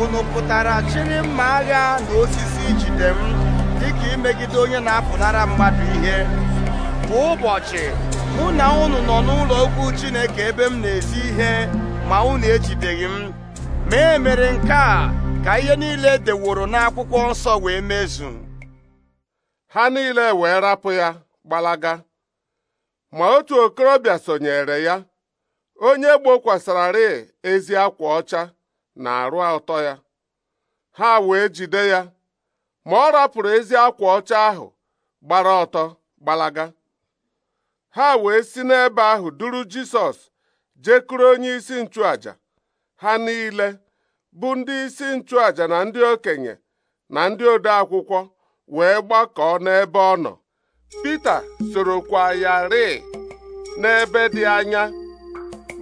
unu pụtara chịrị mma agha na osisi ijide m dịka imegide onye na-apụnara mmadụ ihe kwa ụbọchị mụ na ụnụ nọ n'ụlọ okwu Chineke ebe m na-ezi ihe ma unu ejideghị m ma e mere nke a ka ihe niile deworo n'akwụkwọ nsọ wee mezu ha niile wee rapụ ya gbalaga ma otu okorobịa sonyere ya onye gbokwasararị ezi akwa ọcha na arụ ọtọ ya ha wee jide ya ma ọ rapụrụ ezi akwa ọcha ahụ gbara ọtọ gbalaga ha wee si n'ebe ahụ duru Jisọs jekuru onye isi nchụaja ha niile bụ ndị isi nchụaja na ndị okenye na ndị ode akwụkwọ wee gbakọọ n'ebe ọ nọ Pita sorokwa ya rịị n'ebe dị anya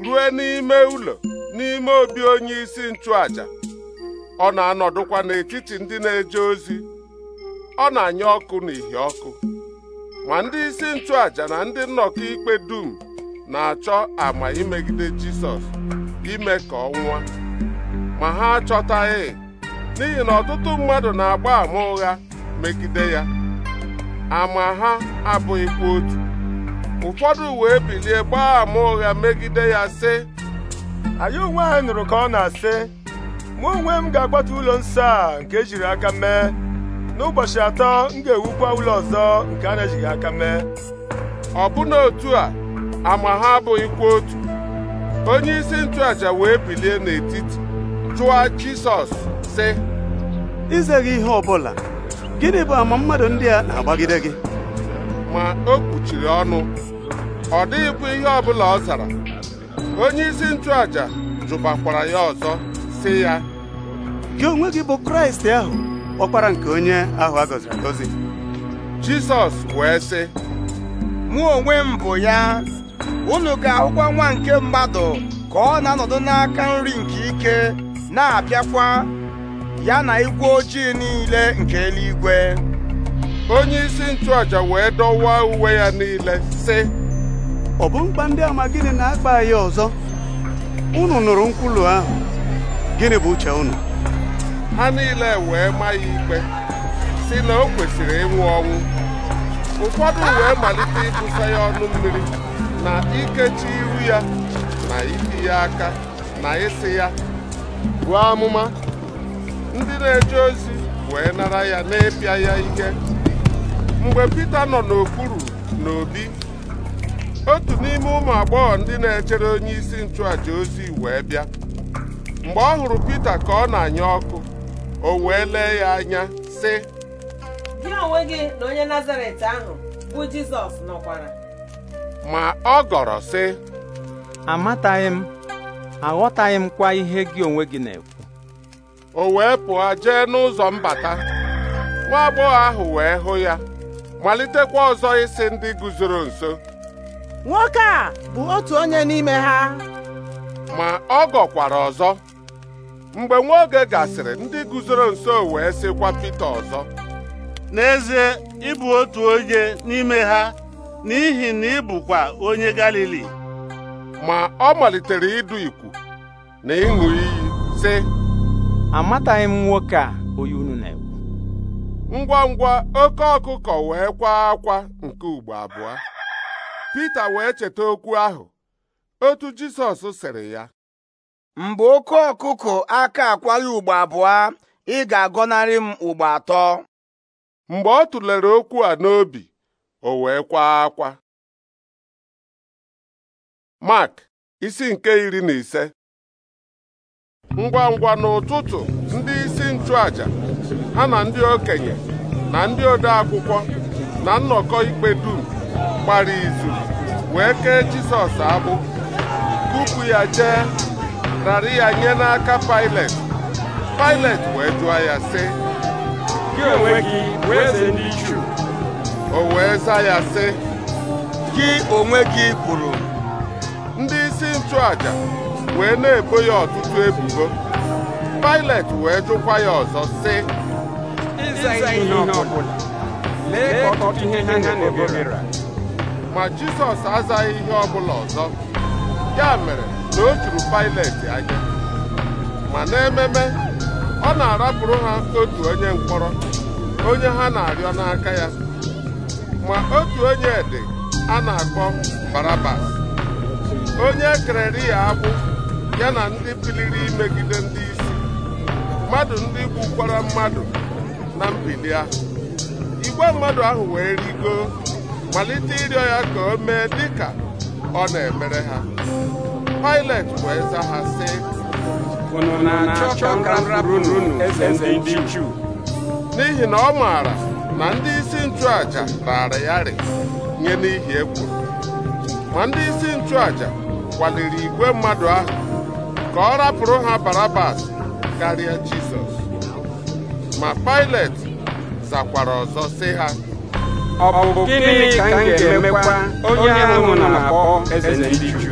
ruo n'ime ụlọ n'ime obi onye isi nchụaja ọ na-anọdụkwa n'etiti ndị na-eje ozi ọ na-anya ọkụ n'ihi ọkụ ma ndị isi nchụàja na ndị nnọkọ ikpe dum na-achọ ama imegide Jisọs ime ka ọ nwụọ ma ha achọtaghị n'ihi na ọtụtụ mmadụ na-agba ama ụgha megide ya ama ha abụghịkwa otu ụfọdụ wee bilie gbaa ama ụgha megide ya sị anyị onwe anyị nụrụ ka ọ na-asị mụ onwe m ga-agbatu ụlọ nsọ a nke ejiri aka mee n'ụbọchị atọ m ga-ewukwa ụlọ ọzọ nke a na-ejighị aka mee ọbụna otu a ama ha abụghịkwa otu onye isi nchụaja wee bilie n'etiti jụọ Jisọs sị izeghị gị ihe ọbụla gịnị bụ ama mmadụ ndị a na-agbagide gị ma o kpuchiri ọnụ ọ bụ ihe ọbụla ọ zara onye isi nchụaja jụbakwara ya ọzọ sị ya gị onwe gị bụ Kraịst ahụ ọkpara nke onye ahụ a gọziri agọzi jizọs wee sị mụ onwe m bụ ya unu ga-ahụkwa nwa nke mmadụ ka ọ na-anọdụ n'aka nri nke ike na-abịakwa ya na igwe ojii niile nke eluigwe onye isi nchụaja wee dọwaa uwe ya niile sị ọ bụ mkpa ndị ama gịnị na-akpa ya ọzọ unu nụrụ nkwulu ahụ gịnị bụ uche unu ha niile wee ma ya ikpe si na o kwesịrị ịnwụ ọnwụ ụfọdụ wee malite ịbụsa ya ọnụ mmiri na ikechi iru ya na iti ya aka na ịsị ya buo amụma ndị na-eje ozi wee nara ya na-epịa ya ike mgbe Pita nọ n'okpuru n'obi otu n'ime ụmụ agbọghọ ndị na-echere onye isi nchụàja ozi wee bịa mgbe ọ hụrụ Pita ka ọ na-anya ọkụ o wee lee ya anya sị gị onwe gị na onye nazaret ahụ bụ jizọs nọkwara ma ọ gọrọ sị amataghị m aghọtaghị m kwa ihe gị onwe gị na-ekwu o wee pụọ jee n'ụzọ mbata nwa agbọghọ ahụ wee hụ ya malitekwa ọzọ isi ndị guzoro nso nwoke a bụ otu onye n'ime ha ma ọ gọkwara ọzọ mgbe nwa oge gasịrị ndị guzoro nso wee sịkwa Pita ọzọ n'ezie ịbụ otu onye n'ime ha n'ihi na ị bụkwa onye Galili ma ọ malitere ịdụ ikwu na ịṅụ iyi sị amataghị m nwoke a onye unu na-ekwu ngwa ngwa oke ọkụkọ wee kwaa akwa nke ugbo abụọ Pita wee cheta okwu ahụ otu Jizọs sịrị ya mgbe oke ọkụkụ aka akwaghị ugbo abụọ ị ga-agọnarị m ugbo atọ mgbe ọ tụlere okwu a n'obi o wee kwa akwa Mark isi nke iri na ise ngwa ngwa n'ụtụtụ ndị isi nchụaja ha na ndị okenye na ndị ode akwụkwọ na nnọkọ ikpe dum gbara izu wee kee Jisọs abụ kupu ya jee rara ya nye n'aka Pailet Pailet wee jụọ ya sị gị onwe gị bụ eze ndị Juu o wee za ya sị gị onwe gị kwuru ndị isi nchụaja wee na-ebo ya ọtụtụ ebubo Pailet wee jụkwa ya ọzọ sị ma Jisọs azaghị ihe ọbụla ọzọ ya mere na o juru Pailet anya ma n'ememe ọ na-arapụrụ ha otu onye mkpọrọ onye ha na-arịọ n'aka ya ma otu onye dị a na-akpọ Barabas onye kereri ya agbụ ya na ndị biliri imegide ndị isi mmadụ ndị gbukwara mmadụ na mbili ahụ igwe mmadụ ahụ wee rigo malite ịrịọ ya ka o mee dịka ọ na-emere ha pilot wee za ha si. unu na-achọ ka m rapụrụ ndị Juu n'ihi na ọ maara na ndị isi nchụaja raara ya rị nye n'ihi egwu. ma ndị isi nchụaja kwaliri igwe mmadụ ahụ ka ọ rapụrụ ha Barabas karịa Jizọs ma Pilet zakwara ọzọ sị ha ọ bụ gịnị ka m ga-emekwa onye ahụ na-akpọ eze ndị Juu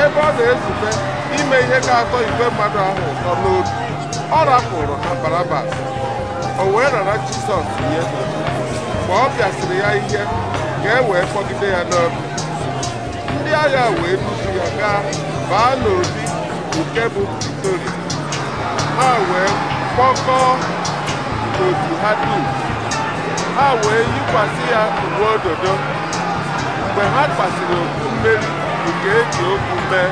ebe ọ na-ezute ime ihe ka atọ igwe mmadụ ahụ ụtọ n'obi ọ rapụrụ na Barabas o wee rara Jizọs nye mgbe ọ bịasịrị ya ihe ka e wee kpọgide ya n'obi ndị agha wee dufu ya gaa baa n'obi nke bụ Pretoria ha wee kpọkọọ otu ha dum ha wee yikwasị ya uwe ododo mgbe ha kpasiri otu mmeri nke eji okwu mee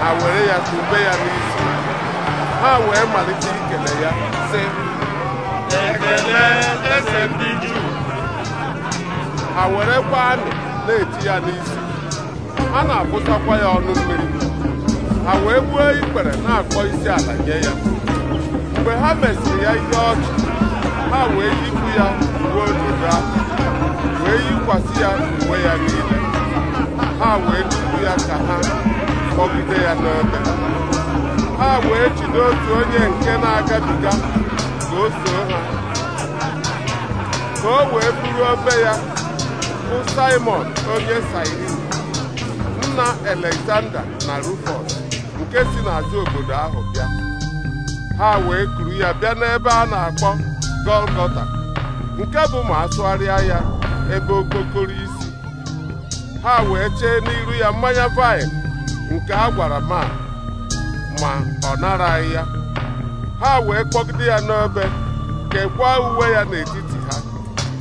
ha were ya kube ya n'isi ha wee malite ikele ya sị ekele eze ha werekwa amị na-eti ya n'isi ha na-abụsakwa ya ọnụ mmiri ha wee gbuo ikpere na-akpọ isi ala nye ya mgbe ha mesịrị ya ihe ọchị ha wee yikwu ya ruo ododo ahụ wee yikwasị ya uwe ya niile ha wee jide ya ka ha kpọgide ya n'ebe ha wee jide otu onye nke na-agabiga ka o soo ha ka o wee bụrụ obe ya bụ Simon onye Sirin nna Alexander na Rufus nke si n'azụ obodo ahụ bịa ha wee kuru ya bịa n'ebe a na-akpọ Golgota nke bụ ma asụgharịa ya ebe okpokoro ha wee chee n'iru ya mmanya vaịn nke a gwara ma ma ọ anyị ya ha wee kpọgide ya n'ebe kekwaa uwe ya n'etiti ha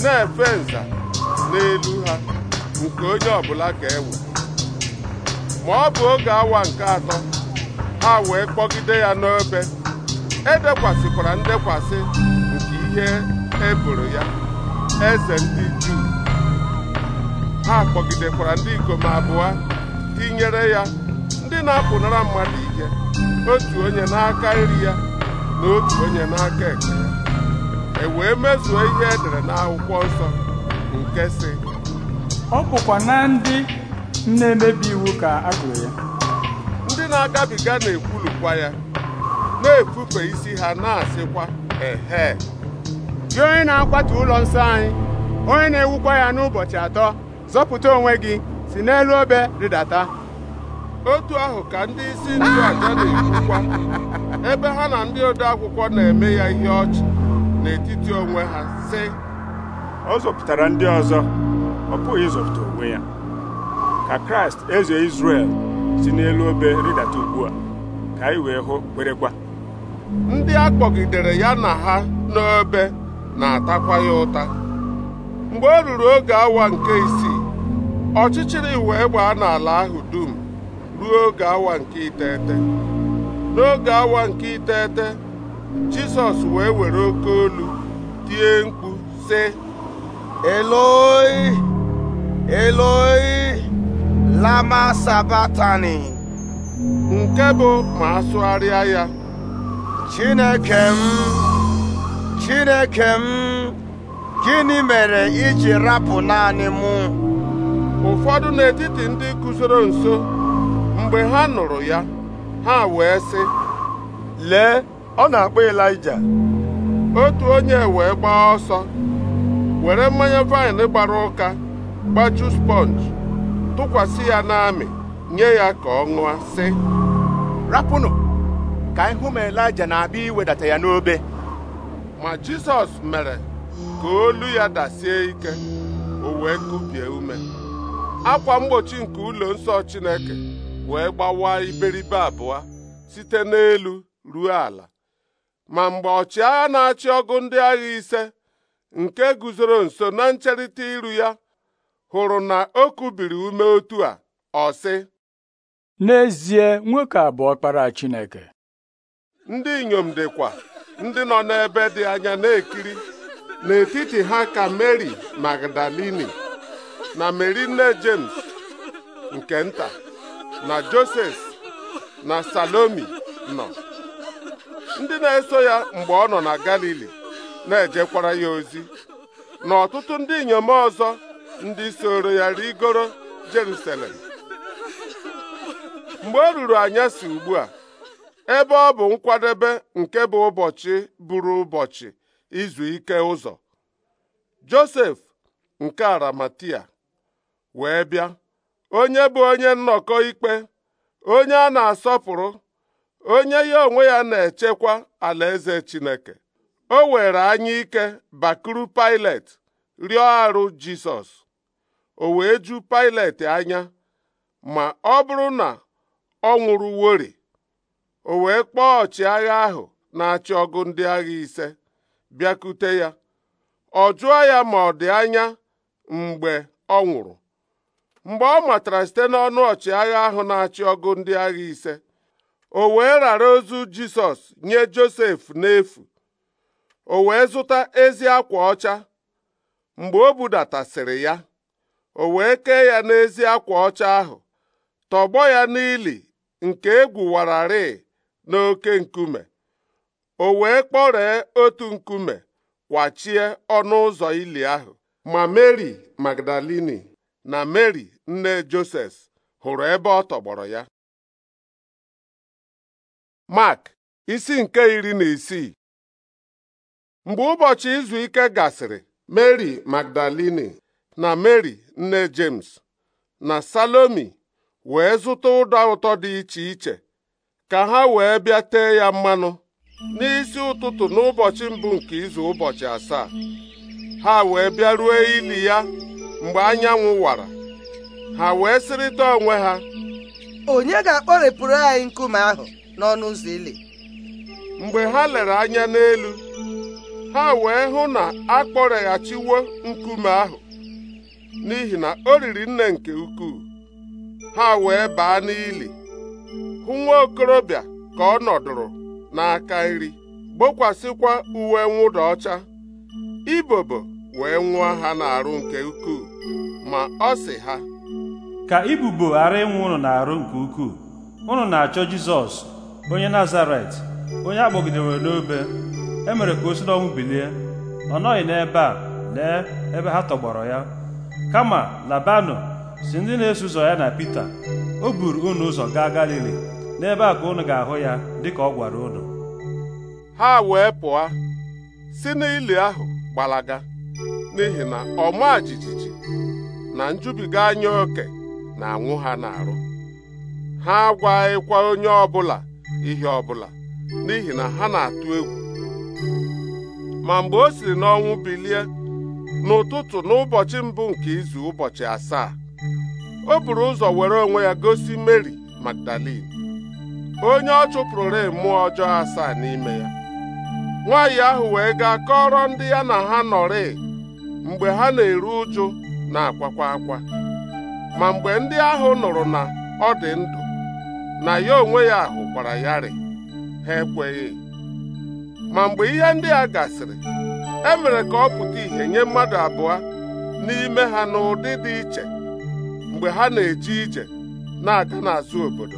na-efe nza n'elu ha nke onye ọbụla ga-ewe ma ọ bụ oge awa nke atọ ha wee kpọgide ya n'ebe edekwasịkwara ndekwasị nke ihe eboro ya eze ndị Juu ha kpọgidekwara ndị ikom abụọ tinyere ya ndị na-apụnara mmadụ ike otu onye n'aka nri ya na otu onye n'aka ekpe ya e wee mezuo ihe edere n'akwụkwọ nsọ nke sị ọ bụkwa na ndị na-emebi iwu ka a gụrụ ya ndị na-agabiga na-ekwulukwa ya na-efufe isi ha na-asịkwa ehe gị onye na-akwatu ụlọ nsọ anyị onye na-ewukwa ya n'ụbọchị atọ zọpụta onwe gị si n'elu obe rịdata otu ahụ ka ndị isi ndụ aja na-ekwukwa ebe ha na ndị ode akwụkwọ na-eme ya ihe ọchị n'etiti onwe ha sị ọ zọpụtara ndị ọzọ ọ pụghị ịzọpụta onwe ya ka kraịst eze izrel si n'elu obe rịdata ugbu a ka anyị wee hụ kwerekwa ndị a kpọgidere ya na ha n'obe na-atakwa ya ụta mgbe o ruru oge awa nke isii ọchịchịrị wee gbaa n'ala ahụ dum ruo oge awa nke iteghete n'oge awa nke iteghete jizọs wee were oke olu tie mkpu sị eloi eloi lama sabatani nke bụ ma asụgharịa ya chineke m chineke m gịnị mere iji rapụ naanị mụ ụfọdụ n'etiti ndị guzoro nso mgbe ha nụrụ ya ha wee sị lee ọ na-akpọ Elija! otu onye wee gbaa ọsọ were mmanya vaịn gbara ụka gbaju sponge tụkwasị ya n'amị nye ya ka ọ ṅụọ sị rapụnụ ka ihu m ma na-abịa iwedata ya n'obe ma Jisọs mere ka olu ya dasie ike o wee kubie ume akwa mgbochi nke ụlọ nsọ Chineke wee gbawa iberibe abụọ site n'elu ruo ala ma mgbe ọchịagha na-achị ọgụ ndị agha ise nke guzoro nso na ncherịta iru ya hụrụ na o kubiri ume otu a ọ n'ezie nwoke a bụ ọkpara Chineke ndị inyom dịkwa ndị nọ n'ebe dị anya na-ekiri n'etiti ha ka Mary Magdalini na Mary nne James nke nta na Joses na Salomi nọ ndị na-eso ya mgbe ọ nọ na Galili na-ejekwara ya ozi na ọtụtụ ndị inyom ọzọ ndị soro ya rigoro Jerusalem mgbe o ruru anyasị ugbu a ebe ọ bụ nkwadebe nke bụ ụbọchị bụrụ ụbọchị izu ike ụzọ Josef nke Aramatia wee bịa onye bụ onye nnọkọ ikpe onye a na-asọpụrụ onye ya onwe ya na-echekwa alaeze Chineke o were anya ike bakuru Pilet rịọ arụ Jisọs o wee ju Pilet anya ma ọ bụrụ na ọ nwụrụ wori o wee kpọọ ọchịagha ahụ na-achị ọgụ ndị agha ise bịakute ya ọ jụọ ya ma ọ dị anya mgbe ọ nwụrụ mgbe ọ matara site n'ọnụ ọchịagha ahụ na-achị ọgụ ndị agha ise o wee rara ozu Jisọs nye Josef n'efu o wee zụta ezi akwa ọcha mgbe o budatasịrị ya o wee kee ya n'ezi akwa ọcha ahụ tọgbọ ya n'ili nke wararị n'oke nkume o wee kpọree otu nkume kwachie ọnụ ụzọ ili ahụ ma Mary Magdalini na Mary nne Joses hụrụ ebe ọ tọgbọrọ ya Mark isi nke iri na isii mgbe ụbọchị izu ike gasịrị mary Magdalini na Meri nne James na Salomi wee zụta ụda ụtọ dị iche iche ka ha wee bịa tee ya mmanụ n'isi ụtụtụ n'ụbọchị mbụ nke izu ụbọchị asaa ha wee bịaruo ili ya mgbe anyanwụ wara ha wee sịrịta onwe ha onye ga-akpọrepụrụ anyị nkume ahụ n'ọnụ ụzọ ili mgbe ha lere anya n'elu ha wee hụ na a kpọreghachiwo nkume ahụ n'ihi na o riri nne nke ukwuu ha wee baa n'ili hụ nwa okorobịa ka ọ nọdụrụ n'aka nri gbokwasịkwa uwe mwụda ọcha ibobo wee nwụọ ha n'arụ nke ukwuu ma ọ sị ha ka ibubo ghara ịnwụ ụnụ n'arụ nke ukwuu ụnụ na-achọ Jizọs onye Nazaret onye a kpọgidere n'obe e mere ka o si n'ọnwụ bilie ọ nọghị n'ebe a lee ebe ha tọgbọrọ ya kama labanụ si ndị na-eso ụzọ ya na Pita o buru unu ụzọ gaa Galili n'ebe a ka unu ga-ahụ ya dịka ọ gwara unu ha wee pụọ si n'ili ahụ gbalaga n'ihi na ọma jijiji na njubiga anya oke na-anwụ ha na arụ ha agwaghịkwa onye ọbụla ihe ọbụla n'ihi na ha na-atụ egwu ma mgbe o siri n'ọnwụ bilie n'ụtụtụ n'ụbọchị mbụ nke izu ụbọchị asaa o buru ụzọ were onwe ya gosi Meri Magdalin onye ọ chụpụrụre mmụọ ọjọọ asaa n'ime ya nwaanyị ahụ wee gaa kọrọ ndị ya na ha nọrị mgbe ha na-eru ụjụ na-akwakwa akwa ma mgbe ndị ahụ nụrụ na ọ dị ndụ na ya onwe ya hụkwara ya rị ha ekweghị ma mgbe ihe ndị a gasịrị e mere ka ọ pụta ìhè nye mmadụ abụọ n'ime ha n'ụdị dị iche mgbe ha na-eje ije na-aga n'azụ obodo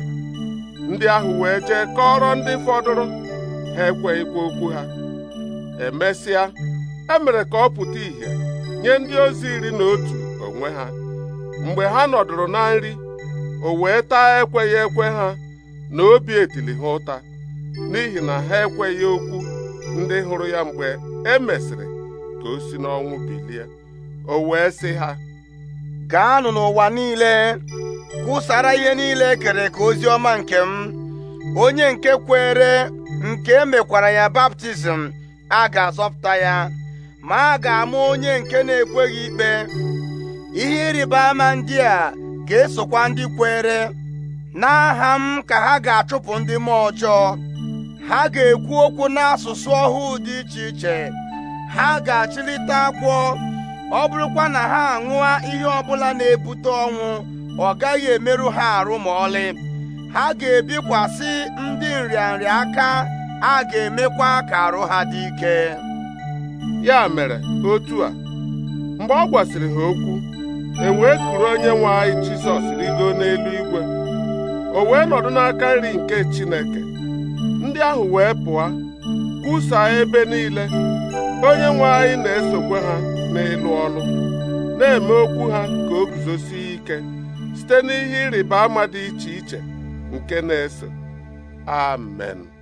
ndị ahụ wee jee kọrọ ndị fọdụrụ ha ekweghịkwa okwu ha emesịa emere ka ọ pụta ìhè nye ndị ozi iri na otu onwe ha mgbe ha nọdụrụ na nri o wee taa ekweghị ekwe ha na obi etili ha ụta n'ihi na ha ekweghị okwu ndị hụrụ ya mgbe e mesịrị ka o si n'ọnwụ bilie o wee sị ha gaanụ n'ụwa niile kwụsara ihe niile e kere ka ozi ọma nke m onye nke kwere nke emekwara ya baptizim a ga-azọpụta ya ma a ga amụ onye nke na-ekweghị ikpe ihe ịrịba ama ndị a ga-esokwa ndị kwere n'aha m ka ha ga-achụpụ ndị mmụọ ọjọọ ha ga-ekwu okwu n'asụsụ ọhụụ dị iche iche ha ga-achịlite akwụ ọ bụrụkwa na ha aṅụa ihe ọbụla na-ebute ọnwụ ọ gaghị emerụ ha arụ ma ọlị ha ga-ebikwasị ndị nrịanrịa aka a ga-emekwa ka arụ ha dị ike ya mere otu a mgbe ọ gwasịrị ha okwu e wee kuru onye nwe anyị Jizọs rigo n'eluigwe o wee nọdụ n'aka nri nke Chineke ndị ahụ wee pụọ kwusaa ebe niile onye nwe anyị na-esokwa ha n'elu ọnụ, na-eme okwu ha ka o guzosie ike site n'ihe ịrịba ama dị iche iche nke na-ese amen